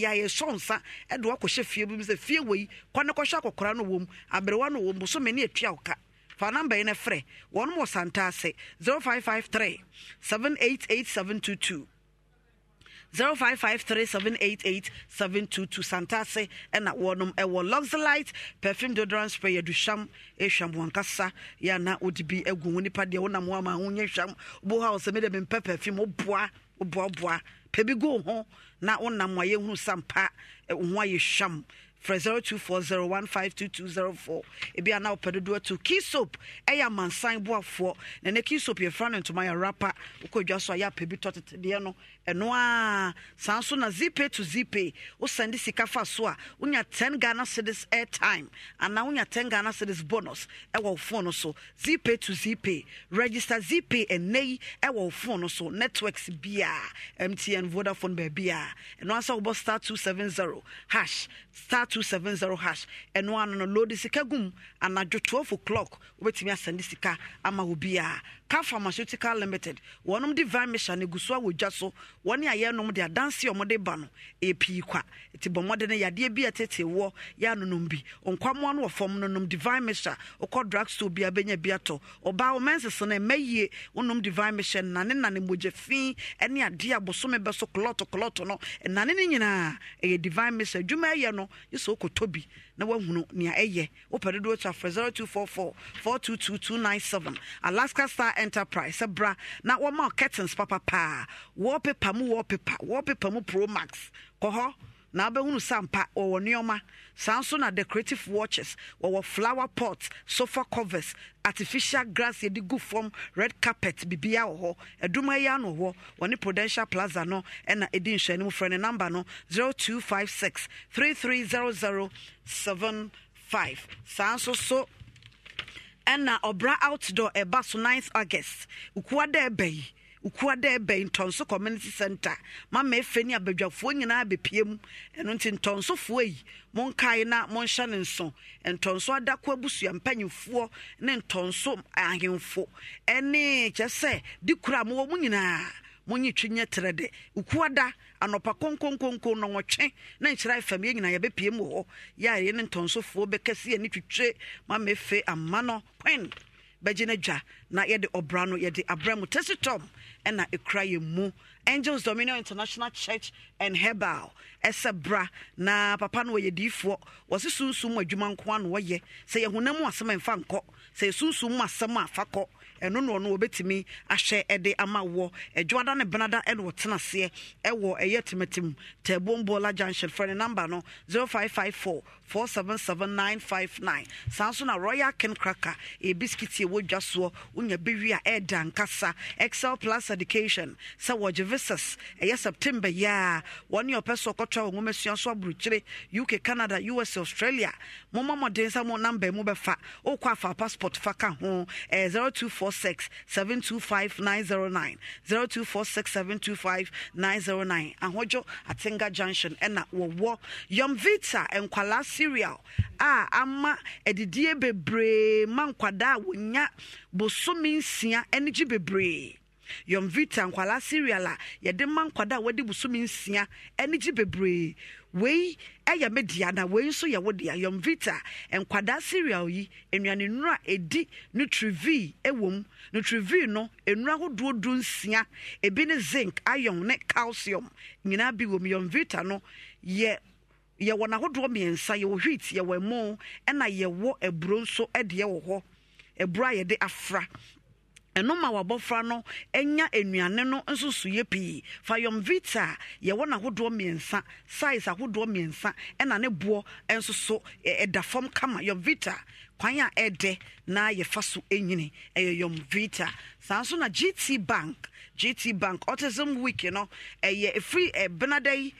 yà yẹ sọ nsa ɛde wakɔhyɛ fie bi mu sɛ fie wɔ yi kɔ ne kɔhyɛ akɔkora no wɔ mu aberewa no wɔ mu bosome ne etua ɔka fa namba yi na frɛ wɔn wɔ santa ase zero five five three seven eight eight seven two two. 0553788722 santase ɛna wɔnom ɛwɔ luxelite perfume deodorant spray yɛduhwam ɛhwam wɔn yɛana wode bi agu ho nipa deɛ wonam ho ho nyɛ hwam wobo sɛ mede mempɛ perfume woboa woboaboa pɛ go ho na wonam a yɛhunu sampa wo ho ayɛ hwam frɛ 0240152204 ebi ana wopɛ dodoɔ to key soap ɛyɛ amansan boafoɔ na ne key soap yɛfra no ntoma yɛ rapa wokɔ dwa so a yɛ apɛ bi tɔtetedeɛ no ɛno a saa nso na to zipay wosɛnde sika fa so a wonya 10 ghana cities airtime anaa wonya 10 ghana cities bonus ɛwɔ wo phone so zipay to zipay register zipay ɛnɛ yi ɛwɔ wo phone so networks biaa mtn vodafone baabiaa ɛno ansa wobɔ star 270 hash star 270 hash ɛno ano no lode sika gum anadwo 12 o'clock wobɛtumi asɛnde sika ama wo biaa car pharmaceutical limited wɔnom divine mission ne gu so a so wɔne ayɛ nom de adanse a ɔmode ba no ɛpii kwa nti bɔ mmɔde no yadeɛ bi a ɛtete wɔ yɛ anonom bi nkwamoa no wɔ fam divine mixture wokɔ drug store bia bɛnya bi atɔ ɔbaa wo mansese no ɛma wonom divine mixture nane nane mogya fii ne adeɛ a bosome bɛ so kolɔto kolɔto no ɛnane no nyinaa ɛyɛ divine mixture adwuma ɛyɛ no yɛ sɛ wokɔtɔ bi na woahunu nea ɛyɛ wopɛ dodoɔ to afrɛ 0244 422297 alaska star enterprise sɛ bra na wɔma curtains papapaa wallpaper mu wallpaper wallpaper mu pro max kɔ hɔ na wobɛhunu sa Samsung wɔwɔ nneɔma saa nso na decorative watches wɔwɔ flower pot sofa covers artificial grass yɛde gu fam red carpet bibia wɔ hɔ aduma yi ano hɔ wɔne prudential plaza no ɛna ɛdi nhwɛne mu frɛ ne number no 0256 330075 saa nso so ɛna ɔbra outdoor ɛba so 9th august ukua dɛ ɛbɛ yi ukua da ɛbɛn ntɔnso community center mama efe ne abadwafoɔ nyinaa bepie mu ɛno nti ntɔnsofoɔ yi monkae na monhyɛ ne nso ntɔnso adako abusua mpanyinfoɔ ne ntɔnso ahemfo ɛne kyɛ sɛ de kura mo wɔ mu nyinaa monyi twi nyɛ terɛ de ukua da anɔpa konkonkonko nɔnwɔtwe na nkyerɛ fam yɛ nyinaa yɛbɛpie mu wɔ hɔ yɛ a yɛ ne ntɔnsofoɔ bɛkɛse yɛ ne twitwe mama efe ama no kwen bɛgye dwa na yɛde ɔbra no yɛde abrɛ mu tesitom ɛna ɛkura yɛ mu angels dominion international church and herbal ɛsɛ bra na papa no wɔyɛ diifoɔ wɔse sunsum mu adwuma nko ano wɔyɛ sɛ yɛhonam mu asɛm ɛmfa nkɔ sɛ yɛsunsum mu asɛm a fa kɔ ɛno no ɔno wɔbɛtumi ahyɛ ɛde ama wɔ adwoada ne benada ɛne wɔtena aseɛ ɛwɔ ɛyɛ timatim tɛbombola junction frɛ ne number no 0554 477959 saa nso na royal ken cracker ɛyɛ e biskit ɛwɔ dwa soɔ wonya bɛwi a ɛda nkasa excel plus education sɛ wɔgye visas ɛyɛ september yi a wɔne ɔpɛ so ɔkɔtoa wɔ nwomasua so aburokyire uk canada us australia moma mmɔden sɛ mo number mu bɛfa wokɔ afa passport fa ka ho ɛyɛ 0246 725909 0246 725 909 ahodwo atenga junction ɛna wɔwɔ yom vita nkwalaa cereal a ama adidie bebree ma nkwadaa a wɔnya bosome nsia ne gye bebree yomvita nkwala cereal a yɛde ma nkwadaa a wɔde bosome nsia ne gye bebree wei ɛyɛ me dea na wei nso yɛ wo dea yomvita nkwadaa cereal yi nnuane nnura ɛdi nutrivi ɛwɔ mu nutrivi no nnura ahodoɔ du nsia ebi ne zinc iron ne calcium nyinaa bi wɔ mu yomvita no yɛ yɛwɔ n'ahodoɔ mmiɛnsa yɛwɔ wheat yɛwɔ ɛmo ɛna yɛwɔ aburo nso ɛdeɛ wɔ hɔ aburo a yɛde afra ɛno ma wabɔfra no anya nnuane no nso so yɛ pii fa yɔm vita a yɛwɔ n'ahodoɔ mmiɛnsa size ahodoɔ mmiɛnsa ɛna ne boɔ nso so ɛda fam kama yɔm vita kwan a ɛdɛ na yɛfa so nyini ɛyɛ yɔm vita saa nso na gt bank gt bank autism week no ɛyɛ ɛfiri ɛbenada yi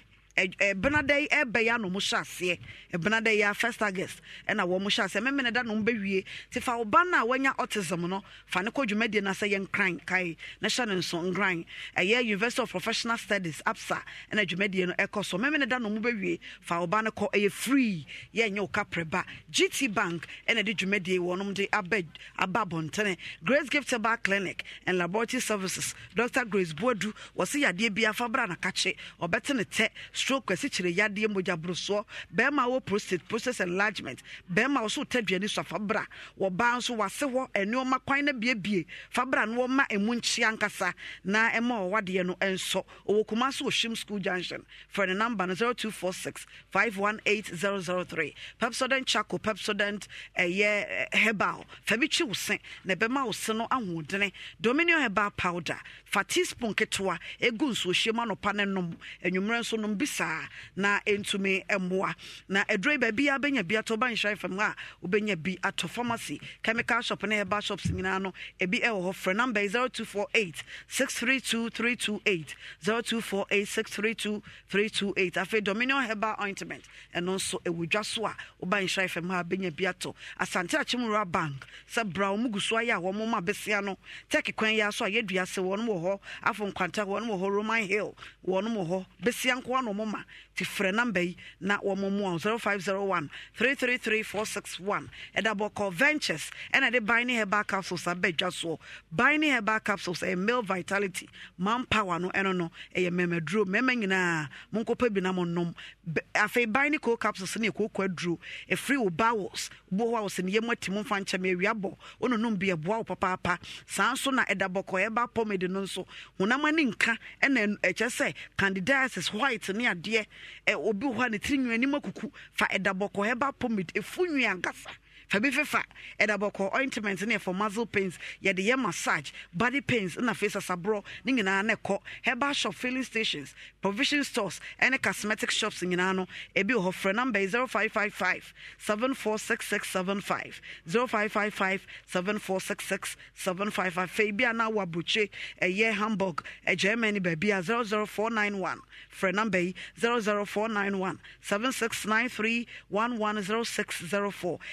benadɛ ɛbɛyɛ ano mo hyɛ aseɛ benadɛ first august ɛna wɔn mo hyɛ aseɛ mɛmɛnɛ da no mo bɛwie te fa ɔba no a wanya autism no fa ne kɔ dwumadie no sɛ yɛ nkran kae na hyɛ ne nso nkran ɛyɛ university of professional studies apsa ɛna dwumadie no ɛkɔ so mɛmɛnɛ da no mo bɛwie fa ɔba no kɔ ɛyɛ free yɛnyɛ wo kaprɛba gt bank ɛna de dwumadie wɔnom de aba aba abɔntene grace gift bar clinic and laboratory services dr grace buadu wɔsi yadeɛ bi afa bra na kakye ɔbɛte ne tɛ stroke asikyire yadeɛ mogya borosoɔ bɛrima wɔ prostate process enlargement bɛrima wɔ so tadwani so afabra wɔbaa nso wase hɔ ɛnneɛma kwan no biebie fabra no wɔma ɛmu nkyea nkasa na ɛma ɔwadeɛ no ɛnsɔ ɔwɔ kuma so wɔ shim school junction frɛ no number no 0246 518003 pepsodent chaco pepsodent ɛyɛ eh, herbal fa bi twi wo se na ɛbɛma wo se no ahoɔdene dominion herbal powder fa teaspoon ketewa ɛgu nsuohyiam anɔpa no nom anwummerɛ nso nom bisi saa na ɛntumi mmoa na ɛduroi baabi a bɛnya bi atɔ banhyɛ fam a wobɛnya bi atɔ pharmacy chemical shop ne ɛba shops nyinaa no ebi ɛwɔ hɔ frɛ number yi 0248 632 328 0248 632 328 afei dominion herbal ointment ɛno nso ɛwɔ dwa so a wobanhyɛ fam a bɛnya bi atɔ asante akyemura bank sɛ bra wɔn gu so ayɛ a wɔn ma bɛsia no tɛk kwan yi aso a yɛdua se wɔn wɔ hɔ afɔ nkwanta wɔn wɔ hɔ roman hill wɔn wɔ hɔ bɛsia nko ano wɔn ma nti frɛ namba yi na wɔmomoa wo 0501 333461 ɛda bɔkɔ ventures ɛna ɛde binding herbal capsules abɛdwa soɔ binding herbal capsules ɛyɛ male vitality power no ɛno no ɛyɛ mmɛmaduro mmɛma nyinaa monkɔpɛ bi na monnom afei bine co capsules ne ɛkookɔ aduro ɛfiri wo bowels wo hɔ a wo sɛ meyɛ mu ati mo mfa nkyɛm awia bɔ wononom bi ɛboa wo papaapa saa nso na ɛda bɔkɔ ɛba pomade no nso honam nka ɛna ɛkyɛ sɛ candidiasis white ne adeɛ obi hɔ a ne tiri nwini anim akuku fa ɛda bɔkɔ ɛba pomid efu nwi ankasa. fa bi fefa ɛda bɔkɔ ointment ne ɛfɔ muscle pains yɛde yɛ massage body pains na afei sasaborɔ ne nyinaa na ɛkɔ herbal shop filling stations provision stores ɛne cosmetic shops nyinaa no ebi wɔ hɔ frɛ number zero five five five seven four six six seven five zero five five five seven four six six seven five five. 0555 746675 0555 746675 afei bi a na awɔ ɛyɛ hamburg germany baabi a 00491 frɛ number yi 00491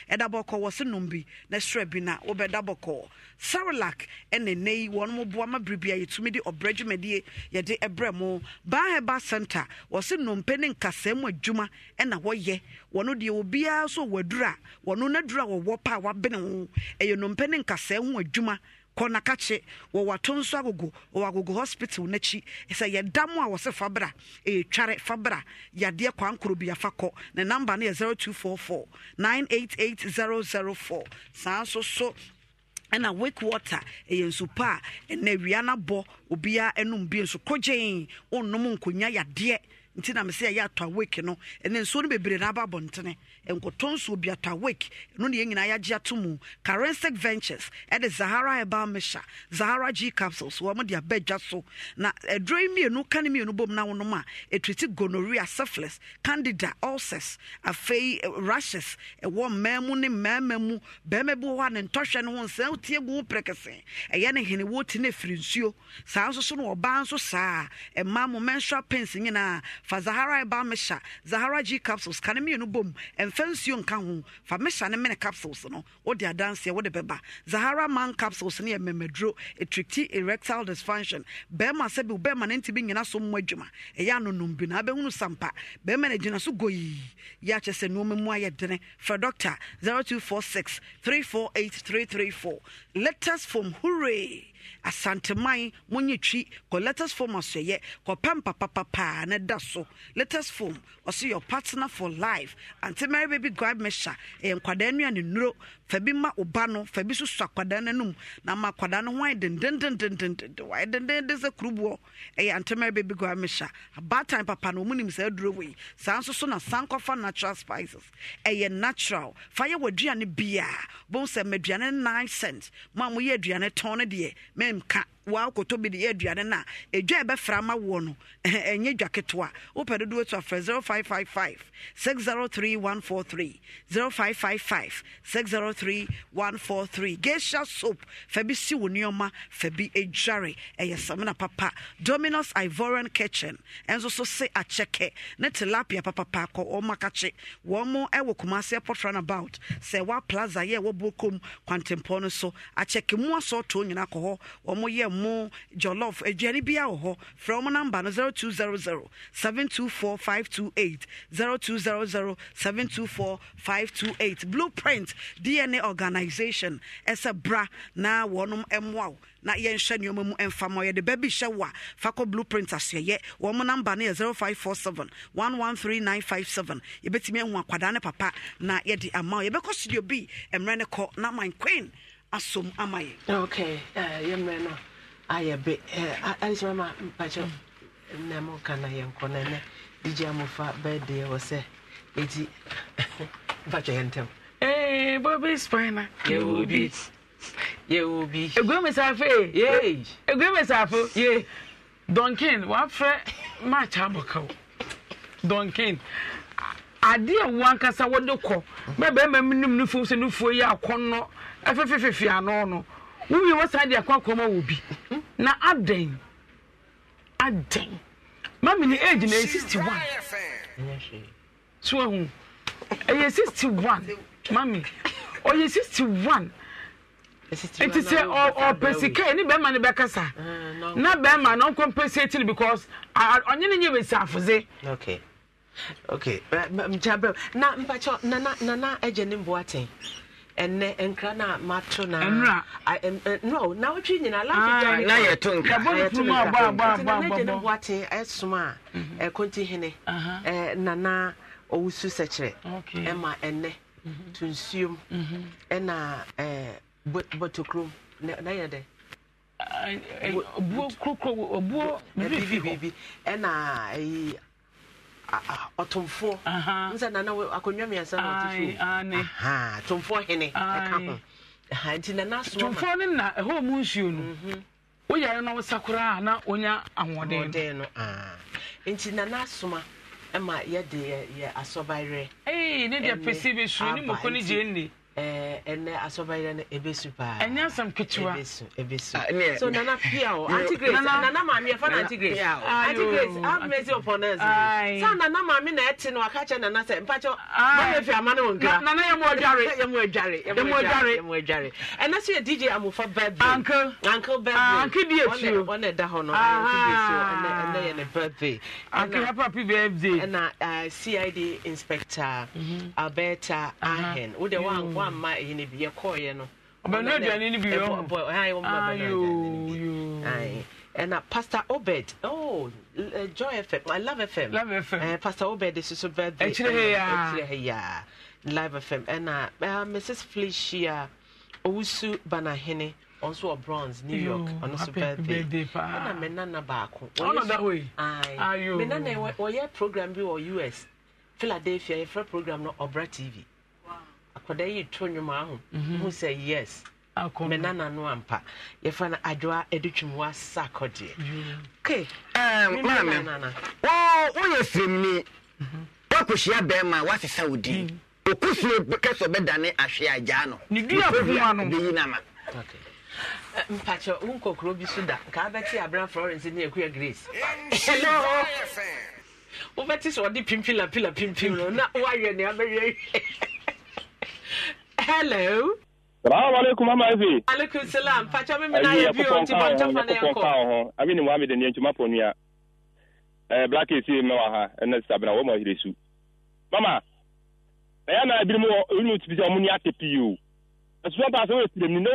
ɛda bɔkɔ bɔkɔ wɔ se nom bi na serɛ bi na wobɛda bɔkɔɔ sarelac ɛne nɛ yi wɔn boa ma biribi a yɛtumi de ɔbrɛ dwumadie yɛde ɛbrɛ mo baa center wɔ se nnompe ne nkasɛɛ mu adwuma ɛna wɔyɛ wɔno deɛ obiara so wɔno wɔwɔ wabene ho ɛyɛ ne nkasɛɛ ho adwuma kɔ na nso agogo wɔwɔ agogo hospital n'akyi sɛ yɛda mu a wɔsɛ fabra ɛretware fabra yadeɛ kwankoro bi afa kɔ ne namba no yɛ 0244 988004 saa nso so ɛna wake water ɛyɛ nsu pa a ɛna awia no abɔ obiara nom bi nso kɔgyee ɔnnom nkonya yadeɛ nti na mesɛ ɛyɛ atɔ awake no ɛne nsuo no bebree na aba abɔntene nsuo bi atɔ awake ɛno ne yɛn nyinaa yɛagye ato mu carensec ventures ɛde zahara herbal mesha zahara g capsules wɔn de aba so na aduro yi mmienu ka ne mmienu bom na wɔnom a ɛtuti gonorrhea syphilis candida ulcers afei eh, rashes ɛwɔ mmaa mu ne mmarima mu barima bi wɔ hɔ a ne ntɔhwɛ no ho nsɛn tie gu ho pɛrɛkɛsɛn ɛyɛ ne hene wɔti ne firi nsuo saa nso so no ɔbaa nso saa mmaa mo menstrual pains nyinaa fa zahara ɛba mehyɛ zahara g capsules ka ne mmienu bom ɛmfa nsuo nka ho fa mehyɛ ne mene capsules no wode adanseɛ wode bɛba zahara man capsules no yɛ mmamaduro ɛtrikti erectile dysfunction bɛrima sɛ bi wo bɛrima ne ntimi nyina so mmɔ adwuma ɛyɛ anonom bi na abɛhunu sampa bɛrima no gyina so goyii yɛakyɛ sɛ nnoɔma mu ayɛ dene frɛ doctor 0246 348334 letters from hooray asanteman monye twi kɔ letters form asɔyɛ kɔpɛ mpapapapaa ne da so letters form ɔsɛ your partner for life ante mary baby guide measure ɛyɛ nkwadaa nua ne nuro fa bi ma ɔba no fa bi so akwadaa no anum na ma akwadaa no ho ayɛ dendendendendenden wayɛ dendenden sɛ kuruboɔ ɛyɛ ante mary baby guide measure abaatan papa no ɔmu nim saa aduro wɔ yi saa nso so na san kɔfa natural spices ɛyɛ natural fa yɛ wɔ aduane biaa bɔn sɛ ma aduane nine cent mo a moyɛ aduane tɔn no deɛ memka wa akɔtɔ bi de yɛ aduane no a ɛdwa ɛbɛfra ma woɔ no ɛnyɛ dwa ketewa wopɛ dodoɔ to afrɛ 0555 603143 0555 603143 gesha soap fa bi si wo nneɔma fa bi adware ɛyɛ papa dominos ivoran kitchen ɛnso so se akyɛkɛ ne tilapia papapa akɔ wɔn kumase airport runabout sɛ wa plaza yɛ wɔ no so akyɛkɛ mu kɔ hɔ wɔn yɛ mo jollof aduane bia wɔ hɔ frɛ mo namba no 0200 724 528 0200 724 528 blueprint dna organization ɛsɛ bra na wɔnom mmoa wo na yɛnhwɛ nneɔma mu ɛmfa ma yɛde baabi hyɛ wo a fa kɔ blueprint asoɛyɛ wɔ mo namba no yɛ 0547 113957 yɛbɛtumi ahu akwadaa ne papa na yɛde ama wo yɛbɛkɔ studio bi mmerɛ ne kɔ na man queen asom ama yɛ okay uh, yɛmmerɛ ayɛ be adekyɛ mama mpakyɛ na moka na yɛnkɔ no ɛnɛ digya mofa bɛdeɛ wɔ sɛ ɛti mpakyɛ yɛ ntɛm bobi spina yɛwɔ bi yɛwɔ bi egua mesafo yee egua mesafo ye donkin wafrɛ match abɔkaw donkin adeɛ a wankasa wɔde kɔ mɛ bɛrima mu nim no fom sɛ no fuo yi akɔnnɔ ɛfefefefe ano no wowie wɔ saa deɛ akɔ akɔma wɔ bi na adɛn adɛn mami ni age na ɛyɛ sixty one so ɛyɛ sixty one mami ɔyɛ sixty one eti sɛ ɔpɛ sika ɛni bɛrima ni bɛkasa na bɛrima na ɔnkɔ mpɛ sɛ etiri because ɔnye ne nye bɛsi afuze. okay okay mkyabere na mpakyɛ nana nana ɛgye ne mboa ten. ɛnɛ nkra na no na na a bɔ bɔ bɔ bɔ bɔ boate ɛsom a mhm. ɛkonti hene uh-huh. nana ɔwusu sɛkyerɛ ɛma ɛnɛ mhm. to nsuom mhm. ɛna na dɛ buo kurokuro buo ɛna ɔtomfoɔ nsa nana akonnwa mmiɛnsa na ɔte so tomfoɔ hene ɛka ho nti nana soa tomfoɔ no na ɛhɔ mu nsuo no mhm. woyare na wosa koraa na wonya ahoɔden no nti nana asoma ma yɛde yɛ asɔbayerɛ ne deɛ pɛsi bɛsuro ne mɔkɔ no gye nni ɛnɛ eh, asɔbayɛ no ɛbɛsu paa ɛnyɛ asɛm ketewa ɛbɛsu ah, so nana pia o aunty grace nana maame yɛfa no aunty grace aunty grace have mercy upon us saa nana maame na ɛte no aka kyɛ nana sɛ mpakyɛ mama fi ama no wɔ nkira nana yɛ mu adware yɛ mu adware yɛ mu adware yɛ mu adware ɛnɛ so yɛ dj amofa birthday uncle uncle birthday uncle bi etu wɔn na ɛda hɔ no ɛnɛ ɛnɛ yɛ ne birthday uncle happy happy birthday ɛna eh, cid inspector mm-hmm. alberta uh-huh. ahen wo de wa nkwa amma ɛyi ne bi yɛkɔɔyɛ no ɔbɛnu aduane no bi yɛ ɛna pastor obed oh eh, joy fm i love fm love fm uh, eh, pastor obed is so bad ɛkyerɛ hɛ yaa ɛkyerɛ hɛ yaa live fm ɛna uh, eh, mrs felicia owusu banahene ɔnso wɔ bronze new york ɔno so birthday ɛna me nana baako me nana wɔyɛ program bi wɔ us philadelphia yɛfrɛ program no ɔbra tv akwadaa yi to nnwom ahụ mu mhm. sɛ yes me nana no ampa yɛfa no adwoa ɛde twum wa sa akɔdeɛ mhm. woyɛ firimni mhm. woakɔhyia bɛrima woasesa wo din ɔkusuo kɛ sɛ ɔbɛdane ahwe agyaa no bɛyi ya ama mpakyɛ wo nkokoro bi so da nka wobɛte abra florence ne akua grace wobɛte sɛ ɔde pimpilapila pimpim na hello. Salamu alaikum mama efi. Alaikum salam. Pacha mimi na yebi o ti bon tofa na yanko. Ko Abi ni Muhammad ni ntuma ponua. Eh black is me wa ha. Ena sabna wo mo hiresu. Mama. Na ya na bi mu o mu ti bi o mu ni ate pi o. Asu ba so e tirem ni no